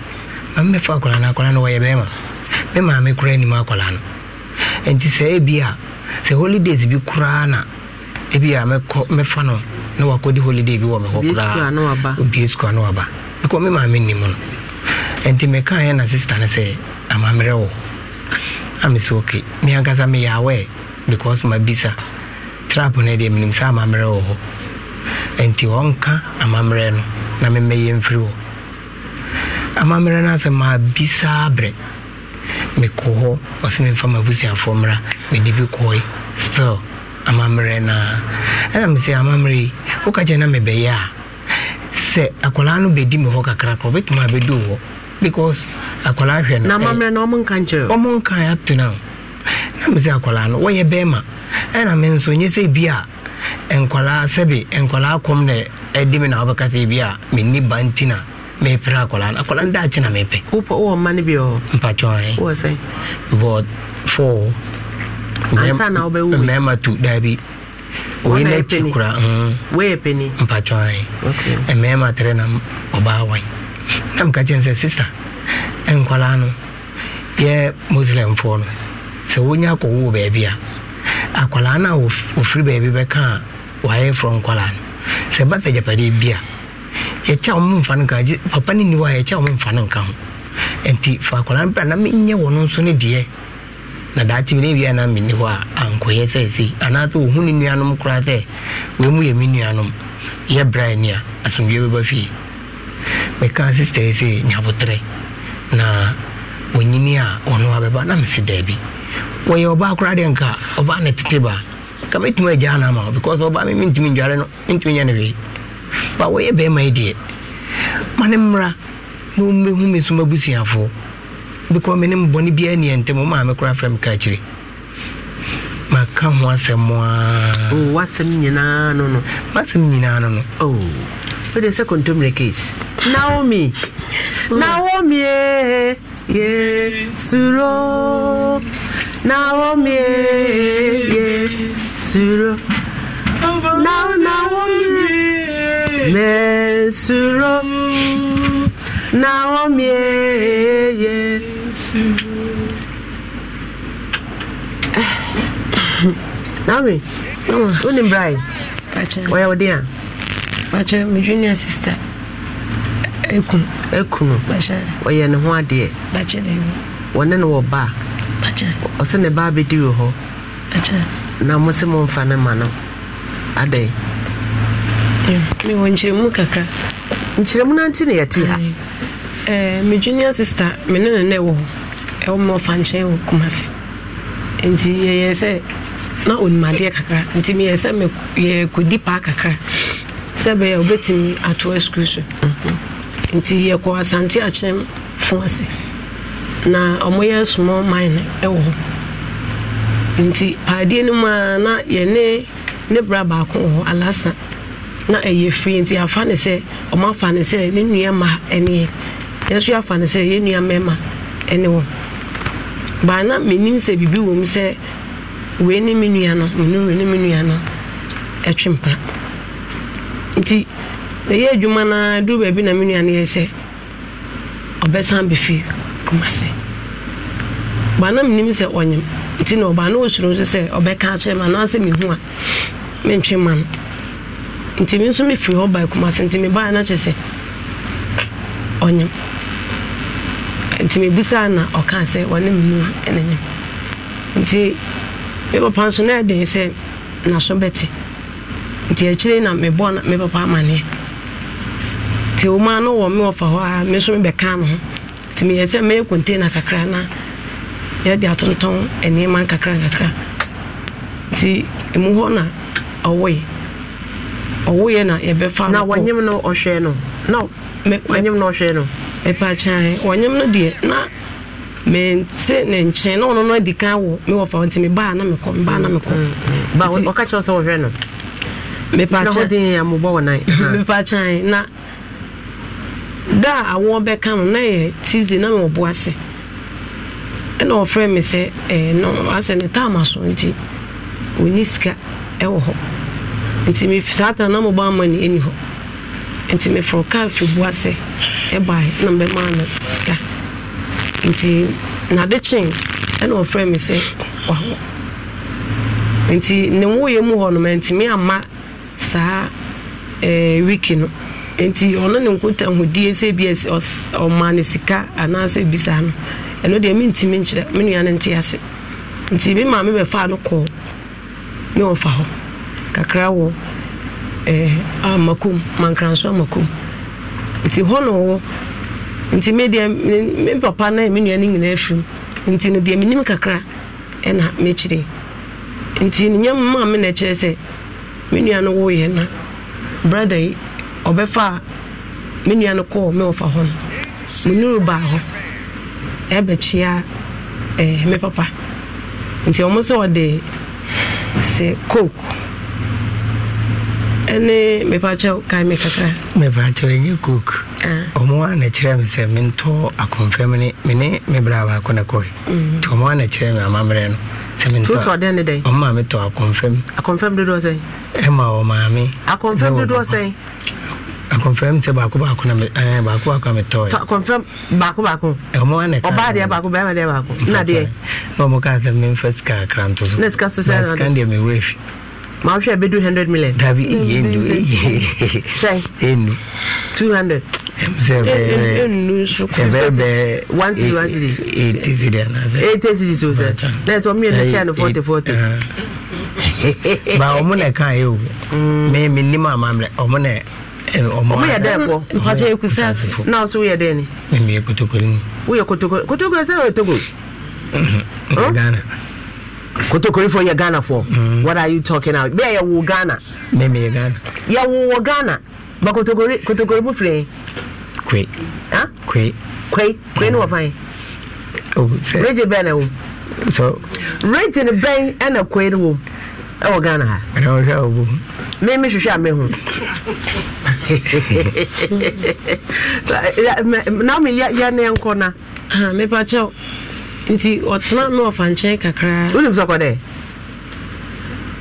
ma mɛfa akwaraa no akwaraa no wɔyɛ bɛrima me maa me koraa anim akwaraa holidays bi koraa na ebi a mɛkɔ mɛfa no na wakɔdi holiday bi wɔ me hɔ koraa obie sukuu ano aba because me maa me nim no nti meka yɛ na sister no sɛ amammerɛ wo amesɛ ok meankasa meyɛ because mabisa trap no deɛ menim sɛ amammerɛ wɔ hɔ ɛnti ɔnka amammerɛ no na memmɛyɛ mfiri hɔ amammerɛ no asɛ maabisaa berɛ mekɔ hɔ ɔsɛ memfa mabusuafoɔ mmra mede bi kɔe still amammerɛ no a ɛna mesɛ amammerɛ yi woka kyɛ na mebɛyɛ a sɛ akwalaa no bɛdi me hɔ kakrakra ɔbɛtumi abɛdu hɔ because akwaraa hwɛ no na mammerɛ no ɔmo nka nkyerɛ ɔmo nka up to na me akwaraa no wɔyɛ bɛrima ɛna me nso nyɛ sɛ bi a nkwaraa sɛbi nkwaraa kɔm na ɛdi mi na ɔbɛka sɛ bi a menni ba nti na mepere akwaraa no akwaraa no da akyi na mepɛ wopɛ wowɔ mma no bi ɔ mpakyɛ wowɔ sɛ bɔd four ansa wobɛwu mmarima tu daabi oyi na akyi kora mhm. pɛni mpakyɛ mmarima tere na ɔbaa wan na meka kyɛn sɛ sister nkwalaa no yɛ muslimfoɔ no sɛ wonya akɔwoo baabi a akwalaa no a wɔfiri baabi bɛka a wɔayɛ frɔ nkwalaa no sɛ ba sɛ gyapadeɛ bi a yɛkyɛ wo momfa no nka papa no nni hɔ a yɛkyɛ wo momfa no nka ho nti fa akwalaa no bra na menyɛ wɔ no nso ne deɛ na daakye bi ne wie anaa menni hɔ a ankɔyɛ sɛ sei anaasɛ wɔhu ne nuanom koraa sɛ wei mu yɛ me nuanom yɛ bra ani a asomdwie bɛba fie mekaa sister sɛ nyabotrɛ na onyini a ɔno abɛba na mese daabi wɔyɛ ɔbaa koraa deɛ nka ɔbaa ne tete baa ka mɛtumi agyaa no ama because ɔbaa me mentumi ndware no mentumi nyɛ ne wei ba wɔyɛ bɛrima yi deɛ ma ne mmra oh, na ɔmmɛhu me so mabusuafoɔ because me ne mbɔne biaa nniɛ ntɛm maa me koraa frɛ maka ho asɛm a wasɛm nyinaa no no masɛm nyinaa no no oh. wey dey say contemporary case naomi hmm. naomi eh, ye suro naomi eh, ye suro na naomi me suro naomi eh, ye suro (sighs) naomi. Onim Brian. Where are you? makyɛ me junior sister ɛkunu ɛkunu ɔyɛ ne ho adeɛ wɔne ne wɔ ba ɔsɛ ne ba bɛdi wɔ hɔ na mo sɛ nfa ne ma no adɛn mewɔ nkyerɛmu kakra nkyerɛmu no nti ne yɛte ha me junior sister me ne ne nɛ wɔ hɔ ɛwɔ ma ɔfa nkyɛn wɔ kumase nti yɛyɛ sɛ na onimadeɛ kakra nti meyɛ sɛ yɛkɔdi paa kakra sɛ bɛyɛ wobɛtumi atoa sukuu so mhm. nti yɛkɔ asante akyerɛm fo ase na ɔmoyɛ small mine ɛwɔ hɔ nti paadeɛ no mu a na yɛne ne bra baako wɔ hɔ alasa na ɛyɛ firi nti afa ne sɛ ɔma afa ne sɛ ne nua ma ɛneɛ yɛnso afa ne sɛ yɛn nua mɛma ɛne wɔ baa na menim sɛ biribi wɔ mu sɛ wei ne me nua no menure ne me nua no ɛtwe mpra nti ɛyɛ adwuma no duru baabi na me nuane yɛ sɛ ɔbɛsan bɛfi kumase baa na menim sɛ ɔnyem nti na ɔbaa na ɔsuro so sɛ ɔbɛka akyerɛ ma anaasɛ mehu a mentwe ma no nti me nso mefiri hɔ baa kumase nti mebaeɛ no kyɛ sɛ ɔnyem nti mebusaa na ɔka sɛ ɔne me nu ɛna nyem nti me papa nso na ɛden sɛ naso bɛte nti akyire na mebɔ me papa amanneɛ nti woma no wɔ me wɔfa hɔ a me so mebɛka no ho nti meyɛ sɛ mɛyɛ container kakra na yɛde atontɔn nneɛma nkakra nkakra nti ɛmu hɔ na ɔwoe ɔwoeɛ na yɛbɛfa na wɔnyem no ɔhwɛ no na wɔnyem no ɔhwɛ no ɛpɛakyae wɔnyem no deɛ na mese ne nkyɛn na ɔno no adi kan wɔ me wɔfa hɔ nti mebaa na mekɔ mebaa na mekɔ mm, mm, mm. ɔka kyerɛ sɛ wɔhwɛ no mepakyɛn na da a awoɔ bɛka no na yɛ tuesday na mewɔbo ase ɛna ɔfrɛ me sɛ eh, asɛ ne taama so nti ɔni sika ɛwɔ hɔ nti saa ta na mobɔ ama ne ɛni hɔ nti mefrɛ kar fi bu ase ɛbae na mbɛmaa no sika nti nade kyen ɛna ɔfrɛ me sɛ wahɔ nti ne woyɛ mu hɔ no mantumi amma saa eh, wiki no nti ɔno ne nkotahudie sɛ bi ɔma ne sika anaasɛ bisa no ɛno deɛ mentimi nkyerɛ me nua no nte ase nti me maa mebɛfaa no kɔɔ me ɔfa hɔ kakra wɔ eh, amakom mankranso amakom nti hɔ na ɔwɔ nti me medeɛ me papa no me nua no nyinaa firim nti no deɛ menim kakra ɛna mekyerɛ nti nyɛ mma me na ɛkyerɛ sɛ me nua no woyɛ na brada yi ɔbɛfa a me nua no kɔɔ me wɔfa hɔ no menuru baa hɔ ɛbɛkyia eh, me papa nti ɔmo sɛ ɔde sɛ coke ɛne mepakyɛw kae me kakra mepakyɛw ɛnyɛ coke ah. ɔmo a na kyerɛ me sɛ mentɔ akɔmfam ne mene me brɛ baako na kɔe mm-hmm. nti ɔmo a na kyerɛ me amammerɛ no totɔ dɛn ne dɛn. ɔn maa mi tɔ akɔnfɛm. akɔnfɛm dodo sɛn. ɛ ma o maa mi. akɔnfɛm dodo sɛn. akɔnfɛm sɛ baako baako na mi ɛɛ baako baako na mi tɔ ye. akɔnfɛm baako baako. ɔmɔ wa ne ka. ɔbaa deɛ baako bɛrɛ ma deɛ baako. na deɛ. n'o mo k'a sɛ mi n fɛ sika kranto so. ne sika so sɛ yɛrɛ la na sika deɛ mi weefi maa hwɛ bɛdu hundred million. dabi iye ndu iye. sɛ enu. two hundred. sɛ bɛɛ enu so kɔ. sɛ bɛɛ bɛɛ. one city one city. eight eight city ana bɛɛ. eight eight city so sɛ na yɛ no forty forty. Uh-huh. ba ɔmo na kan o. mɛ mm. mi ni maa o yɛ kotokoli o yɛ kotokorifo yɛ ghana fo mm. what are you talking about bɛɛ yɛwo ghana meme yɛ ghana yɛwo wɔ ghana ba kotokori kotokori mu filɛ kwe ah kwe kwe kwe ne wɔfa mm. oh, yɛ regye bɛn na wo so regye ne bɛn ɛna kwe ne wo ɛwɔ ghana ha ɛna wɔhwɛ a wɔbɔ me me hwehwɛ a me ho na (laughs) (laughs) me yɛ ne nkɔ na ah, mepa kyɛw nti ɔtena na ɔfa nkyɛn kakra wonim sɛ kɔdɛ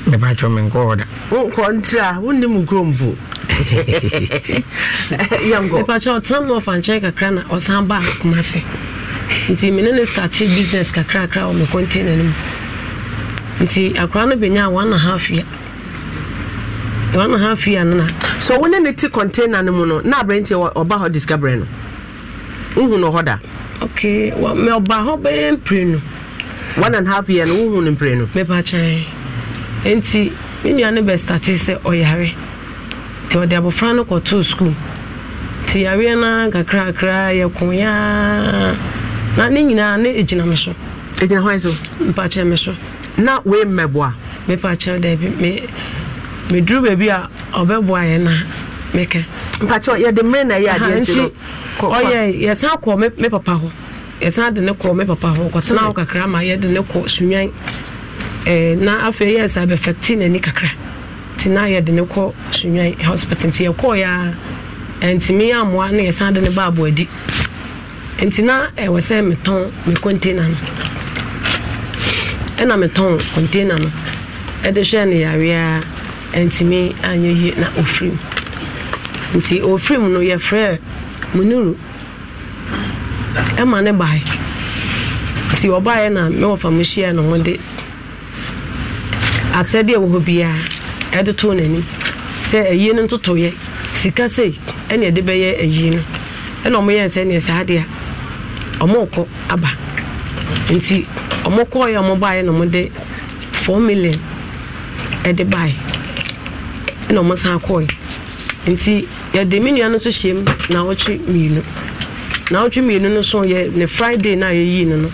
mepakyɛ me nkɔɔ da kɔntra wonnim kurom po (laughs) yɛnkɔmepakyɛ ɔtena na ɔfa nkyɛn kakra na ɔsan baa koma se nti mene ne starte business kakrakra wɔ me container no mu nti akora no bɛnya one and half year one and half year nana so wo ne ne te container no mu no na aberɛnti ɔba hɔ discovery no wohu no hɔ da ɔba hɔ bɛyɛ mpire no one and half year no wohu no mpire no mepakyɛe enti me nua no bɛstate sɛ ɔyare nti ɔde abɔfra no kɔtoo sukuu nti yareɛ no kakrakra yɛkoyaa na ne nyinaa ne ɛgyina me so ɛgyina hɔ so mepakyɛ me so na wei mmɛboa mepakyɛ daabi meduru baabi a ɔbɛboa yɛ na. mpakyɛ yɛde mmerɛ na ɛyɛ adeɛ nti ɔyɛ yɛsan kɔ me papa ho yɛsan de ne kɔ me papa ho ɔkɔtena ho kakra ma yɛde ne kɔ sunwan na afei yɛ sa bɛfɛkte n'ani kakra nti na yɛde ne kɔ sunwan hospital nti yɛkɔɔyɛ a ɛntumi amoa na yɛsan de ne baabo adi nti na ɛwɔ sɛ metɔn me container no ɛna metɔn container no ɛde hwɛ no yareɛ a ɛntumi anyɛ yie na ɔfiri nti ofiri mu no yɛfrɛ munuru ɛma ne bae nti ɔbaeɛ na mewɔfa mu hyia na mode asɛdeɛ wɔ hɔ biara ɛde too n'anim sɛ ayie no ntotoyɛ sika sei ɛne ɛde bɛyɛ ayie no ɛna ɔmoyɛ saa deɛ a ɔmokɔ aba nti ɔmokɔɔyɛ ɔmobaeɛ na 4 million ɛde bae ɛna san nti yɛde me nua no nso hyɛ mu naawɔtwe mmienu naawɔtwe mmienu no so yɛ ne friday na a yɛyii no no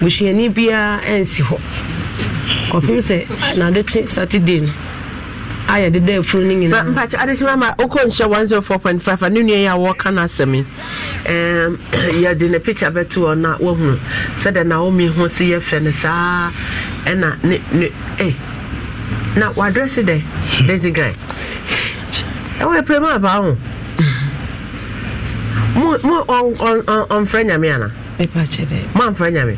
busuani biara ɛnsi hɔ kɔpem sɛ n'adekye saturday no a yɛde da afunu no nyinaa mpakye adekye mama wokɔ nhyɛ 104.5 a ne nua yi a wɔka no asɛm yi (clears throat) yɛde ne picture bɛto hɔ na woahunu sɛdeɛ naomi ho se yɛfrɛ no saa ɛna ne ne eh, na wadrɛse dɛ daisy guy ɛwɔ ɛpere mu apaa ho mo mo ɔn ɔn ɔn ɔnfrɛ nyame ana. mepakyɛ dɛ moamfrɛ nyame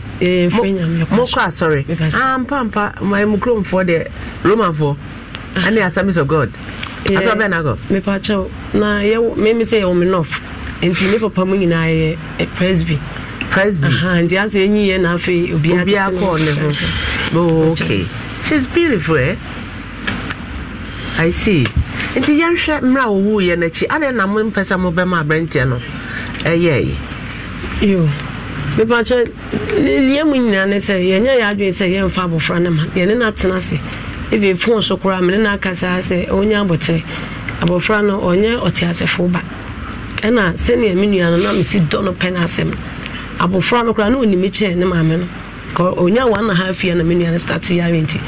mokɔ asɔre ampampa mu kuromfoɔ deɛ romanfoɔ ane assemblies of god asɛ wobɛ na gɔ mepakyɛw na meme sɛ yɛwɔ me nɔf nti ne papa mu nyinaa yɛ presby presby nti asɛ ɛnyi yɛ na afei obiaa kɔɔ ne ho ok she's beautiful eh? i see nti yɛnhwɛ mmerɛ a wɔwuiɛ no akyi adɛn na mompɛ sɛ mobɛma aberɛnteɛ no ɛyɛe yo mepakyɛ lia mu nyinaa ne sɛ yɛnyɛ yɛ adwene sɛ yɛmfa abɔfra no ma yɛne no atena ase ɛbi fon so koraa mene no aka saa sɛ ɔnya abɔkyerɛ abɔfra no ɔnyɛ ɔteasefoɔ ba ɛna sɛnea me nua no na mesi dɔ no pɛ no asɛm abɔfra no koraa na ɔnimi kyerɛ ne maame no ɔnya one and a half year na me nua no start yare nti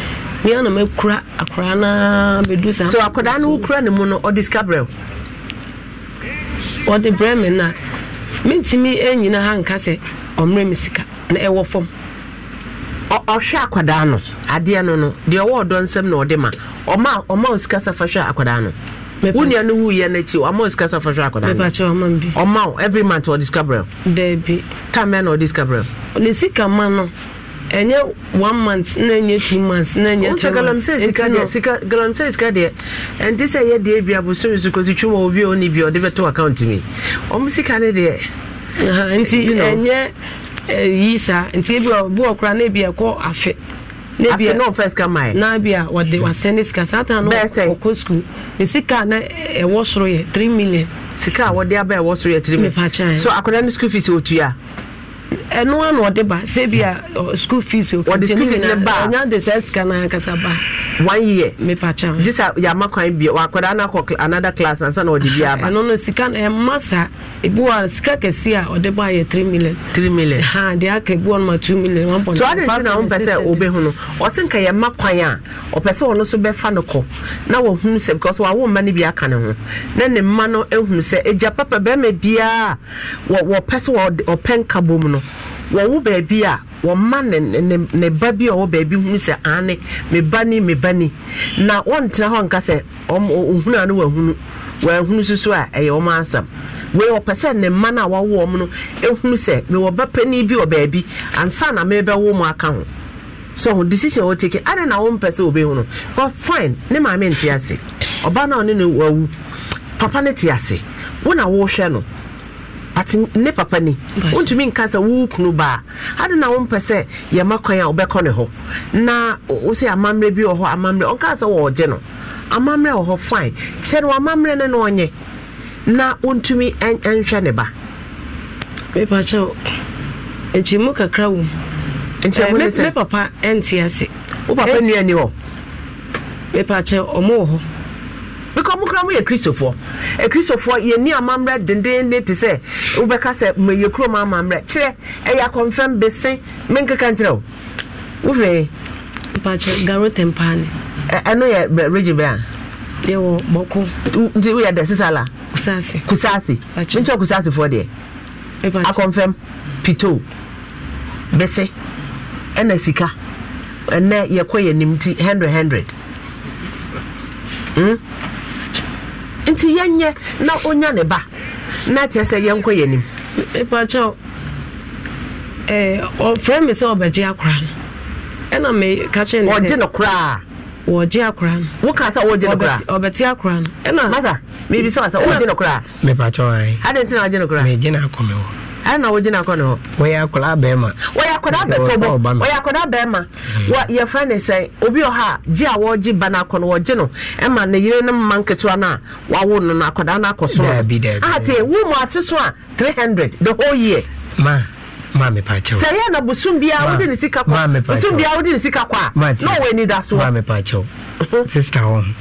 ne ana makura akwaraa no bɛdu saa so akwadaa no wokura ne mu no ɔde sika brɛ ɔde na. me no a mentumi nyina ha nka sɛ ɔmmerɛ me sika na ɛwɔ fam ɔhwɛ akwadaa no adeɛ no no deɛ ɔwɔ ɔdɔ nsɛm na ɔde ma ɔma ɔma o sika safa hwɛ akwadaa no wo nua no wuyɛ no akyi ɔma o sika safa hwɛ akwadaa no ɔma o every month ɔde sika brɛ daabi tamɛ na ɔde sika brɛ ne sika ma no ɛnyɛ one month na ɛnyɛ two months na ɛnyɛ three months nti no galamsey sika deɛ ɛnti sɛ ɛyɛ deɛ bi abosoro so kɔsi twom a obi a ɔni bi ɔde bɛto account mi ɔmo sika ne deɛ. nti ɛnyɛ eh, yi saa nti ebi ɔbu ɔkora na ebi ɛkɔ afe. E. na bi a no first come my na bi a wɔde wasɛn ne sika saa taa no ɔkɔ school ne sika na ɛwɔ e, soro yɛ three million. sika a wɔde aba ɛwɔ soro yɛ three million e. so akɔda ne school fees otua ɛno ano ɔde ba sɛ bi a school fees ɔnya de sɛ sika no ankasa ba one year mepakyɛ gye ya yɛama kwan bia wakwadaa no akɔ another class ansa na ɔde bi aba ɛno ah, no sika na eh, ɛma sa ebi wɔ sika si a ɔde bɔ ayɛ 3 million 3 million ha deɛ aka ebi ma 2 million 1.5 so ade nti na wompɛ e e no a ɔpɛ sɛ ɔno so no na because bi aka ne ho na ne no papa no wɔmma ne ba bi a ɔwɔ baabi hu sɛ ane ba ni ba ni na wɔntena hɔ nka sɛ ɔhunu a no wahunu wahunu soso a ɛyɛ wɔn asam wei ɔpɛ sɛ ne mma no a wawo wɔn no ehunu sɛ mewɔ ba panyin bi wɔ baabi ansa na mebɛwo mu aka ho so decision wɔ take ade na wɔn mpɛ sɛ obe hunu but fine ne maame nte ase ɔbaa na ɔne no wawu papa ne te ase wɔn a wɔrehwɛ no. but ne papa ni wontumi nka sɛ wo kunu baa ade na wompɛ sɛ yɛma kwan a wobɛkɔ ne hɔ na wo sɛ amammerɛ bi wɔ hɔ amammerɛ ɔnka sɛ wɔɔgye no amammerɛ wɔ hɔ fine kyɛ no amammerɛ ne na ɔnyɛ na wontumi nhwɛ ne ba mepakyɛw nkyɛ mu kakra wom nkyɛ Ne papa ɛnte ase wo papa nnuani hɔ mepakyɛ ɔmo wɔ hɔ because mo kura mo yɛ kristofoɔ ekristofoɔ yɛ ni amammerɛ dendenne te sɛ wobɛka sɛ mo yɛ kurom amammerɛ kyerɛ ɛyɛ akɔnfɛn bese me nkeka nkyerɛ o wofɛ. mpakyɛ garo tempaani. ɛno yɛ regi bɛn a. yɛwɔ bɔko. nti woyɛ dɛ sisan la. kusaasi. kusaasi nkyɛn kusaasi fɔ deɛ. akɔnfɛn pito bese ɛna sika ɛnɛ yɛkɔ yɛ nim ti hundred hundred. Mm? nti na ɔnya ne ba na kyerɛ sɛ yɛnkɔ nim eh, me sɛ ɔbɛgye akora no ɛna meka kyerɛ ne ɔgye no koraa wɔgye no woka sɛ wɔgye no ɔbɛte akora no ɛna masa mebisa wa sɛ wɔgye no koraa mepakyɛw ɛ adɛn na wɔgye no koraa megye ɛna wogyina kɔ ne hɔ wɔyɛ akwadaa bɛrima wɔyɛ akwadaa bɛtɔbɔ wɔyɛ akwadaa bɛrima mm. wɔ yɛfrɛ ne sɛ obi wɔ hɔ gye a wɔregye ba no akɔ no wɔgye no ɛma ne yere ne mma nketewa no a wawo no no akwadaa no akɔ so ate ah, wo mu afe so a 300 the whole year ma maame paakyɛw sɛ yɛ na bosom biara wode ne sika kɔ bosom biara wode ne sika kɔ a na ɔwɔ ani da so maame paakyɛw (laughs) sister wɔn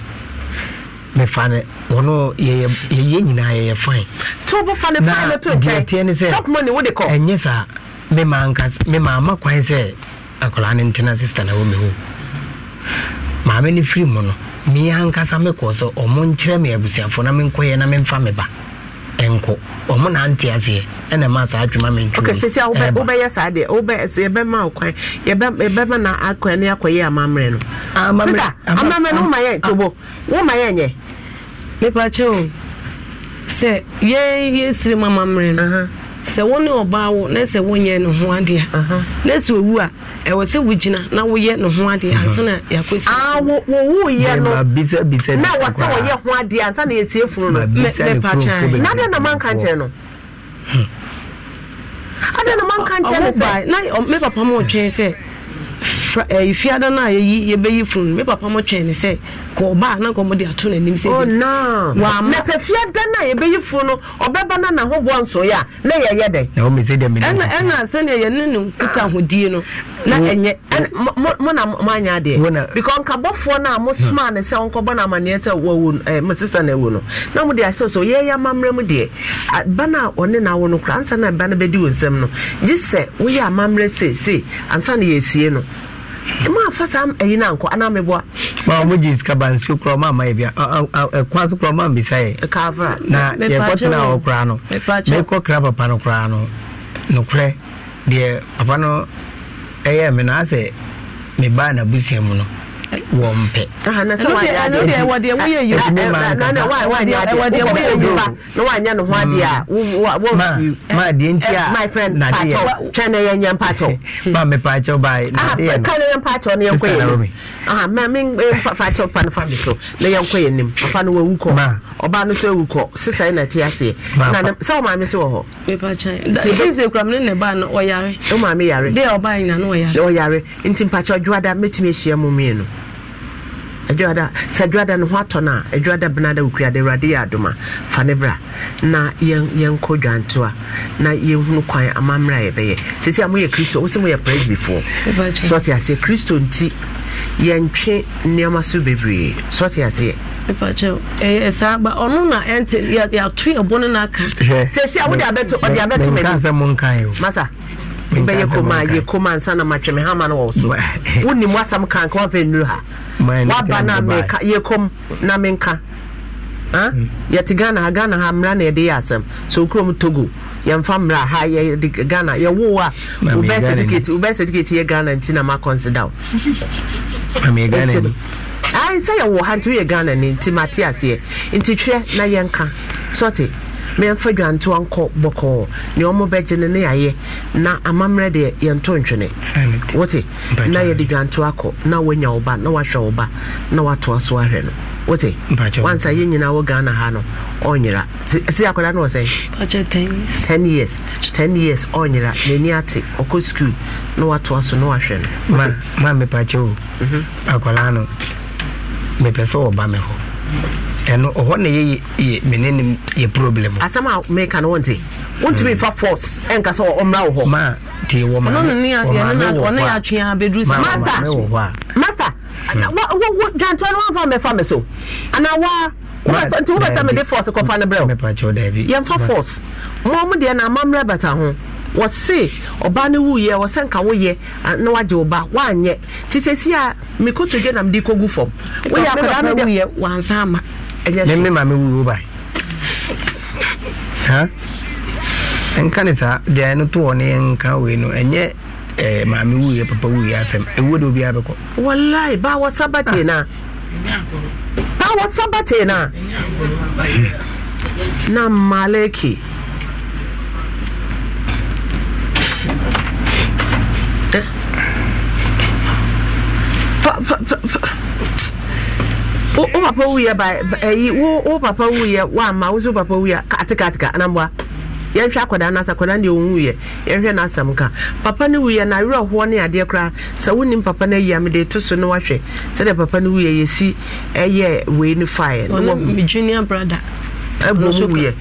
mefa no na yɛyɛ nyinaa yɛyɛ fine nti wobɛfa no fine no to nkyɛn ne sɛ top money wode kɔ ɛnyɛ saa mema nkas mema ama kwan sɛ na ho maame firi mu no ankasa ɔmo nkyerɛ na na ba ɔmo na nte aseɛ ɛna ma saa adwuma sisi saa deɛ na akɔ amammerɛ no amammerɛ no yɛ tobo yɛ nyɛ mepakyɛ o sɛ yɛyɛsiri mama mmerɛ no sɛ wo ne ɔbaa wo na sɛ wonyɛ ne ho adeɛ na sɛ owu a ɛwɔ sɛ wogyina na woyɛ ne ho adeɛ ansa na yɛakɔsiwowuyɛ no na sɛ wɔyɛ ho adeɛ na yɛtie funu no mepakyɛ na dɛn na manka nkyɛ no hmm. na manka na me papa ma ɔtwɛn sɛ fiada eh, no a yɛyi yɛbɛyi funu no me papa mo twɛn sɛ kɔ na nkɔ ato n'anim sɛ wama sɛ fiada no a yɛbɛyi no ɔbɛba no nahoboɔ na yɛyɛ dɛn sɛnea yɛne ne nkuta ahodie no na ɛnyɛ mo na moanyɛ adeɛ nkabɔfoɔ no a mosomaa ne sɛ no amanneɛ sɛ eh, no awu no na mode ahyɛ yɛyɛ amammerɛ mu deɛ ba no a ɔne no no kora ansa na ba no bɛdi nsɛm no gye sɛ woyɛ amammerɛ ansa na ɛmu afa saa ɛyi na nkɔ ana meboa. maa ɔmo gye sika ba nsuo kura ɔmo ama yɛ bia ɛkwan so kura ɔmo ambisa yɛ. ɛkaafra na yɛkɔ tena hɔ kura no mɛkɔ kira papa no kura no nokorɛ deɛ papa no ɛyɛ mi na asɛ me baa na busua mu no wɔn pɛ. ɛnu deɛ ɛnu deɛ wɔdeɛ woyɛ yoruba eh, eh, na na wa wa deɛ wɔdeɛ woyɛ yoruba na wa nya ne ho adeɛ a wa mm. wa ma ma eh, deɛ nti a my friend paatɔ twɛn na yɛn nyɛ paatɔ. (laughs) ma mi paatɔ ba ye. aha ka na yɛn paatɔ ne yɛn kɔ yɛn nim aha ma mi paatɔ pa ne fa mi so ne yɛn kɔ yɛn nim afa no wɔ ewu kɔ ɔbaa no so ewu kɔ sisan na ti aseɛ na na sɛ ɔmaa mi so wɔ hɔ. pepa kyɛn nti ekura mi ne ne ba no ɔyare. ɔmaa mi yare. deɛ ɔbaa yina no ɔyare. ɔyare nti paatɔ dwada metumi ehyia mu mienu adwada sɛ adwada no ho atɔ no a adwada benada wokuade awurade yɛ adoma fa ne bra na yɛnkɔ dwantoa na yɛhunu kwan amammerɛ a yɛbɛyɛ sɛsi a moyɛ kristo wo sɛ moyɛ presbyfoɔ sɔte aseɛ kristo nti yɛntwe nneɛma so bebree sɔte aseɛ saa ba ɔno na ɛnte yɛato yɛbɔ no no aka sɛsi a wode abɛto ɔde abɛto madi masa bɛyɛ kɔmaa yɛ kɔmaa nsa na matwɛme hama no wɔ so wonim wasam ka nka nnuru ha waba na meka yɛkɔm na menka yɛte ghana ha ghana ha mmara na yɛde yɛ asɛm so okurom togo yɛmfa mmara ha yɛde ghana yɛwo a wobɛ certificate yɛ ghana nti na makɔnsida wo sɛ yɛwɔ ha nti woyɛ ghana ni nti mate aseɛ nti twerɛ na yɛnka sɔte mɛmfa dwantewa nkɔ bɔkɔɔ nea ɔmo bɛgye no ne yɛayɛ na amammerɛ deɛ yɛnto ntwene wote na yɛde dwantewa akɔ na woanya wo ba na wahwɛ wo ba na watoa so ahwɛ no wote wansa yɛ nyinaa wɔ ghana ha no ɔnyera si akwadaa no wɔ sɛ ten years ten years ɔnyera n'ani ate ɔkɔ skul na watoa so na wahwɛ no ma ma mepakye o mhm. akwadaa no mepɛ sɛ wɔba me hɔ ɛno ɔhɔ na yɛyɛ mene ne yɛ problem asɛm a meka no wonte wontumi mm. fa force ɛnka sɛ ɔmmra wo hɔ ma nti wɔ maɔne yɛatwea bɛduru sɛ masa masa dwantoa mm. no wamfa mmɛfa me so anawa waa nti wobɛsɛ mede force kɔfa no berɛ yɛmfa force ma mu deɛ na amammerɛ bɛta ho wɔse ɔbaa no wuyɛ wɔsɛ nka woyɛ na wagye wo ba woanyɛ nti sɛsi a mekɔtodwe na kɔgu fam woyɛ akwadaa no wansa ama meme maame wuo ba nka ne saa deɛ no toɔ ne nka wei no ɛnyɛ eh, maame wuiɛ papa wuiɛ asɛm ɛwuo de obiaa bɛkɔ wallahi ba wasaba tee no a ba wasaba tee no a na maleki wo papa wuyɛ ba ɛyi wo wo papa wuyɛ eh, wo ama wo so papa wuyɛ atikatika anamboa yɛnhwɛ akwadaa no asa akwadaa deɛ ɔwu yɛ yɛnhwɛ no ka papa no wuyɛ na awerɛhoɔ ne adeɛ koraa sɛ wonim papa no ayi a mede to so no wahwɛ sɛdeɛ papa no wuyɛ yɛsi ɛyɛ wei no faeɛ ne junior brother ɛbɔ mu wuyɛ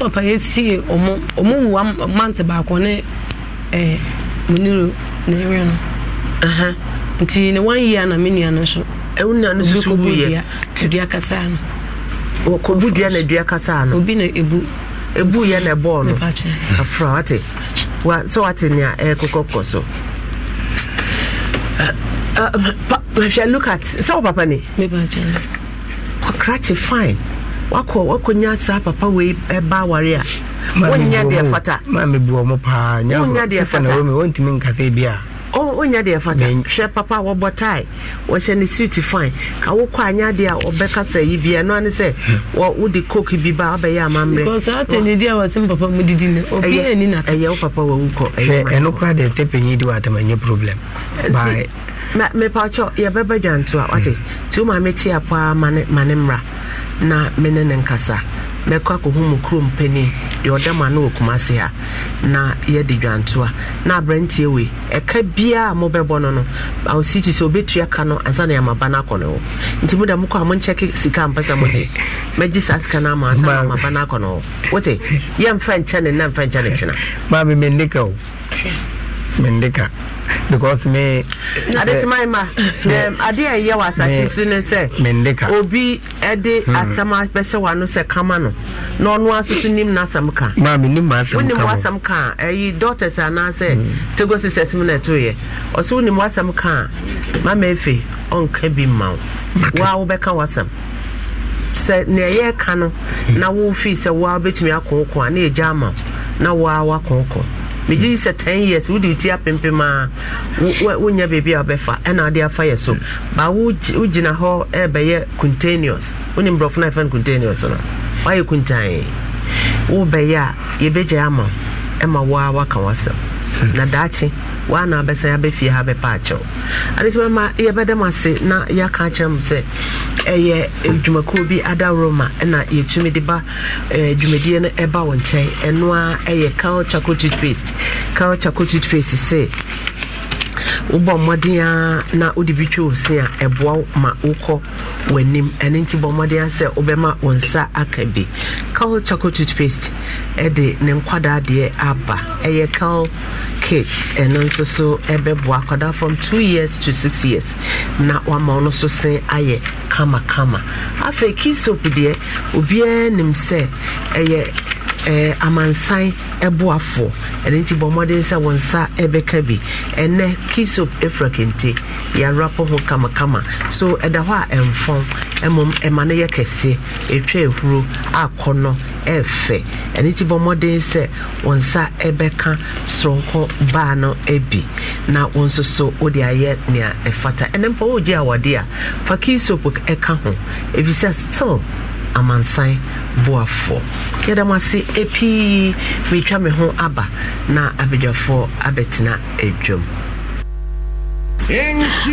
papa yɛsie ɔmo ɔmo wu mante baako ne ɛɛ eh, muniro na ɛwɛ no nti ne one na me nua no nso ɛwo nua no susu wuyɛ dua kasa no na dua kasa no obi na ɛbɔɔ no afra wate sɛ wate nea ɛkɔkɔkɔ so eh, eh, mahwɛ look at sɛ wo papa ne kɔkrakye fine wakɔ wakɔnya saa papa wei ɛba eh, aware a wonyɛ deɛ fata wonya deɛ fata nkasɛ bi a ɔnya deɛ fata hwɛ papa a wɔbɔ tae wɔhyɛ ne suit fine ka wokɔ anya deɛ a ɔbɛka sɛ yi bia no ane sɛ wode coke bi ba wabɛyɛ amammerɛɛyɛ wo papa wawu kɔɛno kora deɛ tɛpɛnyi de wɔatama nyɛ problem mepakyɛ yɛbɛbɛ dwanto a wate mm. tuma mete a paa ma ne mmra na mene ne nkasa bɛkɔ akɔhu mu kurom pani deɛ ɔda mu ano wɔ se ha na yɛde dwantoa na aberantie wei ɛka biaa mobɛbɔ no no awosikyi sɛ obɛtua ka no ansa na yɛamaba no akɔ no hɔ nti muda mokɔ a monkyɛke sika mpɛ sɛ mogye mɛgye saa sika no ama ansa na amaba no akɔ no wote yɛmfa nkyɛ ne na mfa ne kyena maa me mendeka o mendeka because me. adesima eh, ima ade a ɛyɛ wɔ asase so ne sɛ obi ɛde hmm. asɛm abɛhyɛ wano sɛ kama no na ɔno aso so nim n'asɛm ka wonim w'asɛm ka a ɛyi doctors anaasɛ hmm. tego sisters mu na ɛtoyɛ ɔso wonim w'asɛm ka a mama efe ɔnka bi mma wo wa wobɛka w'asɛm sɛ nea ɛyɛ ka no hmm. na wofi sɛ woa wobɛtumi akonkon a na ɛgya ama na woa wakɔnkɔn megye sɛ 10 years wode wo apempem a wonya baabi a wobɛfa ɛna wode afa yɛ so ba wogyina hɔ ɛbɛyɛ contaneous wone mborɔfo no ɛfa no contaneous no woayɛ kuntae wobɛyɛ a yɛbɛgyae ama ɛma wo wasɛm na daakye waana abɛsan abɛfie ha bɛpa akyɛw ade sɛ bɛma yɛbɛda m ase na yɛaka akyerɛ e m e, sɛ ɛyɛ dwumakuo bi adaworo ma na yɛtumi de e ba dwumadie no ɛba wo nkyɛn ɛno a ɛyɛ cal chocolate toothpaste cal chocolate toothpaste se wobɔ mmɔden a na wode bi twa ose a ɛboa wo ma wokɔ w'anim ɛno nti bɔ mmɔden a sɛ wobɛma wo nsa aka bi cal chaco toothpaste ɛde ne nkwadaa deɛ aba ɛyɛ cal kits ɛno nso so ɛbɛboa akwadaa from 2 years to 6 years na wama wo no so sen ayɛ kamakama afei key soap deɛ obiaa nim sɛ ɛyɛ Eh, amansan boafoɔ ɛne nti bɔ mmɔden sɛ wɔn nsa ɛbɛka bi ɛnɛ kisop efura kente yɛawerapɔ ho kamakama so ɛda hɔ a ɛmfɔn mmom ɛma no yɛ kɛse ɛtwa ehuro akɔ no ɛfɛ ɛne nti bɔ mmɔden sɛ wɔn nsa ɛbɛka soronko baa no bi na wɔn nso so wode ayɛ nea ɛfata ɛnɛ mpa wogye awɔde a fa kisop ɛka ho efisɛ sɛ still amansan boafoɔ yɛda m ase ɛpii meretwa me ho aba na abadwafoɔ abɛtena adwam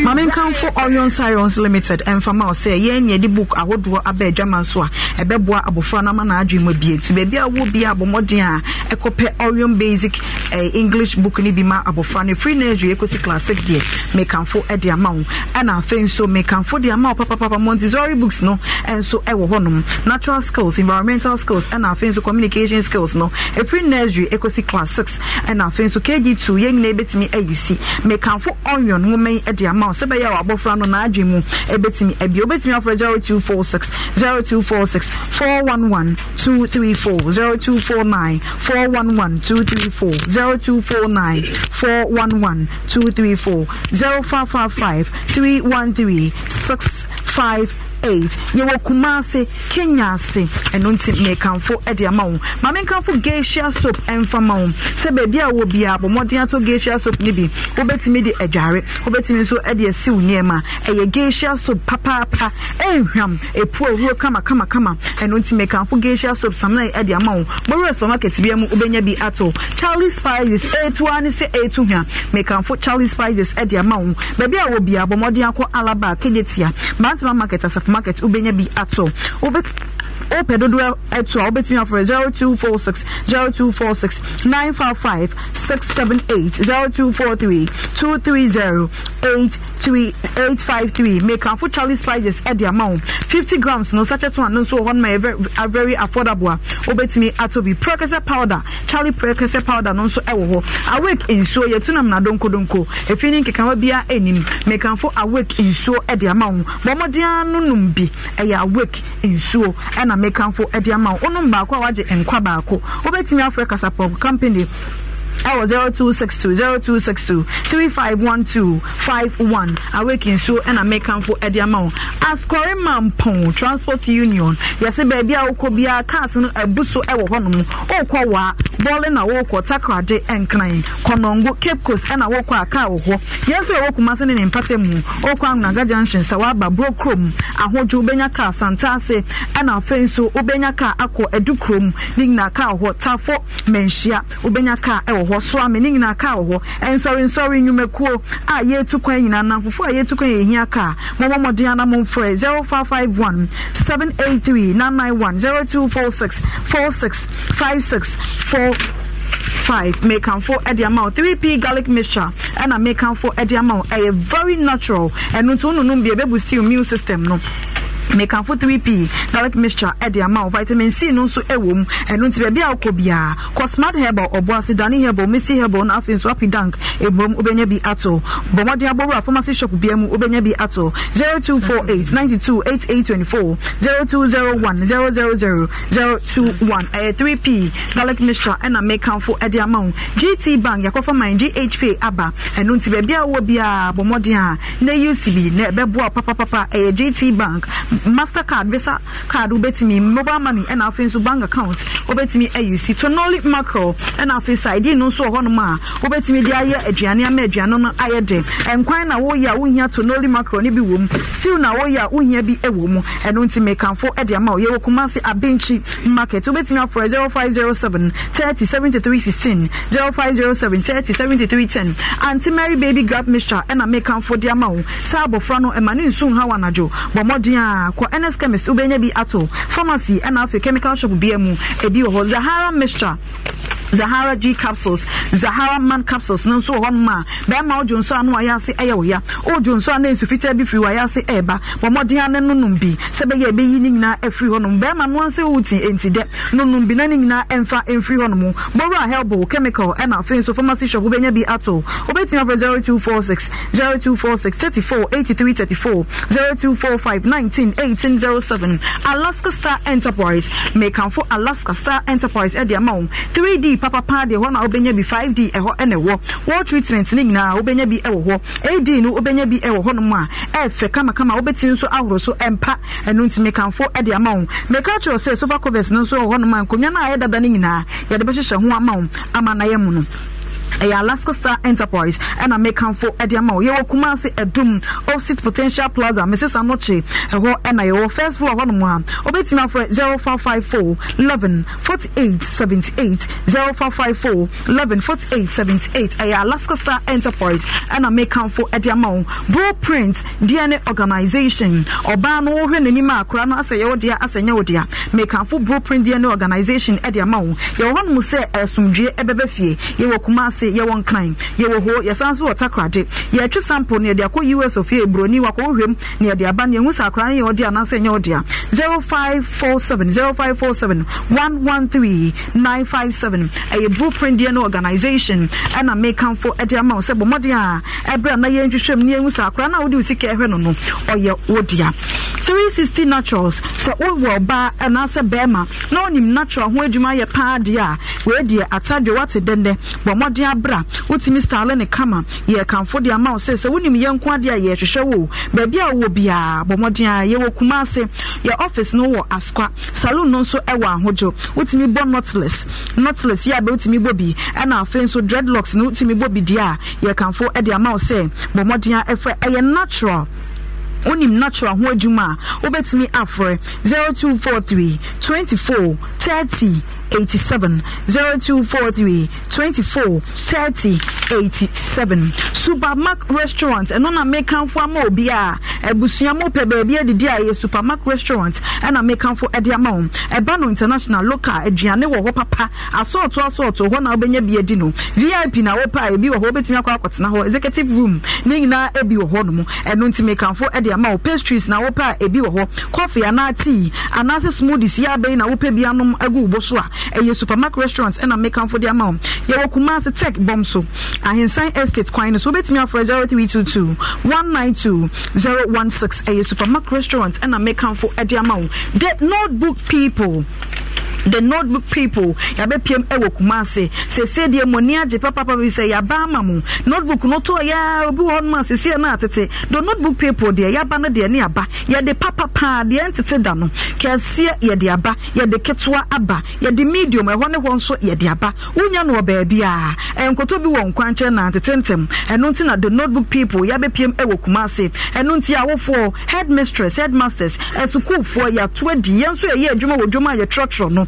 maame nkanfo orion sirons limited mfama ɔsɛ yɛn nyɛ de book ahodoɔ aba adwama so a ɛbɛboa abɔfra no ama n'adwene mu abie nti baabi a wɔ bi a abɔmmɔden a ɛkɔpɛ basic eh, english book ni bi ma abɔfra no free nursery ekosi class six deɛ mekanfo de ama wo ɛna afei nso mekanfo de ama wo papapapa montessori books no nso ɛwɔ hɔnom natural skills environmental skills ɛna afei nso communication skills no ɛfiri nursery ekosi class six ɛna afei nso kg two yɛn nyinaa bɛtumi ayusi mekanfo orion nwoma bɛma eh, yi de ama wo sɛ bɛyɛ a wɔabɔfra no naadwe mu four nine four one one two three four zero five five five three one three six five eight yɛwɔ kumase kenya ase ɛno nti mekanfo ɛde ama wo ma menkanfo gesia soap ɛmfa ma wo sɛ baabi a wɔ biara bɔ mmɔden atɔ soap no bi wobɛtumi de adware wobɛtumi nso ɛde asi nneɛma ɛyɛ gesia soap papaapa ɛnhwam ɛpu awuro kamakamakama ɛno nti mekanfo gesia soap samna ɛde ama wo bɔwura supermarket bia mu wobɛnya bi ato charlie spices ɛtua ne sɛ ɛtu hwa mekanfo charlie spices ɛde ama wo baabi a wɔ biara bɔ mmɔden market wobɛnya bi ato wobɛ wopɛ dodoɔ ɛto a wobɛtumi afrɛ 0246 0246 955 678 0243 230 853 mekafo charlie slides ɛde ama wo 50 grams no sachet no ano nso wɔ hɔ no ma yɛ uh, very affordable a wobɛtumi atɔ bi prɛkɛsɛ powder charlie prɛkɛsɛ powder no nso ɛwɔ hɔ awake nsuo yɛtu nam nadonkodonko ɛfii ne nkekawa biara anim mekamfo awake nsuo ɛde ama wo bɔmmɔdea no nom bi ɛyɛ awake nsuo ɛna mekamfo de ama wo wonom baako a wagye nkwa baako wobɛtumi afrɛ kasapɔp company ɛwɔ 0262 0262 3512 so awake nsuo ɛna mekamfo ɛde ama wo asɔre transport union yɛsɛ bia a wokɔ biara no abu so ɛwɔ hɔnom wokɔ waa bɔɔle na wokɔ takrade ɛnkran kɔnɔngo cape coast ɛna wokɔ a car wɔ hɔ yɛn nso yɛwɔ kuma se okwu ne na mu wokɔ angunaga junction sɛ woaba car santa ase ɛna afei nso wobɛnya car car tafo car hɔ so ame ne nyinaa kaa wɔ hɔ nsɔrensɔre nnwumakuo a yɛtu kwan nyinaa namfofo a yɛtu kwan yɛhia kaa three nine nine one zero two four six four six five six four five. Make mekanfo ɛde ama o three p garlic mixture make mekanfo ɛde ama o A very natural ɛno nti o nunu bie bebu stew immune system no mekanfo 3p garlic mixture ɛde ama wo vitamin c no nso ɛwɔ eh, mu eh, ɛno nti baabi a wokɔ biara kɔ smart herbal ɔboase dane herbal mesi herbal no afei nso api dank ɛmurom eh, wobɛnya bi ato bɔmmɔden abɔwura pharmacy shop bia mu wobɛnya bi ato 0248 92 8824 0201 000 021 ɛyɛ 3p garlic mixture ɛna mekanfo ɛde ama wo gt bank yɛkɔfa man ghp aba ɛno nti baabi a wowɔ biara bɔmmɔden a na ucb na ɛbɛboa papapapa ɛyɛ gt bank mastercard visa card wobɛtumi mobile money ɛna afei nso bank account wobɛtumi ayi si tonoli macro ɛna afei side no nso wɔ hɔnom a wobɛtumi de ayɛ aduane ama aduane no ayɛ de nkwan na woyɛ a wohia tonoli macro no bi wɔ mu stew na woyɛ a wohia bi ɛwɔ mu ɛno nti mekanfo ɛde ama wo yɛwɔ kumase abenkyi market wobɛtumi afrɛ 0507 30 73 16 0507 30 73 10 anti mary baby grab mixture ɛna mekanfo de ama wo saa abɔfra no ɛma ne nsu ha wɔ anadwo bɔ mmɔden a a kɔ ns chemist wobɛnya bi ato pharmacy ɛna afei chemical shop bia mu ebi wɔ hɔ zahara mixture zahara g capsules zahara man capsules no nso wɔ hɔnom a bɛrima wodwo nso a no wayɛ ase ɛyɛ wo ya wodwo nso a na nsu fitaa bi firi wayɛ ase ɛɛba bɔ mmɔden ano nonom bi sɛ bɛyɛ ɛbɛyi ne nyinaa afiri hɔnom bɛrima no ansa wuti enti dɛ nonom bi na ne nyinaa ɛmfa ɛmfiri hɔnom bɔwura helbo chemical ɛna afei nso pharmacy shop wobɛnya bi ato wobɛtumi afrɛ four 0246 34 83 34 0245 19 18 07 alaska star enterprise mekamfo alaska star enterprise ɛde ama wo 3d 3D papapa deɛ hɔ na wobɛnya bi 5D ɛhɔ ɛna ɛwɔ wall treatment ne nyinaa wobɛnya bi ɛwɔ hɔ AD no wobɛnya bi ɛwɔ hɔnom a ɛfɛ kamakama wobɛtumi nso ahoro so ɛmpa ɛno nti mekamfo ɛde ama wo meka kyerɛ sɛ sofa covers no nso ɛwɔ hɔnom a nkonnwa no a ɛdada no nyinaa yɛde bɛhyehyɛ ho ama wo ama na yɛ mu no ɛyɛ alaska star enterprise ɛna mekamfo ɛde ama wo yɛwɔ kumase ɛdum opposite potential plaza mrs anoche ɛhɔ ɛna yɛwɔ first floor hɔnom a wobɛtumi afrɛ 0554 11 48 78 0554 11 ɛyɛ alaska star enterprise ɛna mekamfo ɛde ama wo bro print dna organization ɔbaa no wohwɛ n'anim a kora no asɛ yɛwɔ deɛ asɛ nyɛ wo dea mekamfo bro print dna organization ɛde ama wo yɛwɔ hɔnom sɛ ɛsomdwue ɛbɛbɛ fie yɛwɔ kumase ase yɛwɔ nkran yɛwɔ ho yɛsan so wɔ takrade yɛtwe sample ne yɛde akɔ us of a buroni wakɔhwɛm ne yɛde aba ne yɛhu sɛ akora ne yɛ ɔde anaasɛ ɛnyɛ ɔde a 0547 0547 113 seven ɛyɛ blueprint deɛ no organization ɛna mekamfo ɛde ama wo sɛ bɔ mmɔden a ɛberɛ a na yɛntwehwɛm ne yɛhu sɛ akora no a na wo sika ɛhwɛ no no ɔyɛ wo Three sixty naturals sɛ wowɔ ɔbaa ɛnaasɛ bɛrima na wonim natural ho adwuma yɛ paa deɛ a wɔadiɛ atadwe wate dɛndɛ bɔ mmɔden abra wotumi style ne kama yɛ kanfo de ama wo sɛ sɛ wonim yɛ nko adeɛ a yɛhwehwɛ wo baabi a wowɔ biaa bɔ mmɔden a yɛwɔ yɛ office no wɔ askwa saloon no nso wɔ ahodwo wotumi bɔ notless notless yɛ abɛ wotumi bɔ bi ɛna afei nso dreadlocks no wotumi bɔ bi deɛ a yɛ kanfo de ama wo sɛ bɔ mmɔden a ɛfrɛ ɛyɛ natural wonim natural ho adwuma a wobɛtumi afrɛ 0243 24 30 87 0243 24 30 87 supermark restaurant ɛno na mekanfo ama obi a abusua mu pɛ baabi adidi a ɛyɛ supermark restaurant ɛna mekanfo ɛde ama wɔn ɛba no international local aduane wɔ hɔ papa asɔɔto asɔɔto hɔ na wobɛnya bi adi no vip na wɔpɛ a ebi wɔ hɔ wobɛtumi akɔ akɔtena hɔ executive room ne nyinaa ebi wɔ hɔ nom ɛno nti mekanfo ɛde ama wɔ pastries na wɔpɛ a ebi wɔ hɔ coffee anaa tea anaasɛ smoothies yɛ abɛyi na wɔpɛ bi anom agu wo bo so a ɛyɛ supermarket restaurant ɛna mekamfo de ama wo yɛwɔ kumase tech bɔm so ahensan estate kwan no so wobɛtumi two zero one six. ɛyɛ supermarket restaurant ɛna mekamfo de ama wo the notebook people the notebook people yɛabɛpiem ɛwɔ ewo kumase. Se deɛ mu ani agye papapa bi sɛ yɛaba ama mu notebook no tɔ yɛ obi wɔ hɔ nom a sɛsie no the notebook people deɛ yɛaba no deɛ ne aba yɛde papa paa deɛ ntete da no kɛseɛ yɛde aba yɛde ketewa aba yɛde medium ɛhɔ ne hɔ nso yɛde aba wonya no wɔ baabi a nkɔtɔ bi wɔ nkwankyɛn na ntetentem ɛno nti na the notebook people yɛabɛpiem ɛwɔ ewo kumase. ɛno nti awofoɔ headmistress headmasters ɛsukuufoɔ yɛatoa di yɛn nso yɛyɛ adwuma wɔ dwuma a yɛtrɔtrɔ no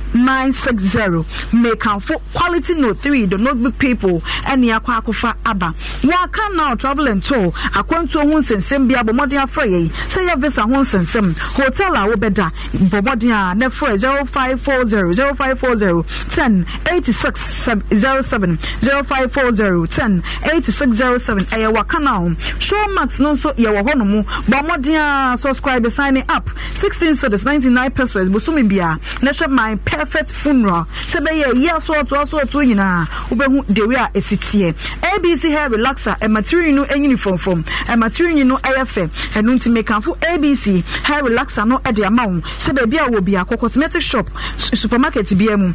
960 mekanfo quality no 3 the notebook people ɛne akɔ akɔfa aba yɛaka now travel and tour akwantuo ho nsensɛm bi abɔ mmɔden afrɛ yɛi sɛ yɛ visa ho nsensɛm hotel a wobɛda bɔ mmɔden a e na frɛ 0540 0540 10 86 07 0540 10 8607 ɛyɛ waka now showmax no nso yɛwɔ hɔ no mu bɔ mmɔden a subscribe signing up 16 cities 99 pesos bosome bia na hwɛ my pe perfect funeral sɛ bɛyɛ ɛyi asɔɔto asɔɔto nyinaa wobɛhu dewe a ɛsi teɛ abc hair relaxer ɛmatirinyi no ɛnyini fɔmfɔm ɛmatirinyi no ɛyɛ fɛ ɛno nti mekanfo abc hair relaxer no ɛde ama wo sɛ baabi a wɔ bi a cosmetic shop supermarket biara mu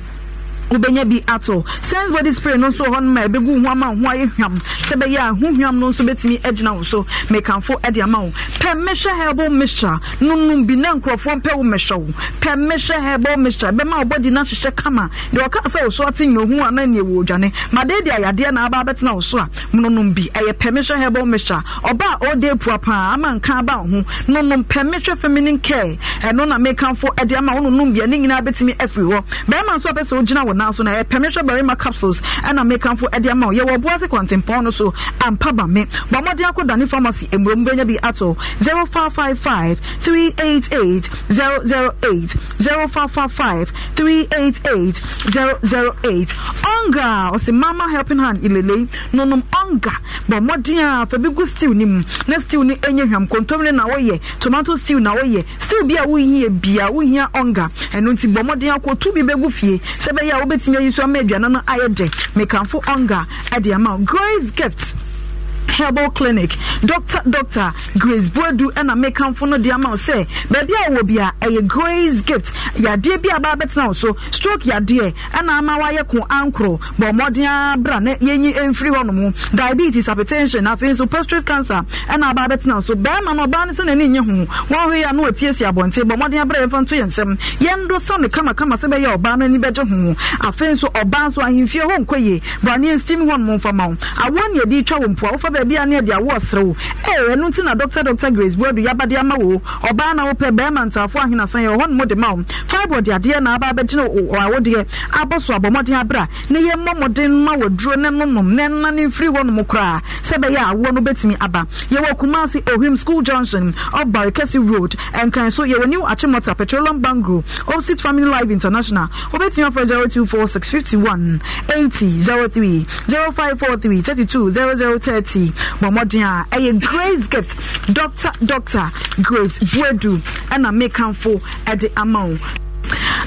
wobɛnya bi ato sense body spray no nso wɔ hɔ no ma ɛbɛgu ho ama ho ayɛ hwam sɛ bɛyɛ a ho hwam no nso bɛtumi agyina wo so mekamfo de ama wo pɛ mɛhwɛ herbal mixture nonom bi na nkurɔfoɔ mpɛ wo mɛhwɛ wo pɛ mɛhwɛ herbal mixture bɛma wo no ahyehyɛ kama deɛ ɔka sɛ wo so ate nnohu a na neɛ wɔ odwane madeɛ de ayadeɛ na aba abɛtena wo so a mononom bi ɛyɛ pɛ mɛhwɛ herbal mixture ɔba a ɔde apua paa ama nka aba wo ho nonom pɛ mɛhwɛ feminine care ɛno na mekamfo de ama wo nonom bi a ne nyinaa bɛtumi afiri hɔ bɛrima nso a pɛ sɛ wogyina wɔ now so na yɛ pɛmihwɛ barima capsules ɛna mekanfo ɛde ama o yɛwɔ buase kɔntempɔn no so ampa ba me bɔ mmɔden akɔ dani pharmacy emurom benya bi ato zero five five five three eight eight zero zero eight zero five five five three eight eight zero zero eight ɔnga ɔsi mama helping hand ilele nonom ɔnga bɔ mmɔden a fɛbi gu stew ni mu na stew ni enye hwam kontomire na wɔyɛ tomato stew na wɔyɛ stew bi a wohia bia wohia ɔnga ɛno nti bɔ mmɔden ko tu bi bɛgu fie sɛ bɛyɛ a wobɛtumi ayi so ama aduane no ayɛ de mekamfo ɔnga ɛde ama grace gifts herbal clinic doctor doctor grace buedu ɛna mekamfo no de ama wo sɛ baabi a wɔ bia ɛyɛ grace gift yadeɛ bi a baa bɛtena wo so stroke yadeɛ ɛna ama wayɛ ko ankoro bɔ mmɔden abra na yɛnyi mfiri hɔ nom diabetes hypertension afei nso prostate cancer ɛna abaa bɛtena wo so bɛrima no ɔbaa no sɛ n'ani nye ho wɔn hwɛ yɛ a na wɔtiesie abɔnten bɔ mmɔden abra yɛmfa nto yɛn nsɛm yɛn do sɛ no kamakama sɛ bɛyɛ ɔbaa no ani bɛgye ho afei nso ɔbaa nso ahemfie hɔ nkɔ yie bɔ aneɛ nstim hɔ nom mfama wo awoɔ ne yɛde twa wɔ mpoa wofa baabi a ne ɛde awo ɔsere wo ee ɛno na dr dr grace buodu yaba de ama wo ɔbaa na wopɛ bɛrima ntaafo ahenasan yɛ ɔhɔ no mu de ma wo fibre de adeɛ na aba abɛgyina awodeɛ abɔ so abɔmmɔden abera ne yɛ mmɔ mmɔden ma wɔduro ne nonom ne nna ne mfiri hɔ nom koraa sɛ bɛyɛ awoɔ no bɛtumi aba yɛwɔ kumase ohim school junction ɔbare kɛse road ɛnkran so yɛwɔ new achimota petroleum bangro opposite family life international five four three thirty two zero zero thirty yi a ɛyɛ grace gift doctor doctor grace buedu ɛna mekanfo ɛde ama wo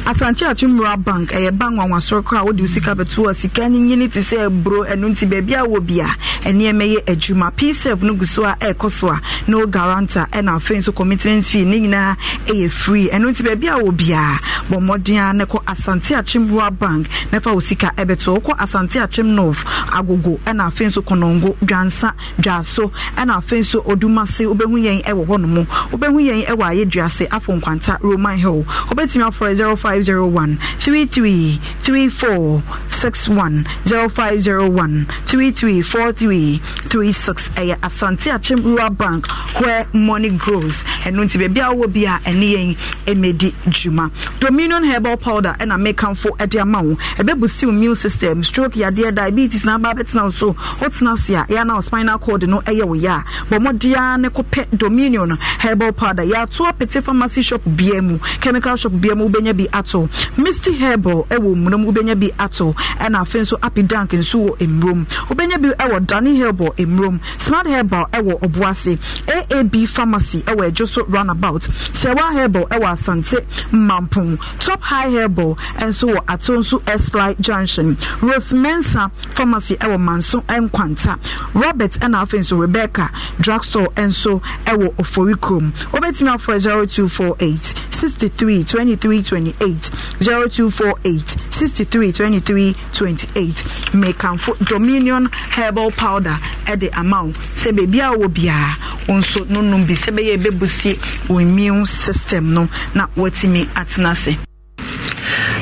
asante atumura bank ɛyɛ bank wanwasoro kɔ a wode sika bɛto a sika no nyini te sɛ aburo ɛno nti baabi a wɔ bia ɛnneɛma yɛ adwuma psef no gu so a ɛrekɔ so a na wo garanta ɛna afei nso commitment fee ne nyinaa ɛyɛ free ɛno nti baabi a wɔ biaa bɔ mmɔden a ne kɔ asante akyemboa bank na fa wo sika ɛbɛto wokɔ asante akyem north agogo ɛna afei nso kɔnɔngo dwansa dwaso ɛna afei nso odumase wobɛhu yɛn ɛwɔ hɔ no mu wobɛhu yɛn ɛwɔ ayɛduase afɔ nkwanta roman hill wobɛtumi afɔ number is 0501 33 34 61 0501 33 43 36 ɛyɛ asante akyem rural bank where money grows and nti baabi a wowɔ bi a ɛne yɛn ɛmɛdi dwuma dominion herbal powder ɛna mekamfo ɛde ama wo ɛbɛbu still immune system stroke ya yadeɛ diabetes na aba bɛtena wo so wotena se a ɛa na spinal cord no ɛyɛ wo yɛ a bɔ mmɔdea ne kɔpɛ dominion herbal powder ya yɛato apete pharmacy shop bia chemical shop bia wobɛnya bi ato misty herbal ɛwɔ mmurom wobɛnya bi ato ɛna afei nso api dank nso wɔ mmurom wobɛnya bi ɛwɔ dani herbal mmurom smart herbal ɛwɔ ɔboase aab pharmacy ɛwɔ ɛdwo so roundabout sewa herbal ɛwɔ asante mampon top high herbal ɛnso wɔ ato nso esli junction rosemensa pharmacy ɛwɔ manso nkwanta robert ɛna afei nso rebecca drugstore ɛnso ɛwɔ ɔforikurom wobɛtumi afɔ 0248 63 23 28 0248 63 23 28 mekanfo dominion herbal powder ɛde ama wo sɛ beebi a wɔ biara wɔn nso nonom bi sɛ bɛyɛ ɛbɛbusie wɔn immune system no na wɔatumi atena ase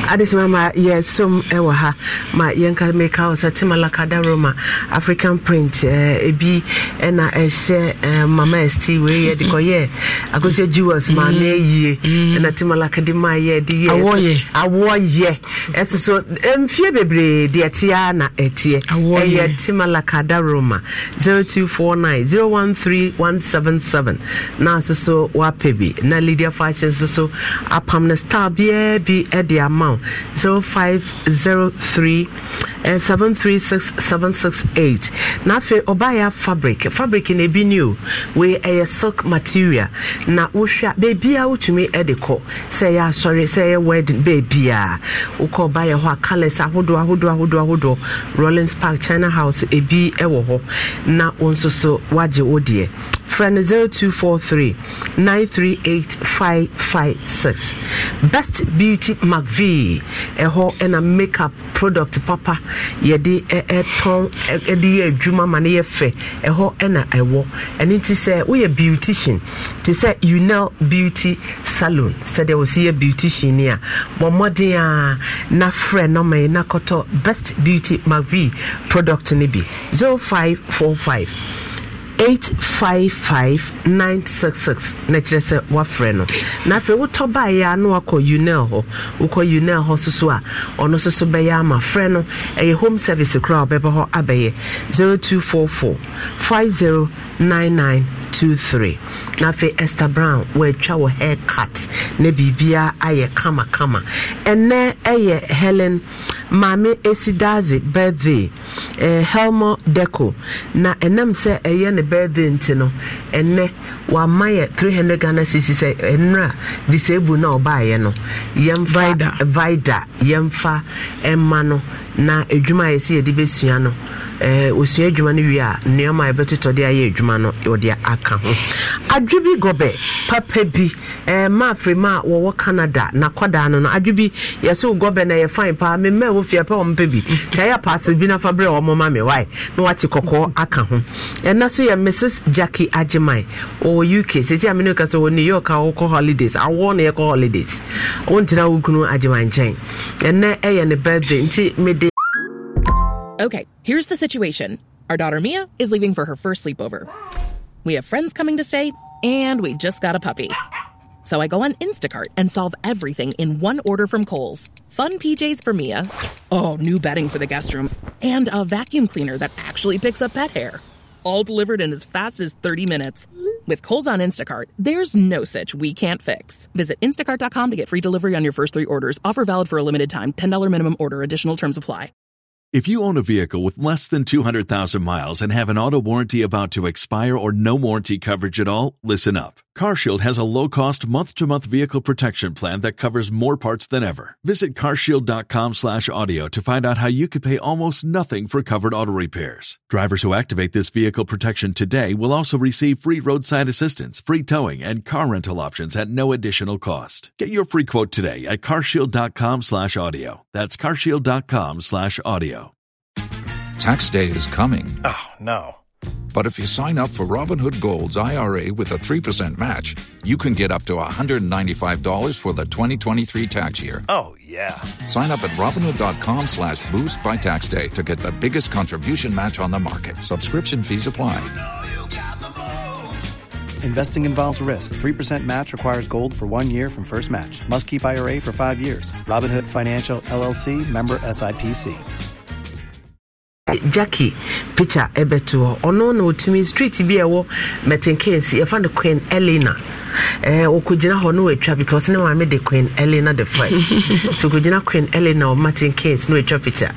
adesima ma yɛsom e wɔ ha ma yɛnka meka wo sɛ timalakada roma african print ebi e ɛna e ɛhyɛ mama st wei yɛ de kɔyɛ akosua jewels ma ne mm-hmm. yie ɛna mm-hmm. timalakade ma yɛ de yɛ awoɔ yɛ ɛso so mfie bebree deɛ teɛ na ɛteɛ ɛyɛ timalakada roma 0249 013177 na nso so wapɛ bi na lydia fashion nso so apam no star biaa bi de ama wo now 0503 uh, 736768 na afei ɔbaeɛ fabric fabric na ebi new wei ɛyɛ eh, silk material na wohwɛ a beebia wotumi eh, de kɔ sɛ ɛyɛ asɔre sɛ ɛyɛ wedding beebia wokɔ ɔbaeɛ hɔ a colours ahodoɔ ahodoɔ ahodoɔ ahodoɔ rollins park china house ebi eh, wɔ hɔ na wɔn nso so wagye wo deɛ frɛ no 0243 938556 best beauty mcv ɛhɔ ɛna makeup product papa yɛde ɛtɔn ɛde yɛ adwuma ma no yɛ fɛ ɛhɔ ɛna ɛwɔ ɛno nti sɛ woyɛ beautician te eh, sɛ unel beauty salon sɛdeɛ wɔsi yɛ beautician ni a bɔ mmɔden a na frɛ nɔma yi na kɔtɔ best beauty mcv product no bi 0545 855966 na kyerɛ sɛ woafrɛ no na afei wotɔ baeɛ a na wakɔ unel hɔ wokɔ unel hɔ so so a ɔno nso so bɛyɛ ama frɛ no ɛyɛ home service koraa wɔbɛbɔ hɔ abɛyɛ 0244 509923 na afei esther brown wɔatwa wɔ hair cut na biribiara ayɛ kamakama ɛnɛ ɛyɛ helen maame esidaze birthday eh, helmo deco na ɛnam sɛ ɛyɛ ne birthday nti no ɛnɛ wama yɛ 300 ghana cc sɛ ɛnura disable na ɔbaayɛ no yɛmfa vida yɛmfa ɛma no na edwuma a yɛsɛ yɛde bɛsua no ɔsua eh, edwuma no wie a nneɔma a yɛbɛtotɔde ayɛ edwuma no wɔde aka ho adwe bi gɔbɛ papa bi maafiri eh, ma a wɔwɔ canada nakɔdaa no no adwe bi yɛsɛ gɔbɛ na yɛfan paa memma wɔ wofia pɛ ɔmpɛ bi nti ɛyɛ paase bi nafa fa berɛ ɔmoma me wae na wakye kɔkɔɔ aka ho ɛna so yɛ mrs jackie agyeman wɔ uk sisi a mene wɔ new york a wokɔ holidays awoɔ na yɛkɔ holidays wontina wo kunu agyeman nkyɛn ɛnɛ ɛyɛ ne birthday nti mede Okay, here's the situation. Our daughter Mia is leaving for her first sleepover. Bye. We have friends coming to stay, and we just got a puppy. So I go on Instacart and solve everything in one order from Kohl's. Fun PJs for Mia. Oh, new bedding for the guest room. And a vacuum cleaner that actually picks up pet hair. All delivered in as fast as 30 minutes. With Kohl's on Instacart, there's no such we can't fix. Visit instacart.com to get free delivery on your first three orders. Offer valid for a limited time. $10 minimum order. Additional terms apply. If you own a vehicle with less than 200,000 miles and have an auto warranty about to expire or no warranty coverage at all, listen up. CarShield has a low-cost month-to-month vehicle protection plan that covers more parts than ever. Visit carshield.com/audio to find out how you could pay almost nothing for covered auto repairs. Drivers who activate this vehicle protection today will also receive free roadside assistance, free towing, and car rental options at no additional cost. Get your free quote today at carshield.com/audio. That's carshield.com/audio. Tax day is coming. Oh, no. But if you sign up for Robinhood Gold's IRA with a 3% match, you can get up to $195 for the 2023 tax year. Oh, yeah. Sign up at Robinhood.com slash boost by tax day to get the biggest contribution match on the market. Subscription fees apply. You know you Investing involves risk. 3% match requires gold for one year from first match. Must keep IRA for five years. Robinhood Financial, LLC, member SIPC. Eh, jackie picha, ɛbɛto hɔ ɔno na ɔtumi street bi a ɛwɔ mɛtenkensi yɛfa no queen elena wɔkɔgyina eh, hɔ na wɔatwa because ne maame de queen elena the first nti (laughs) wɔkɔgyina queen elena wɔ mɛtenkensi na wɔatwa picture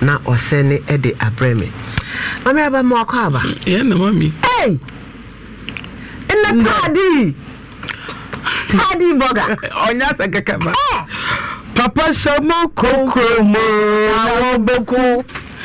na ɔsɛne ɛde abrɛ me maame aba (laughs) ma wakɔ ah! aba yɛn na mami ɛy ɛnna taadi taadi bɔga ɔnyɛ asɛ kɛkɛ papa hyɛ mu kokoro mu na wɔn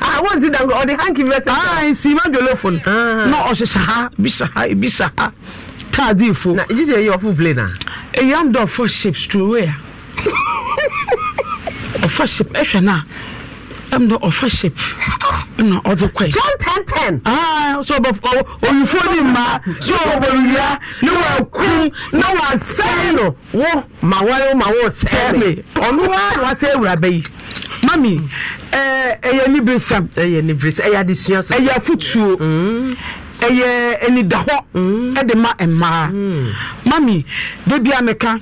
wọ́n ti dàgbà ọ̀dẹ̀ hanky vẹ́sẹ̀. aa nsi ma jọlọ fún un. náà ọ̀ṣẹ̀ṣẹ̀ ha ibi ṣe ha ibi ha di ifo. na jíjẹ eyi ọfún play na. eyi am dọ four shapes to ọfọ (laughs) oh, shape ẹhwẹ na am dọ ọfọ shape na ọdze kọ yi. john ten ten. aa ah, so ọbọ olùfọ ni mma so ọbọ wia ni na wà sẹ́yìn ma wọ́n oh, ma wọ́n sẹ́yìn mi. wa sẹ́yìn wura mami ɛyɛ ne beresam ɛyɛ ne beresam ɛyɛ adesua so ɛyɛ afutuo ɛyɛ mm. anidahɔ ɛde mm. ma mmaa mami debi ameka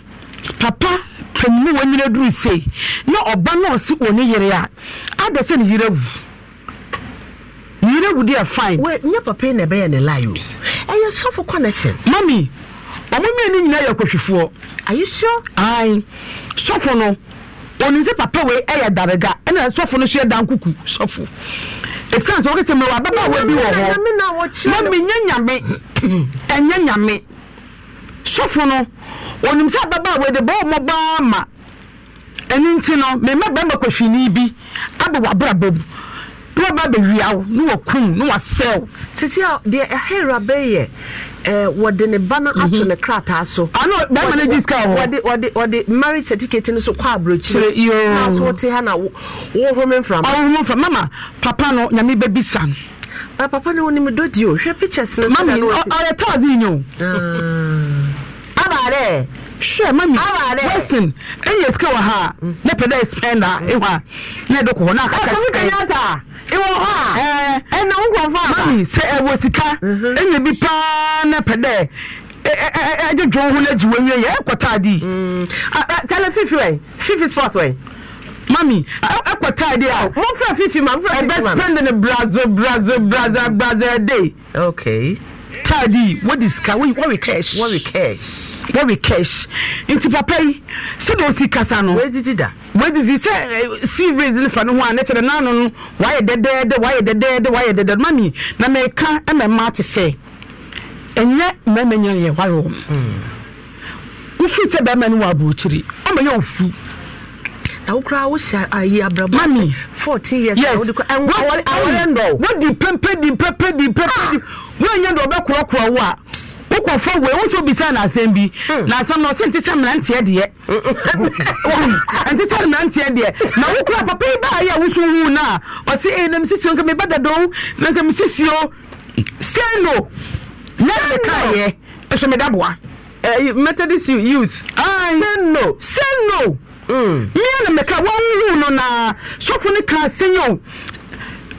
papa pɛmu ne wɔnyina duru sei na ɔba na wɔ ne yere a ada sɛ ne yere awu yere awu deɛ fine. wɛ nye papa yi na ɛbɛyɛ ne lie o ɛyɛ sɔfo connection. mami ɔmo mmienu nyinaa yɛ akɔhwifoɔ. are you sure. ayi sɔfo no onim sɛ papa wei ɛyɛ eh, darega ɛna sɔfo no so yɛ dan kuku sɔfo ɛsiane sɛ wokɛsɛ mmerɛ wababaawa bi wɔ hɔ ma menyɛ nyame ɛnyɛ nyame sɔfo no onim sɛ ababaawa de bɔɔ mmɔbaa ma ɛno nti no mema bɛma kɔhwini bi aba wabrabɔ mu na ɔba bɛwia wo na wakum na wasɛ wo titi a deɛ ɛhera bɛyɛ eh, wɔde ne ba no ato mhm. ne krataa so ɔno ah, bɛrima no di sika wɔ wɔde wɔde marriage certificate no so kɔ aburokyire yoo na so wɔte ha na wɔhome mframa ɔhome ah, mframa mama papa no nyame bɛbisa no ah, papa no wɔnim do di o hwɛ pictures no sɛ na no wɔte mami ɔyɛ taazin yi o abaare hwɛ mami wesin enye sika wɔ ha mm. ne pɛ dɛ spend a ehu a ne de kɔ hɔ na kaka spend ɛkɔmi kenyatta ewɔ hɔ a ɛna nkɔfɔ aba mami sɛ ɛwɔ sika enye mhm. bi paa ne pɛ dɛ ɛgye dwon ho n'egyi wɔn yɛ ɛkɔ taade. Mm. tẹlɛ fifi wɛ fifi sports wɛ. mami ɛkɔ taade a. mo fɛ fifi ma mo fɛ fifi ma. ɛbɛ spend ne brazo brazo brazo brazo ɛde. okay taadi wodi sika wɔwe cash wɔwe cash wɔwe cash nti papa yi sɛdeɛ osi kasa no wɔadidi da wɔadidi sɛ eh, series ne fa no ho a ne kyerɛ naano no wayɛ dɛdɛɛdɛ wayɛ dɛdɛɛdɛ wayɛ dɛdɛɛdɛ mami na mɛka ɛmɛ mmaa te sɛ ɛnyɛ mmarima nyɛ yɛ wɔayɛ wɔn hmm. wofi sɛ bɛrima no wɔ aburokyire ɔmɛ yɛ ofu awokora wohyɛ ayi abrabɔ mami fourteen years yes wodi awɔre ndɔ wodi pempe di pempe di pempe di ah. wonyɛ ndɔ ɔbɛkorɔkorɔ wo a wokɔ fɔ wei wotu obisa na asɛm bi hmm. na asɛm na ɔsɛ nti sɛ mmeranteɛ deɛ (laughs) nti sɛ mmeranteɛ deɛ na wokura papa yi baa yi a woso wu no a ɔse ee na mesisio nka meba dadoo na nka mesisio sɛ no na ɛde kaeɛ ɛhyɛ meda boa eh, methodist youth sɛ no sɛ no mmea na mmeka wɔnwu no na sɔfo no ka sɛnyɛ o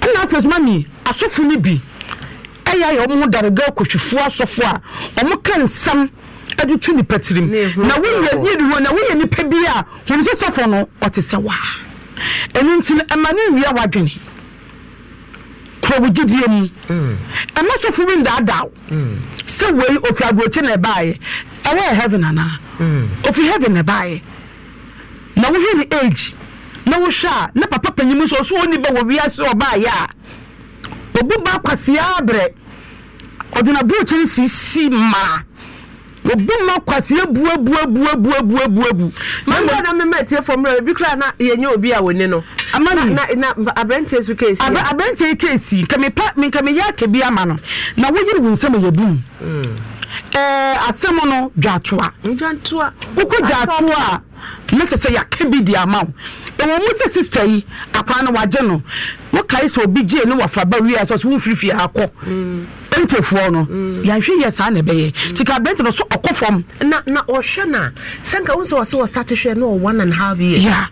ɛna afei so mami asɔfo no bi ɛyɛ ayɛ ɔmo daraga akɔhwifoɔ asɔfo a ɔmo ka nsɛm ɛde tu nipa tirim na woyɛ yiri hɔ na woyɛ nipa bi a wɔn nso sɔfo no ɔte sɛ waa ɛnu nti no ɛma ne nwia wadwene kɔwɔgyidie mu mm. ɛma sɔfo bi ndaadaaw mm. sɛ wei ofi aburokyi na ɛbaayɛ ɛwɔ yɛ heaven anaa mm. ofi heaven na ɛbaayɛ na wohwɛ ne age na wohwɛ a na papa panyin nso ɔso ɔni bɛ wɔ wiase ɔbaayɛ a obu ba kwasia abrɛ ɔde na burokyɛn sisi mmaa obu ma kwasia buebuebuebuebuebu. mmanbɔ na mmemme etie fam na ebi kura na yɛnyɛ obi a wɔne no. amani na na abirante so keesi. abir abirante keesi nkà mi pa mi yɛ akɛbi ama no na wɔyiri wɔn nsɛm yɛ dum. Mm. Eh, asɛm no dwatoa wokɔ dwatoa a na kyɛ sɛ yɛaka bi de ama wo ɛwɔ mu sɛ sista yi akwaa no wagye no wokae sɛ obi gyee ne wafraba wie a sɛ so womfirifie akɔ ɛntefoɔ mm. no mm. yɛahwɛ yɛ saa na ɛbɛyɛ nti ka aberɛnte no so ɔkɔ fam na ɔhwɛ no a sɛ nka wo sɛ hwɛ no one and half year yeah.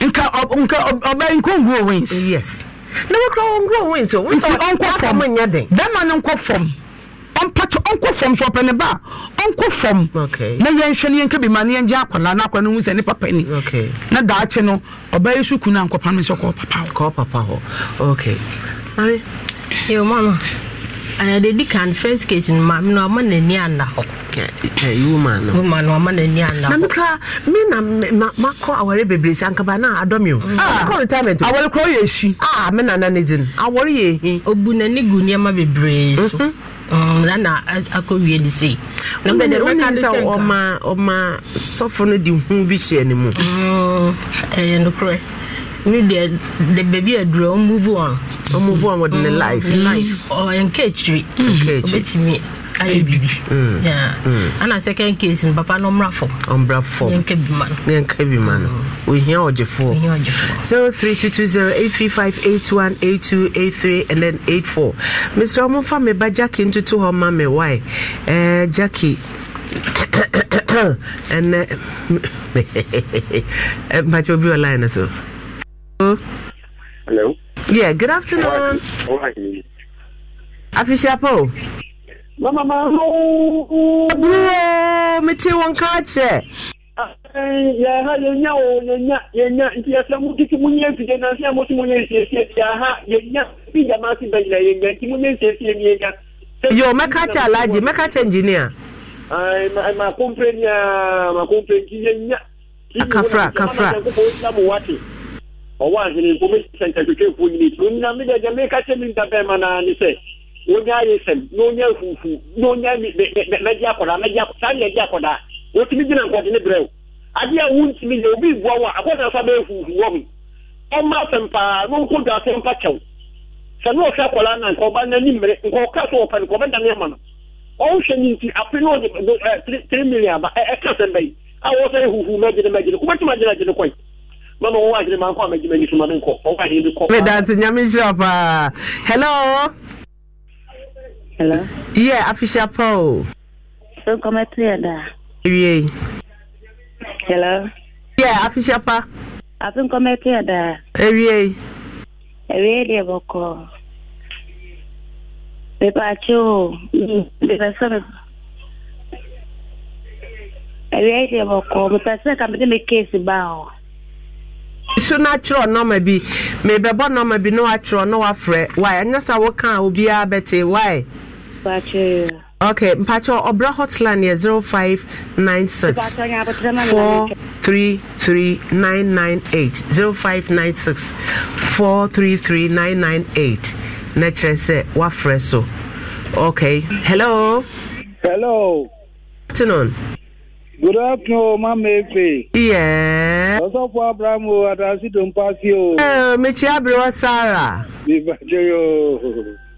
nka nka ɔbɛn nkɔnguo wins yes na wokora wɔnguo wins o nti ɔnkɔ fam bɛma no nkɔ fam ɔmpɛtɛ ɔnkɔ fam so ɔpɛ ne ba ɔnkɔ fam na yɛnhwɛ no yɛnka bi ma na yɛngye akwadaa no akwadaa no hu sɛ ne papa ni na daakye no ɔbɛyɛ so kunu a no sɛ kɔɔ papa hɔ kɔɔ papa hɔ okay mami yɛ mama anade eh, di kan first case no eh, eh, maame no ɔma n'ani ana hɔ woma no na mekra me na makɔ awɔre bebree sɛ ankaba ah. retirement awɔre korɔ yɛ ahyi a ah, me nana ne di no awɔre yɛ ɛhi ɔbu Mm, nana akɔwie de sei sɛ ɔma ɔma sɔfo no de hu bi hyɛ ne mu mm, ɛyɛ nokorɛ me deɛ de baabi adurɛ ɔmuvu on ɔmuvu on wɔde mm, ne life life ɔyɛ nka akyiri ɔbɛtumi ayɛ biribi mm. ana mm. second case no papa no ɔmmra fam ɔmmra fam yɛnka bi ma no five eight one eight two eight three and then eight four. mesrɛ momfa me ba jackie ntoto hɔ ma me wae eh, jackie ɛnɛ (coughs) eh, (laughs) eh, mpakyɛ obi wɔ line no so Hello. Yeah, good afternoon. Afishapo mete eh, oh, ah, wɔn ka kyerɛ yɛha yɛnya o yɛnya yɛnya nti yɛsɛ motiti monyɛ mfide nansɛ moto monyɛ nsiesie yɛha yɛnya bi gyama se bɛgyina yɛnya nti monyɛ nsiesie ne yɛnya yo mɛka kyɛ alaji, mɛka kyɛ engineer makompre nia makompre nti yɛnya akafra akafra ɔwɔ ahene nkɔmɛsɛ nkatwetwɛfoɔ nyini nti onyina medɛ gyɛ meka kyɛ me ntabɛma naa ne sɛ onye ayé sẹm n'onye fufu n'onye mẹdi akwadaa mẹdi akwadaa saa mẹdi akwadaa wotumi gyina nkɔde ne brɛ o adeɛ a wuntumi yɛ obi bua wa akwadaa nso abɛyɛ fufu wɔ mu ɔma asɛm paa do asɛm pa kyɛw sɛ n'ohwɛ akwadaa na nka ɔba n'ani so no nti afe no ɔde ɛ tiri tiri million ba ɛka e, e, a wɔsɛ yɛ fufu mɛgyina mɛgyina kɔbɛtum mama Hello. Yeah, official Paul. So come at the Yeah. Hello. Yeah, official Pa. I been eh, eh, mm, eh, come at the Every Ewie deɛ bɔkɔ. Mepakye o. Mepɛ sɛ me. Ewie deɛ bɔkɔ. Mepɛ sɛ ka mede me case ba o. so na atwerɛ nɔma bi mebɛbɔ nɔma bi na waatwerɛ na wafrɛ wae ɛnyɛ sa wokaa obiara bɛte wae Ok, Okay, Mpacho Obra hotline here 0596 433998 0596 433998 na kyerɛ sɛ woafrɛ so okay hello hello afternoon good afternoon mama efe yeah ɔsɔfo abraham o adasi dompasi o eh, mekyia bere wɔ sara mebagye yo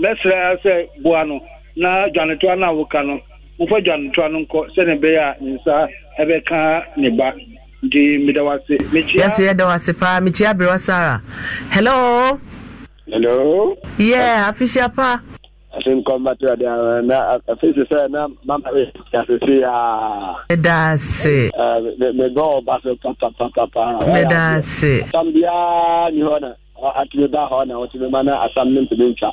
mɛsrɛ sɛ boa no na dwanetoa na a woka no wofa dwanetoa no nkɔ sɛne ɛbɛyɛ a ne nsa ɛbɛka ne ba nti meda wase mekyɛso yɛda wase paa mekyia berɛ sara hello hello yɛ yeah, afisia pa asɛm kɔmbato ade na afei sɛ sɛ na mama yɛasese a medase mebɔ ɔba so papapapapa medase asam biaa ni hɔ na atumi ba hɔ na wɔtumi ma na asam no mpɛbɛntwa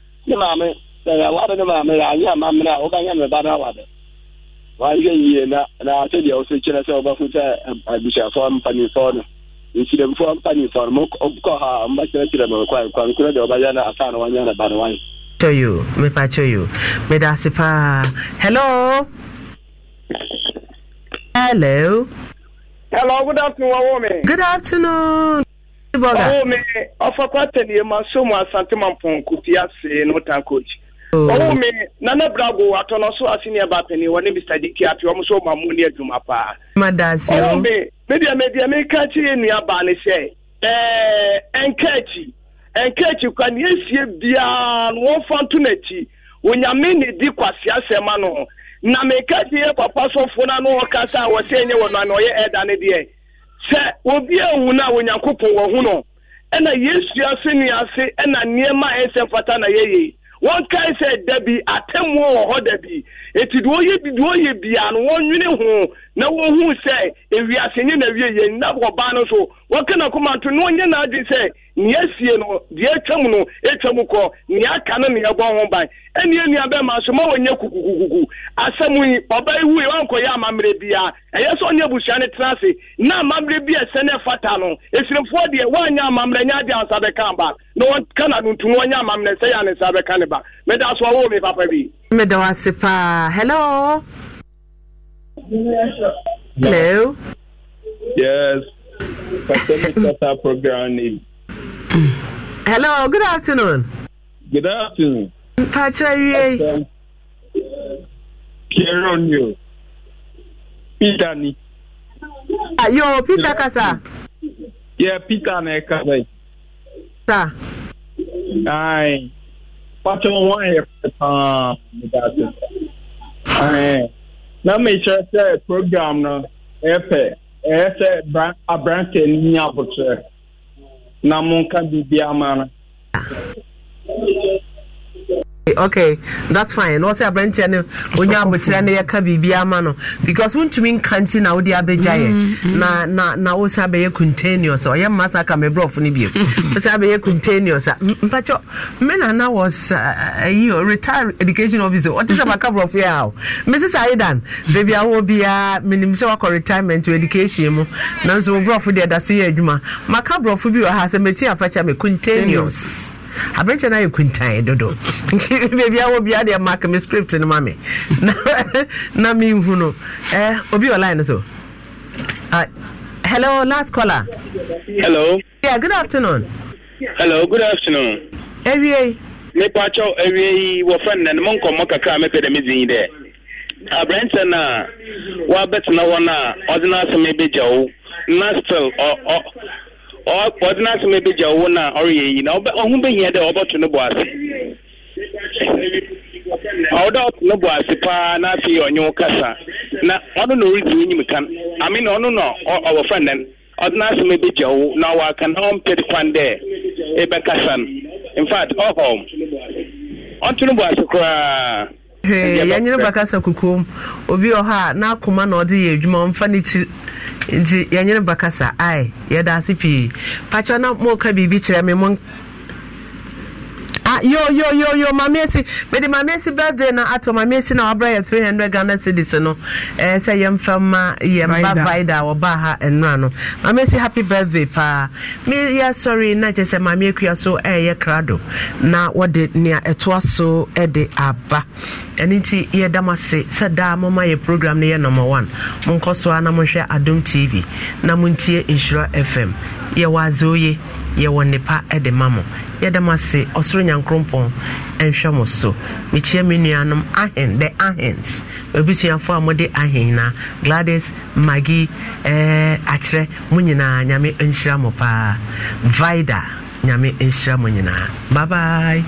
ne maame sɛnea ne maame yɛ anyɛ ama mmerɛ a wobɛnyɛ me ba no awada wahwɛ yie na na sɛdeɛ wo so kyerɛ sɛ wobɛfo sɛ abusuafoɔ mpanimfoɔ no mpanimfoɔ no mokɔ ha mbɛkyerɛkyerɛ me kwan kwankorɔ deɛ wobɛyɛ no asa ne ba no wayɛ yo mepa kyɛ yo hello hello hello good afternoon good afternoon ɔwɔ ɔfa kwata so mu ma mpɔnko ase no ta coach oh. ɔwɔ me nana go atɔ no so ase neɛ bapani wɔ ne mr diki ape ɔm so ɔma mu ne adwuma paa medeɛ medeɛ meka ne sɛ kwa ne biaa no wɔmfa nto onyame ne di no na meka papa no ɔka a wɔ sɛ ɛnyɛ wɔ no ame ɔyɛ ɛda sɛ obi ewu na onyankopɔn wɔ ho no ɛna yesu ase ne ase ɛna nneɛma a ɛsɛ mfata na yɛyɛ wɔn kae sɛ dabi atemmuo wɔ hɔ dabi eti deɛ ɔyɛ bi deɛ ɔyɛ bia no wɔnwene ho na wɔhu sɛ ewiase nye na ewie yɛ na ɔbaa no so wɔka na kɔma nto na ɔnyɛ na adi sɛ nea esie no deɛ atwam no atwam kɔ nea aka no nea ɛbɔ ho ban ɛne nua bɛma so ma wɔnyɛ kukukukuku asɛm yi ɔbaa wankɔyɛ amammerɛ biara ɛyɛ sɛ ɔne abusua no tena ase na amammerɛ bi ɛsɛ no ɛfata no ɛsirimfoɔ deɛ woanyɛ amammerɛ nyɛ ade ansa bɛka ba na wɔka no ntum wɔnyɛ amammerɛ sɛ yɛ ane nsa bɛka ne ba meda so ɔwɔ me papa bi meda wo paa hello hello yes pastor mr program name Hello, good afternoon. Good afternoon. Patrick, you. Kieron, you. Peter, ni. Ah, yo, Peter Kasa. Yeah, Peter, ne Kasa. Sa. Aye. Patrick, one here. Ah, Aye. Na me sure say program no. Efe. Efe, abranche ni abotre na monka biribiara ma ah. no okay that's fine na ɔsɛ aberanteɛ no onya abokyerɛ no yɛka biribi ama no because wontumi nka nti na wode abɛgya yɛ mm-hmm. na na na wosan abɛyɛ continuous ɔyɛ mma sa ka mebrɔfo no bio mm-hmm. wosan abɛyɛ continuous a mpakyɛ me na na was ayi uh, retired education officer ɔte sɛ baka borɔfo yɛ aw mrs aidan baabi awɔ biara menim sɛ wakɔ retirement wɔ education mu nanso wo borɔfo deɛ da so yɛ adwuma maka borɔfo bi wɔ ha sɛ mɛti afakyɛ me continuous aberɛkyɛ no ayɛ kuntae dodo nti (laughs) baabia wɔ bia deɛ mak me script no ma me (laughs) na menhu no eh, obi ɔline no so uh, hello last caller hello yeah good afternoon hello good afternoon awie mepakyɛw awie yi wɔfrɛ nnɛ no mo nkɔmmɔ kakra mepɛ dɛ medin yi dɛ aberɛnkyɛ no a woabɛtena hɔ no a ɔde no asɛm ɛbɛgya na still ọdịna asụm ebe ji ọwụ na ọrụ ya eyi na ọhụ behie dị ọbọtụ n'ụbọ asị ọdọ ọtụ n'ụbọ asị paa na n'afị onye ụkasa na ọnụ na oridi onye m ka amị na ọnụ na ọwụ frendan ọdịna asụm ebe ji ọwụ na ọwụ aka na ọ ọmpị dịkwa ndị ebe kasa in fact ọhọm ọtụ n'ụbọ asị koraa yɛnyere bakasa kukuom obi wɔ hɔ a n'akoma na ɔde yɛ adwuma ɔmfa ne ti nti yɛnyere bakasa ae yɛda ase pii pakyɛ na mɔka biribi kyerɛ me mo Ah, yo yo yo yo maame esi mede maame esi birthday na ato maame esi na wabra yɛ three hundred ghana cedis no ɛɛ eh, sɛ yɛn fɛn ma yɛn ba vaida a wɔba ha nnura no maame esi happy birthday paa mi yɛ sɔre na kyerɛ sɛ maame ekuya so ɛɛyɛ eh, krado na wɔde nea ɛtoa so ɛde eh, aba ɛne ti yɛ dam ase sɛ daa mo ma yɛ program no yɛ number one mo nkɔ so a na mo hwɛ adum tv na mo ntie nsura fm yɛ wɔ adze yɛwɔ nnepa de ma mo yɛda mo ase ɔsoro nyankorompɔn nhwɛ mo so mekyia me nuanom ahen the ahens abisuafoɔ a mode ahen na gladys magi eh, akyerɛ mo nyinaa nyame nhyira mo paa vida nyame nhyira mo nyinaa babae